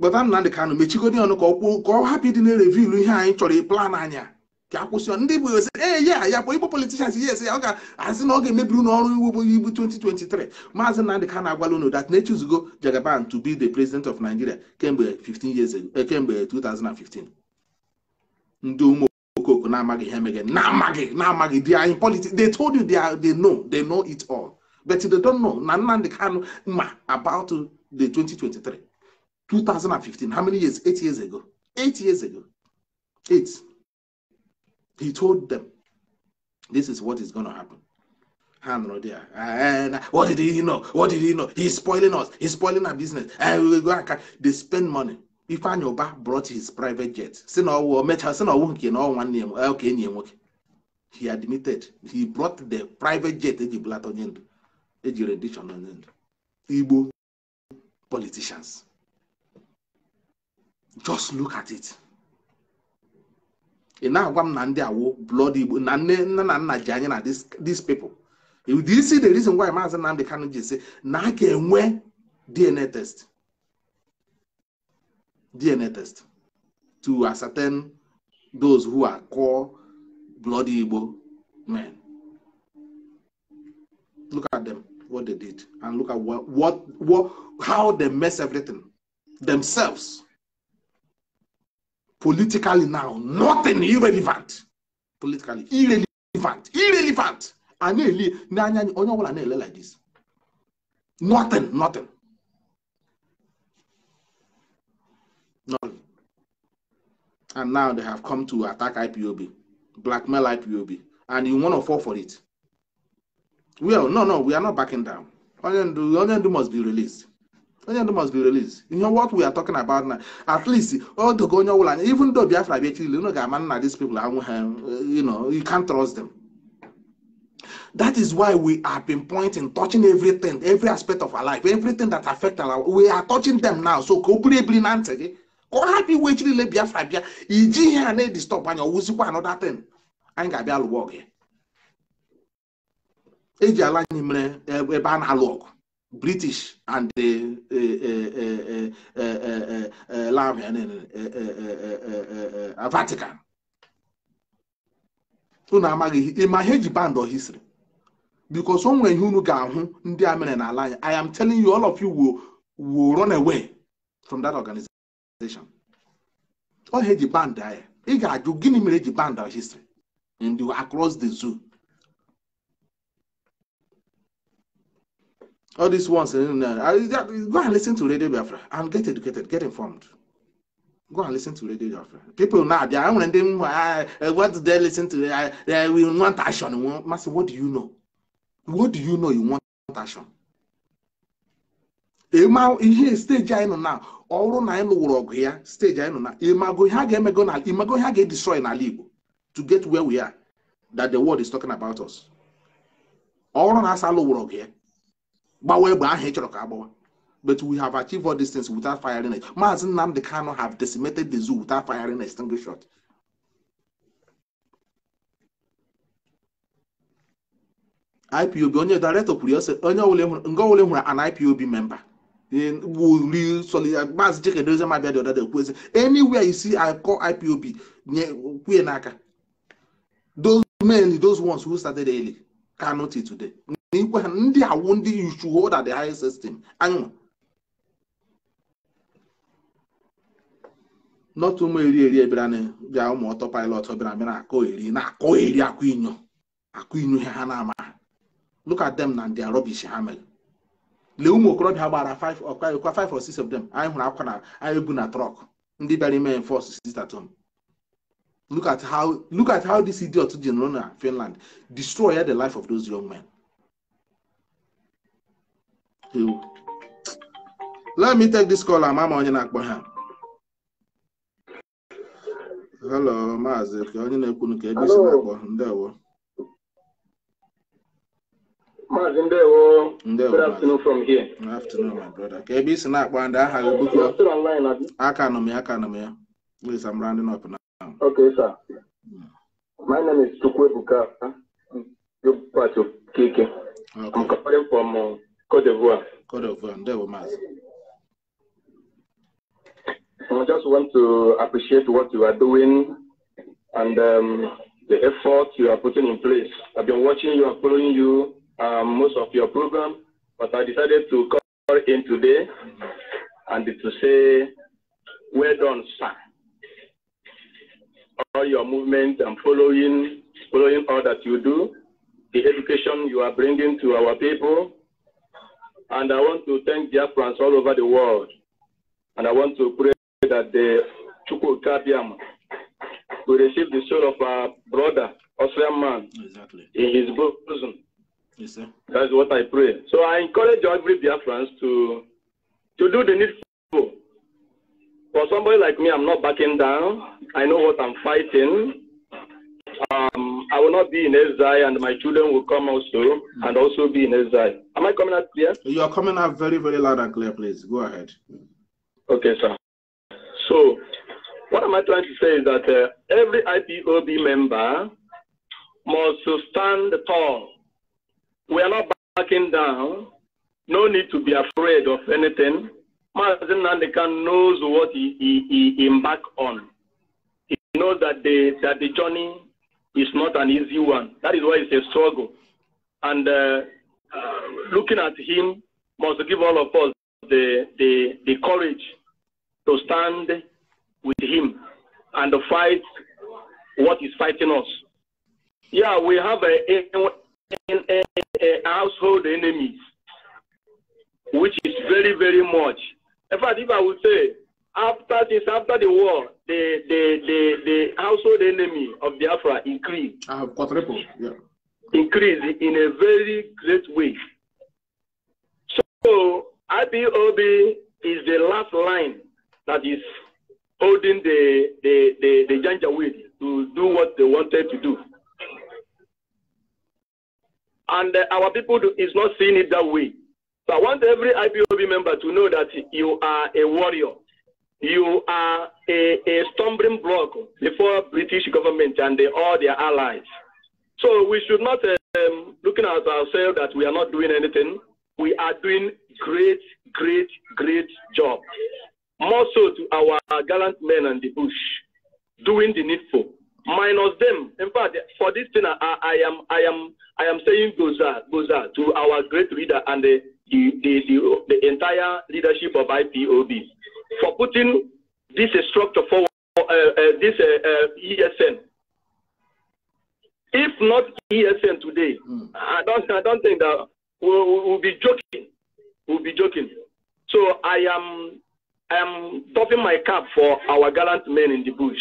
kpọta Nnamdị Kanụ mechigodi ọnụ ka ọkwụ ka ọ hapụ ịdị na-erevilu ihe anyị chọrọ ịplan anya ka akwụsị ndị bụ ee ya ya bụ igbo politishans ya ese ya ọ ga-asị na ọ ga-emebi ụlọ ọrụ iwu bụ ibu 2023 maazị Nnamdị Kanụ agwala unu dat na-echuzugo Jagaban to be the president of Nigeria kemgbe 15 years ago kemgbe 2015 ndị ụmụ Okoko na magi hem again, na magi, na magi. they are in politics they told you they are they know they know it all but they don't know na Nnamdi Kanu ma about the 2023 2015 how many years eight years ago eight years ago eight he told them this is what is going to happen hand there. And ah, eh, what did he know? What did he know? He's spoiling us. He's spoiling our business. And eh, we go and they spend money. Ifeanyi Uba brought his private jet si na ọwụ mechaa si na ọwụ nke na ọwụwa nne ya enyi ya nwoke he admitted he brought the private jet eji bulata onye ndụ eji rendition onye ndụ Igbo politicians just look at it ị na-agwa m na ndị awụ blood Igbo na nne nna na nna ji anya na these people you see the reason why Maazị Nnamdi Kanu ji si na a ga-enwe DNA test DNA test to ascertain those who are core bloody Igbo men. Look at them, what they did, and look at what, what, what how they mess everything themselves. Politically now, nothing irrelevant. Politically irrelevant, irrelevant. And know obula like this. Nothing, nothing. No, And now they have come to attack IPOB, blackmail IPOB, and you want to fall for it. Well, no, no, we are not backing down. Onyendu, Onyendu must be released. Onyendu must be released. You know what we are talking about now? At least, all the Gonya will, even though Biafra be actually, you know, these people, um, you know, you can't trust them. That is why we have been pointing, touching everything, every aspect of our life, everything that affects our life. We are touching them now. So, completely, go ọhapụ iwe ji niile biafra bịa iji ihe a na-edistọp anya ọwụzikwa anọda ten anyị ga-abịa lụwa ọgụ ya eji ala anyị mere ebe a na-alụ ọgụ british and vatican unu amaghị ma ihe eji band ọhisiri bikos o nwere ihe unu ga-ahụ ndị a mere n'ala anyị i am telling you all of you will run away from that organization. ọ ihe eji band ahịa ị ga-ajụ gịnị mere eji band our history the across the zoo all these ones go and listen to radio biafra and get educated get informed go and listen to radio biafra people na abịa nwere ndị m what do they listen to uh, they will want action what do you know what do you know you want action ihe steji anyị nọ now ọ na anyị lụwụrụ ọgụ ya steji anyị nọ na imago ihe a ga-emego na imago ihe ga n'ala Igbo to get where we are that the world is talking about us ọ na asa lụwụrụ ọgụ ya gbawa egbe ahụ ị chọrọ ka agbawa but we have achieved all these things without firing it Maazị Nnamdi Kanu have decimated the zoo without firing a single shot IPOB onye director kwuru onye ọbụla nwere an IPOB member will you solid maazị Chikedozie Mabia dị ọda dị ekwezi anywhere you see I call IPOB nye kwue n'aka those mainly those ones who started early cannot it today n'ikwe ha ndị awụ ndị you should hold at the highest system anyụ not ụmụ eri eri ebịara na bịa ụmụ ọtọ pilot bịara bịa na-akọ eri na-akọ eri akụ inyo akụ inyo ha na-ama ha look at them na ndị rubbish ha mere lee ụmụ okorobịa gbara ọkwa five or six of them anyị hụrụ akwa na anyị na trọk ndị bịara ime enforce sistatom look at how look at how this idiot ji nụrụ na Finland destroy the life of those young men. let me take this call ama ma onye na-akpọ ha hello maazị ka onye na ekwu nke ebe isi na-akpọ ndewo Good afternoon from here. Good afternoon, my brother. Ka ebe isi na-akpọ ndị aha gị bụkwa. Aka Please, I'm rounding up now. Okay, sir. My name is Buka. You part of Kike. Okay. I'm calling from uh, Cote d'Ivoire. Cote d'Ivoire. I just want to appreciate what you are doing and um, the effort you are putting in place. I've been watching you, I'm following you um, most of your program, but I decided to call in today and to say, well done, sir. All your movement and following, following all that you do, the education you are bringing to our people. And I want to thank the Africans all over the world. And I want to pray that the Chukwukabiam will receive the soul of our brother, Osman man, exactly. in his bosom Yes, sir. That's what I pray. So I encourage every Biafrans to to do the needful. For somebody like me, I'm not backing down. I know what I'm fighting. Um, I will not be in exile, and my children will come also and also be in exile. Am I coming out clear? You are coming out very, very loud and clear, please. Go ahead. Okay, sir. So, what am I trying to say is that uh, every IPOB member must stand tall we are not backing down. No need to be afraid of anything. Mazen Nandekan knows what he, he, he embarked on. He knows that the, that the journey is not an easy one. That is why it's a struggle. And uh, uh, looking at him must give all of us the, the, the courage to stand with him and fight what is fighting us. Yeah, we have a, a, a, a household enemy, which is very, very much. In fact, if I would say, after this, after the war, the the the, the household enemy of Biafra increased. Uh, ah, quadruple, yeah. Increased in a very great way. So IBOB is the last line that is holding the the the, the Janjaweed to do what they wanted to do. And uh, our people do, is not seeing it that way. So I want every IPOB member to know that you are a warrior. You are a, a stumbling block before British government and the, all their allies. So we should not um, looking at ourselves that we are not doing anything. We are doing great, great, great job. More so to our gallant men on the bush, doing the needful minus them. In fact, for this thing, I, I am I am I am saying goza goza to our great leader and the the, the the, the entire leadership of IPOB for putting this structure forward. Uh, uh, this uh, uh ESN. If not ESN today, mm. I don't I don't think that we'll, we'll be joking. We'll be joking. So I am I am topping my cap for our gallant men in the bush.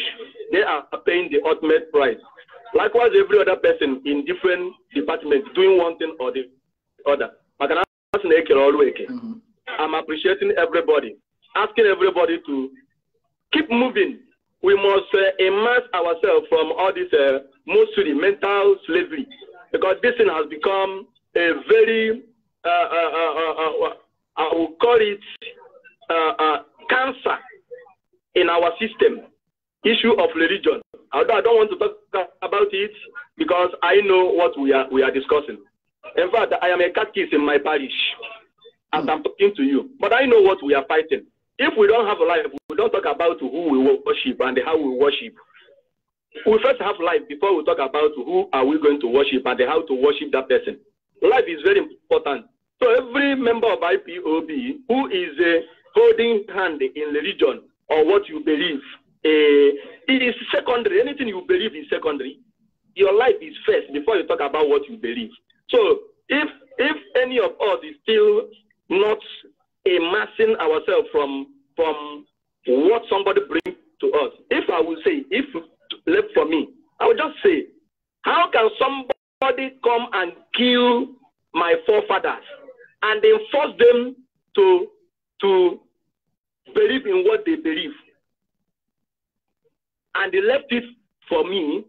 They are paying the ultimate price. Likewise, every other person in different departments doing one thing or the other. I'm appreciating everybody, asking everybody to keep moving. We must uh, immerse ourselves from all this uh, mostly mental slavery because this thing has become a very, uh, uh, I will call it cancer in our system, issue of religion. Although I don't want to talk about it because I know what we are, we are discussing. In fact, I am a catechist in my parish as I'm talking to you. But I know what we are fighting. If we don't have a life, we don't talk about who we worship and how we worship. We first have life before we talk about who are we going to worship and how to worship that person. Life is very important. So every member of IPOB who is a holding hand in religion or what you believe. Uh, it is secondary. Anything you believe is secondary. Your life is first before you talk about what you believe. So if if any of us is still not amassing ourselves from from what somebody brings to us, if I will say, if left for me, I will just say, how can somebody come and kill my forefathers and then force them to to believe in what they believe. And they left it for me,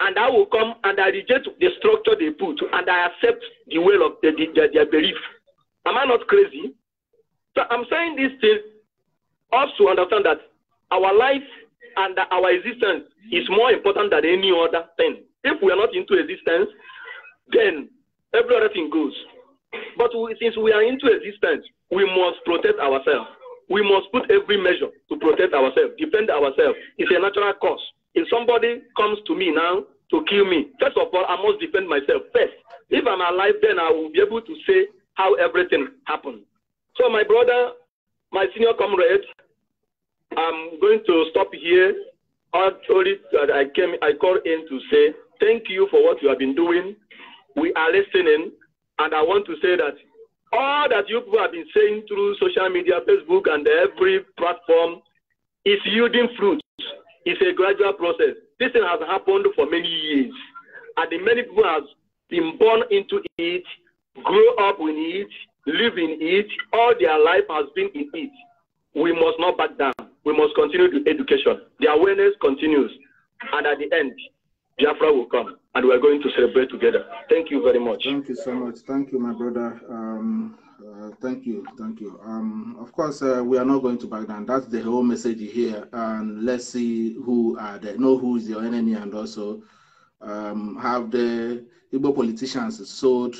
and I will come and I reject the structure they put, and I accept the will of the, the, their, their belief. Am I not crazy? So I'm saying this to us to understand that our life and our existence is more important than any other thing. If we are not into existence, then every other thing goes. But we, since we are into existence, we must protect ourselves. We must put every measure to protect ourselves, defend ourselves. It's a natural cause. If somebody comes to me now to kill me, first of all, I must defend myself first. If I'm alive, then I will be able to say how everything happened. So, my brother, my senior comrade, I'm going to stop here. Actually, I came, I called in to say thank you for what you have been doing. We are listening. And I want to say that all that you people have been saying through social media, Facebook, and every platform is yielding fruit. It's a gradual process. This thing has happened for many years, and the many people have been born into it, grow up in it, live in it. All their life has been in it. We must not back down. We must continue the education. The awareness continues, and at the end, Jafra will come. and we're going to celebrate together. Thank you very much. Thank you so much. Thank you, my brother. Um, uh, thank you. Thank you. Um, of course, uh, we are not going to back down. That's the whole message here. And let's see who are know who is your enemy, and also um, have the Igbo politicians sold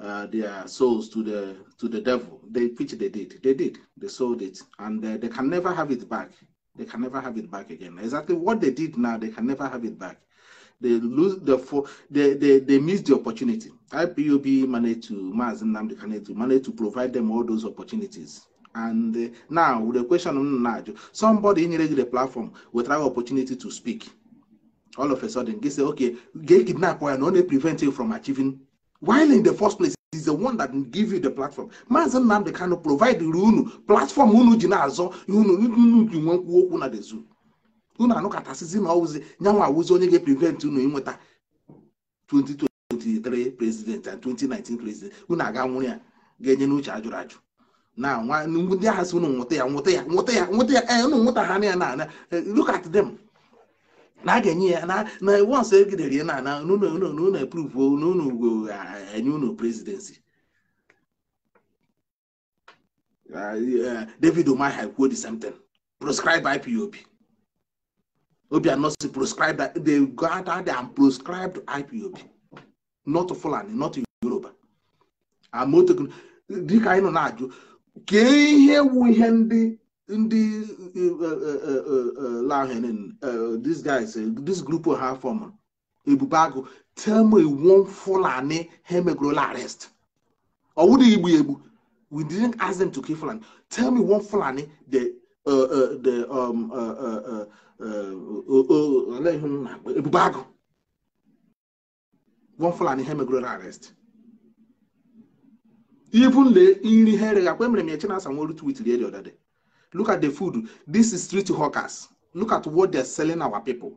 uh, their souls to the to the devil. They which they did. They did. They sold it, and uh, they can never have it back. They can never have it back again. Exactly what they did now, they can never have it back they lose the they, they they miss the opportunity. IPUB managed to Maz Namdi to manage to provide them all those opportunities. And uh, now with the question on Najo, somebody in the platform will try opportunity to speak. All of a sudden, they say, okay, get kidnapped and only prevent you from achieving. While in the first place, is the one that give you the platform. Maazị Nnamdi Kanu provide the platform unu ji you azo you unu you ji nwe okwu na the zoo. unu anụkọtasịzi na ọwụzi nyanwa awụzi onye ga-eprivent unu inweta 2023 prezident and 2019 prezident unu aga nwụrụ ya ga-enye n'uche ajụrụ ajụ na nwa ndị agha si unu nwụta ya nwụta ya nwụta ya nwụta ya ee eh, unu nwụta ha na ya eh, look at them na a ga-enye ya na na once egidere ya na ana unu eprove na unu ugo eh, enye unu prezidensi ah, David Umahi kwuo the same thing proscribe IPOB Obiano si proscribed that they got out there and proscribed IPOB, not Fulani, not Yoruba. Amoto dịka anyị nọ na-ajụ kee ihe wu ihe ndị ndị eh, eh, eh, lahen these guys this group ha form ebube agụ tell me one Fulani ha emegorola arrest ọ wụdị igbu egbu we didn't ask them to kill Fulani tell me one Fulani the uh, uh, the um, uh, uh, uh, Eh, ebube agụ gwọ fulani ihe megoro arest. arrest even nri ha ereghị akpa emere m ya chinasa nweru tweet lie the other day look at the food this is street hawkers look at what they are selling our people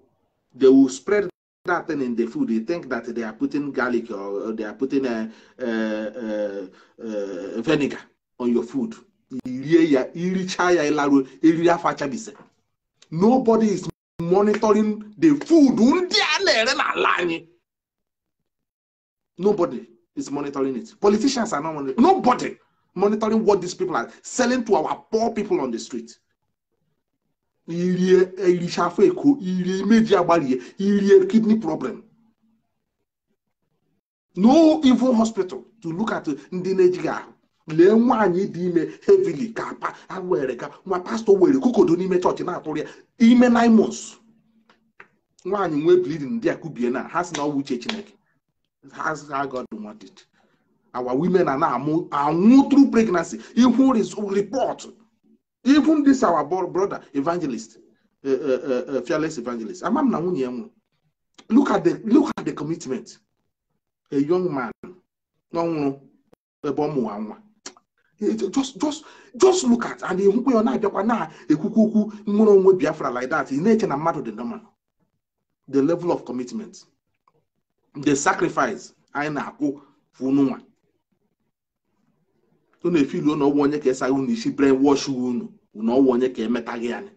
they will spread that thing in the food they think that they are putting garlic or they are putting a, a, a, a vinegar on your food irie ya iricha ya ịlaruo eriri afọ achabise nobody is monitoring the food ndị a na-ere n'ala anyị nobody is monitoring it politicians are not monitoring nobody monitoring what these people are selling to our poor people on the street irie erichafo eko irie imeji agbarie irie kidney problem no even hospital to look at uh, ndị na-ejighị ahụ lee nwaanyị dị ime hevili ka pa were ka nwa pastọ were kokodo n'ime chọọchị na-atụrụ ya ime nine nwaanyị nwee bleeding ndị a kubie na ha si na ọwụ uche chineke ha God wanted our women are na-amụ anwụ through pregnancy ihu report even this our brother evangelist eh, eh, eh, fearless evangelist ama m na nwunye ya nwụrụ look at the look at the commitment a young man ọ nwụrụ ebe ọ mụwa nwa just just just look at and enwukwe ọ na-abịakwa na-ekwukwu okwu nwere onwe Biafra like that ị na-eche na mmadụ dị normal the level of commitment the sacrifice anyị na-akwụ fununwa ọ na-efilu ụnụ ọgwụ onye ka esaghị unu isi wash unu na ọgwụ onye ka emetaghị anyị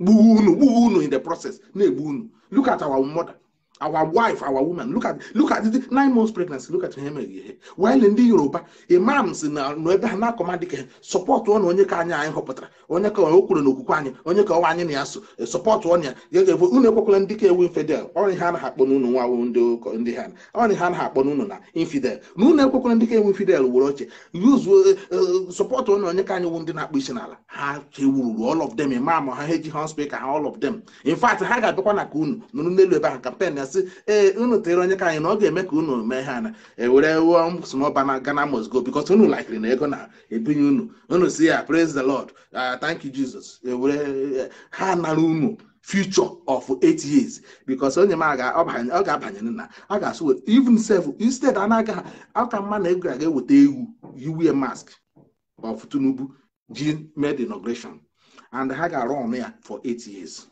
gbuo unu gbuo unu in the process na-egbu unu look at our mother our wife our woman look at look at the nine months pregnancy look at ihe mere ihe ndị yoruba imam si na ebe a na-akọma dịka sọpọtụ ọnụ onye ka anyị anyị họpụtara onye ka o kwuru n'okwukwe anyị onye ka ọwa anyị na ya so sọpọtụ ọnụ ya ga-evo unu ekwekwala ndị ka ewu infidel ọrị ha anaghị akpọ n'unu nwa ndị ha ọrị ha anaghị akpọ n'unu na infidel na unu ekwekwala ndị ka ewu infidel were oche support sọpọtụ ọnụ onye ka anyị wụ ndị na-akpọ isi n'ala ha chewururu all of them imam ha ha eji ha all of them in fact ha ga-abịakwa na ka unu nụrụ n'elu ebe ha kampen e ee unu tere onye ka anyị na ọ ga-eme ka unu mee ha na ewere wụọ smọba na Ghana go unu lakiri na ego na-ebinye unu unu si ya praise the lord ah, thank you jesus ewere e, ha nara unu future of eight years because onye m ọ ga-abanye na a ga-asụ even instead a na-aga aka mma na ego ga-eweta egwu yiwe mask of Tinubu ji made inauguration and ha ga-arụ ọnụ ya for eight years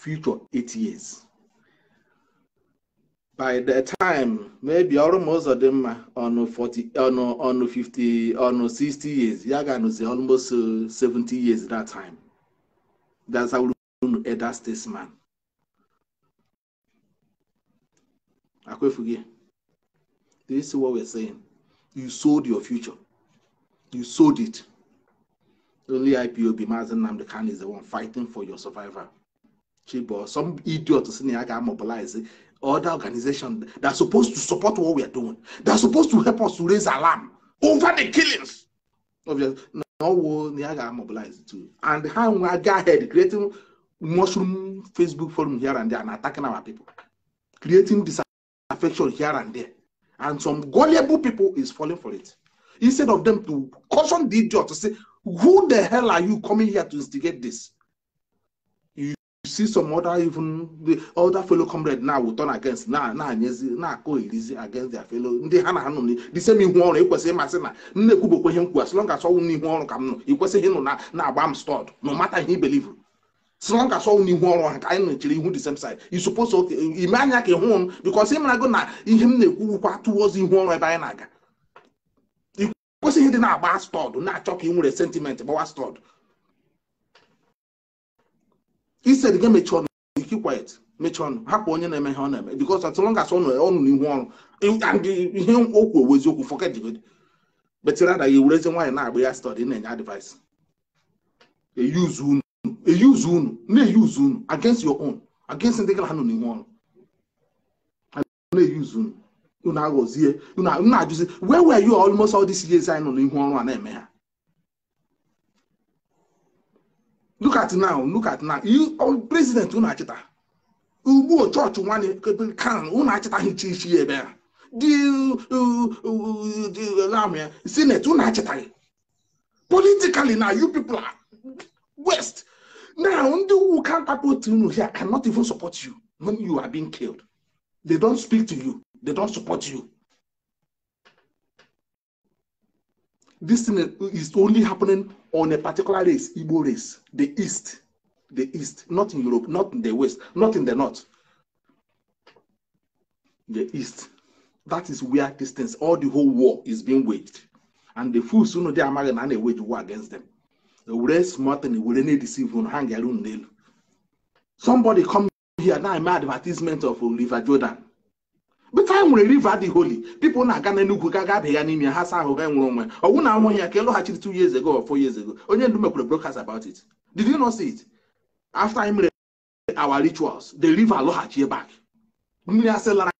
future eight years. By the time, maybe almost of them on 40, on, on 50, on 60 years, Yagan say almost uh, 70 years that time. That's how I statesman. Akwefuge, do you see what we're saying? You sold your future. You sold it. Only IPOB, Mazen Namdekan is the one fighting for your survival some idiot senior can mobilize other organizations that are supposed to support what we are doing. They're supposed to help us to raise alarm over the killings. Obviously, no will Niaga mobilize too. And how we go ahead creating mushroom Facebook forum here and there and attacking our people, creating disaffection here and there. And some gullible people is falling for it. Instead of them to caution the idiot to say, who the hell are you coming here to instigate this? see some other even the other fellow comrade now will turn against na na-anyezi na-akọ irizi against their fellow ndị ha na-anụ ha the same ihu ọrụ ekwesịghị masị na nne kwubokwa ihe nkwu as long as ọnwụ n'ihu ọrụ ka m nọ ikwesịghị ịnụ na-agba na m stọd no matter ihe ibelivu as long as ọnwụ n'ihu ọrụ ha ka anyị nọchiri ihu the same side you suppose okay ime anya ka ịhụ m because ịmara go na ihe m na-ekwuwukwa towards ihu ọrụ ebe anyị na-aga ikwesịghị dị na-agba stọd na-achọ ka ị nwere sentiment gbawa stọd ise gị mechie ọnụ ike kwet mechie ọnụ hapụ onye na-eme ihe ọ na-eme because as long as ọ ọnụ n'ihu ọrụ and ihe okwu owu eziokwu forget the good but rather ya ewurezi nwaanyị na-agba ya study na-enye advice eyuzu unu eyuzu unu na-eyuzu eyi unu against your own against ndị gara ha nọ n'ihu ọrụ na-eyuzu eyi unu unu aghọzie unu na-ajụzi where were you almost all these years anyị nọ n'ihu ọrụ a na-eme ha look at now look at now you oh, president unu achịta ugbu chọọchị nwanne kan unu achịtaghị chi ichi ebe a dị senate unu achịtaghị politically now, you people are west now ndị who support you here cannot even support you when you are being killed they don't speak to you they don't support you this thing is only happening on a particular race, Igbo race, the East, the East, not in Europe, not in the West, not in the North, the East. That is where these things, all the whole war is being waged. And the fools who know they are married and they wage war against them. The race smart and will any deceive on hang their own nail. Somebody come here now, my advertisement of Oliver Jordan. but anyị nwere river dị holy people na-aga n'enugwu ka ga-abịa ya ha saa ahụ ga nwere onwe ọnwụ na anwụ ya ka ịlọghachiri two years ago or four years ago onye ndu mekwere broadcast about it did you not see it after anyị mere our rituals the river lọghachi back mmiri asị lara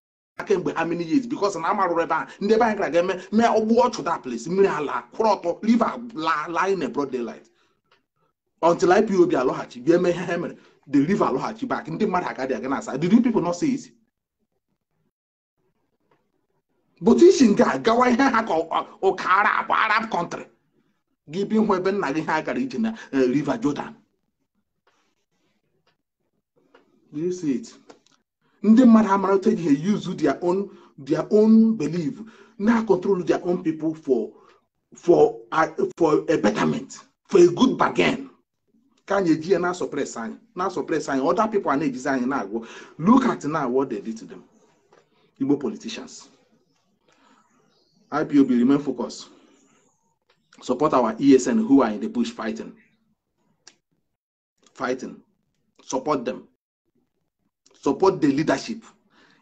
kemgbe how many years because na amarụrụ ebe a ndị ebe anyị gara ga-eme mee ọgbụ ọchụ that place mmiri ala kwụrụ ọtọ river laa in a broad daylight until IPOB alọghachi bịa eme ihe ha mere the river lọghachi back ndị mmadụ agadi aga na asa did you people not see it bụta isi nke a gawa ihe ha ka ụka arab arab kọntrị gị bi hụ ebe nna gị ha gara ije na river Jordan ndị mmadụ amara otu eji ha use their own their own belief na control their own people for for uh, for a betterment for a good bargain ka anyị eji ya na suppress anyị na suppress anyị other people na-ejizi anyị na-agwọ look at now what they did to them Igbo politicians IPOB remain focused. Support our ESN who are in the bush fighting. Fighting. Support them. Support the leadership.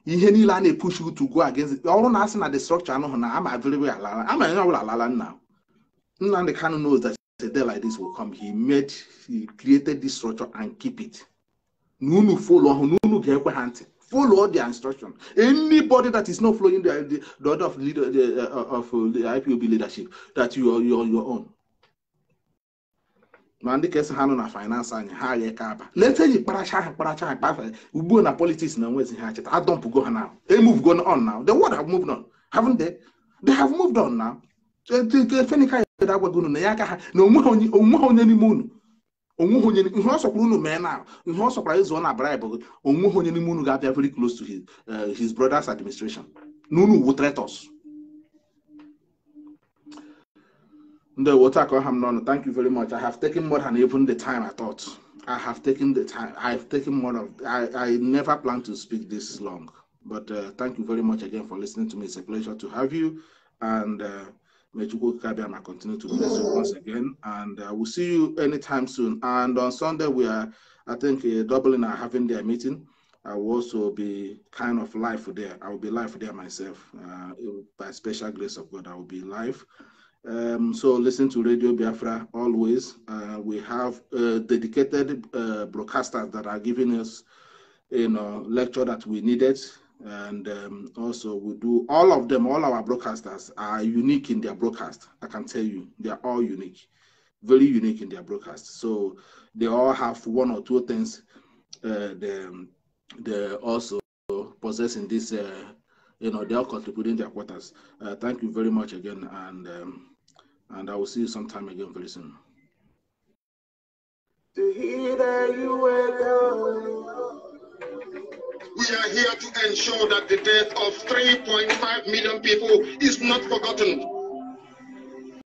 ihe niile a push you to go against ọrụ na asị na the structure anụhụ na ama available alala ama onye Now, alala nna Nnamdi Kanu knows that a day like this will come he made he created this structure and keep it na unu follow. ọhụụ na get ga-ekwe Follow the instruction. Anybody that is not following the, the, the order of, leader, the, uh, of uh, the IPOB leadership, that you are, you your own. na ndị ka esi ha nọ na finance anyị ha ya ka aba leta eji kparacha ha kparacha a kpafa ugbu na politics na I don't go ha now they move go on now the world have moved on haven't they they have moved on now The ya agwago unu na ya no ha no more, no onye n'ime unu onweghị onye ihe ọ sọkwara unu mee na ihe ọ sọkwara ịzụ na bribe gị onweghị onye n'ime unu ga-abịa very close to his, uh, his brother's administration na unu wu traitors Ndewo Takaham Nono, thank you very much. I have taken more than even the time I thought. I have taken the time. I've taken more of. I, I never planned to speak this long, but uh, thank you very much again for listening to me. It's a pleasure to have you, and uh, May Chukwukabiyama continue to bless you once again. And uh, we'll see you anytime soon. And on Sunday, we are, I think, uh, Dublin are having their meeting. I will also be kind of live there. I will be live there myself. Uh, by special grace of God, I will be live. Um, so listen to Radio Biafra always. Uh, we have uh, dedicated broadcasters that are giving us, you know, lecture that we needed and um, also we do all of them all our broadcasters are unique in their broadcast i can tell you they are all unique very unique in their broadcast so they all have one or two things uh, they, they also possess in this uh, you know they are contributing their quarters uh, thank you very much again and um, and i will see you sometime again very soon we are here to ensure that the death of 3.5 million people is not forgotten.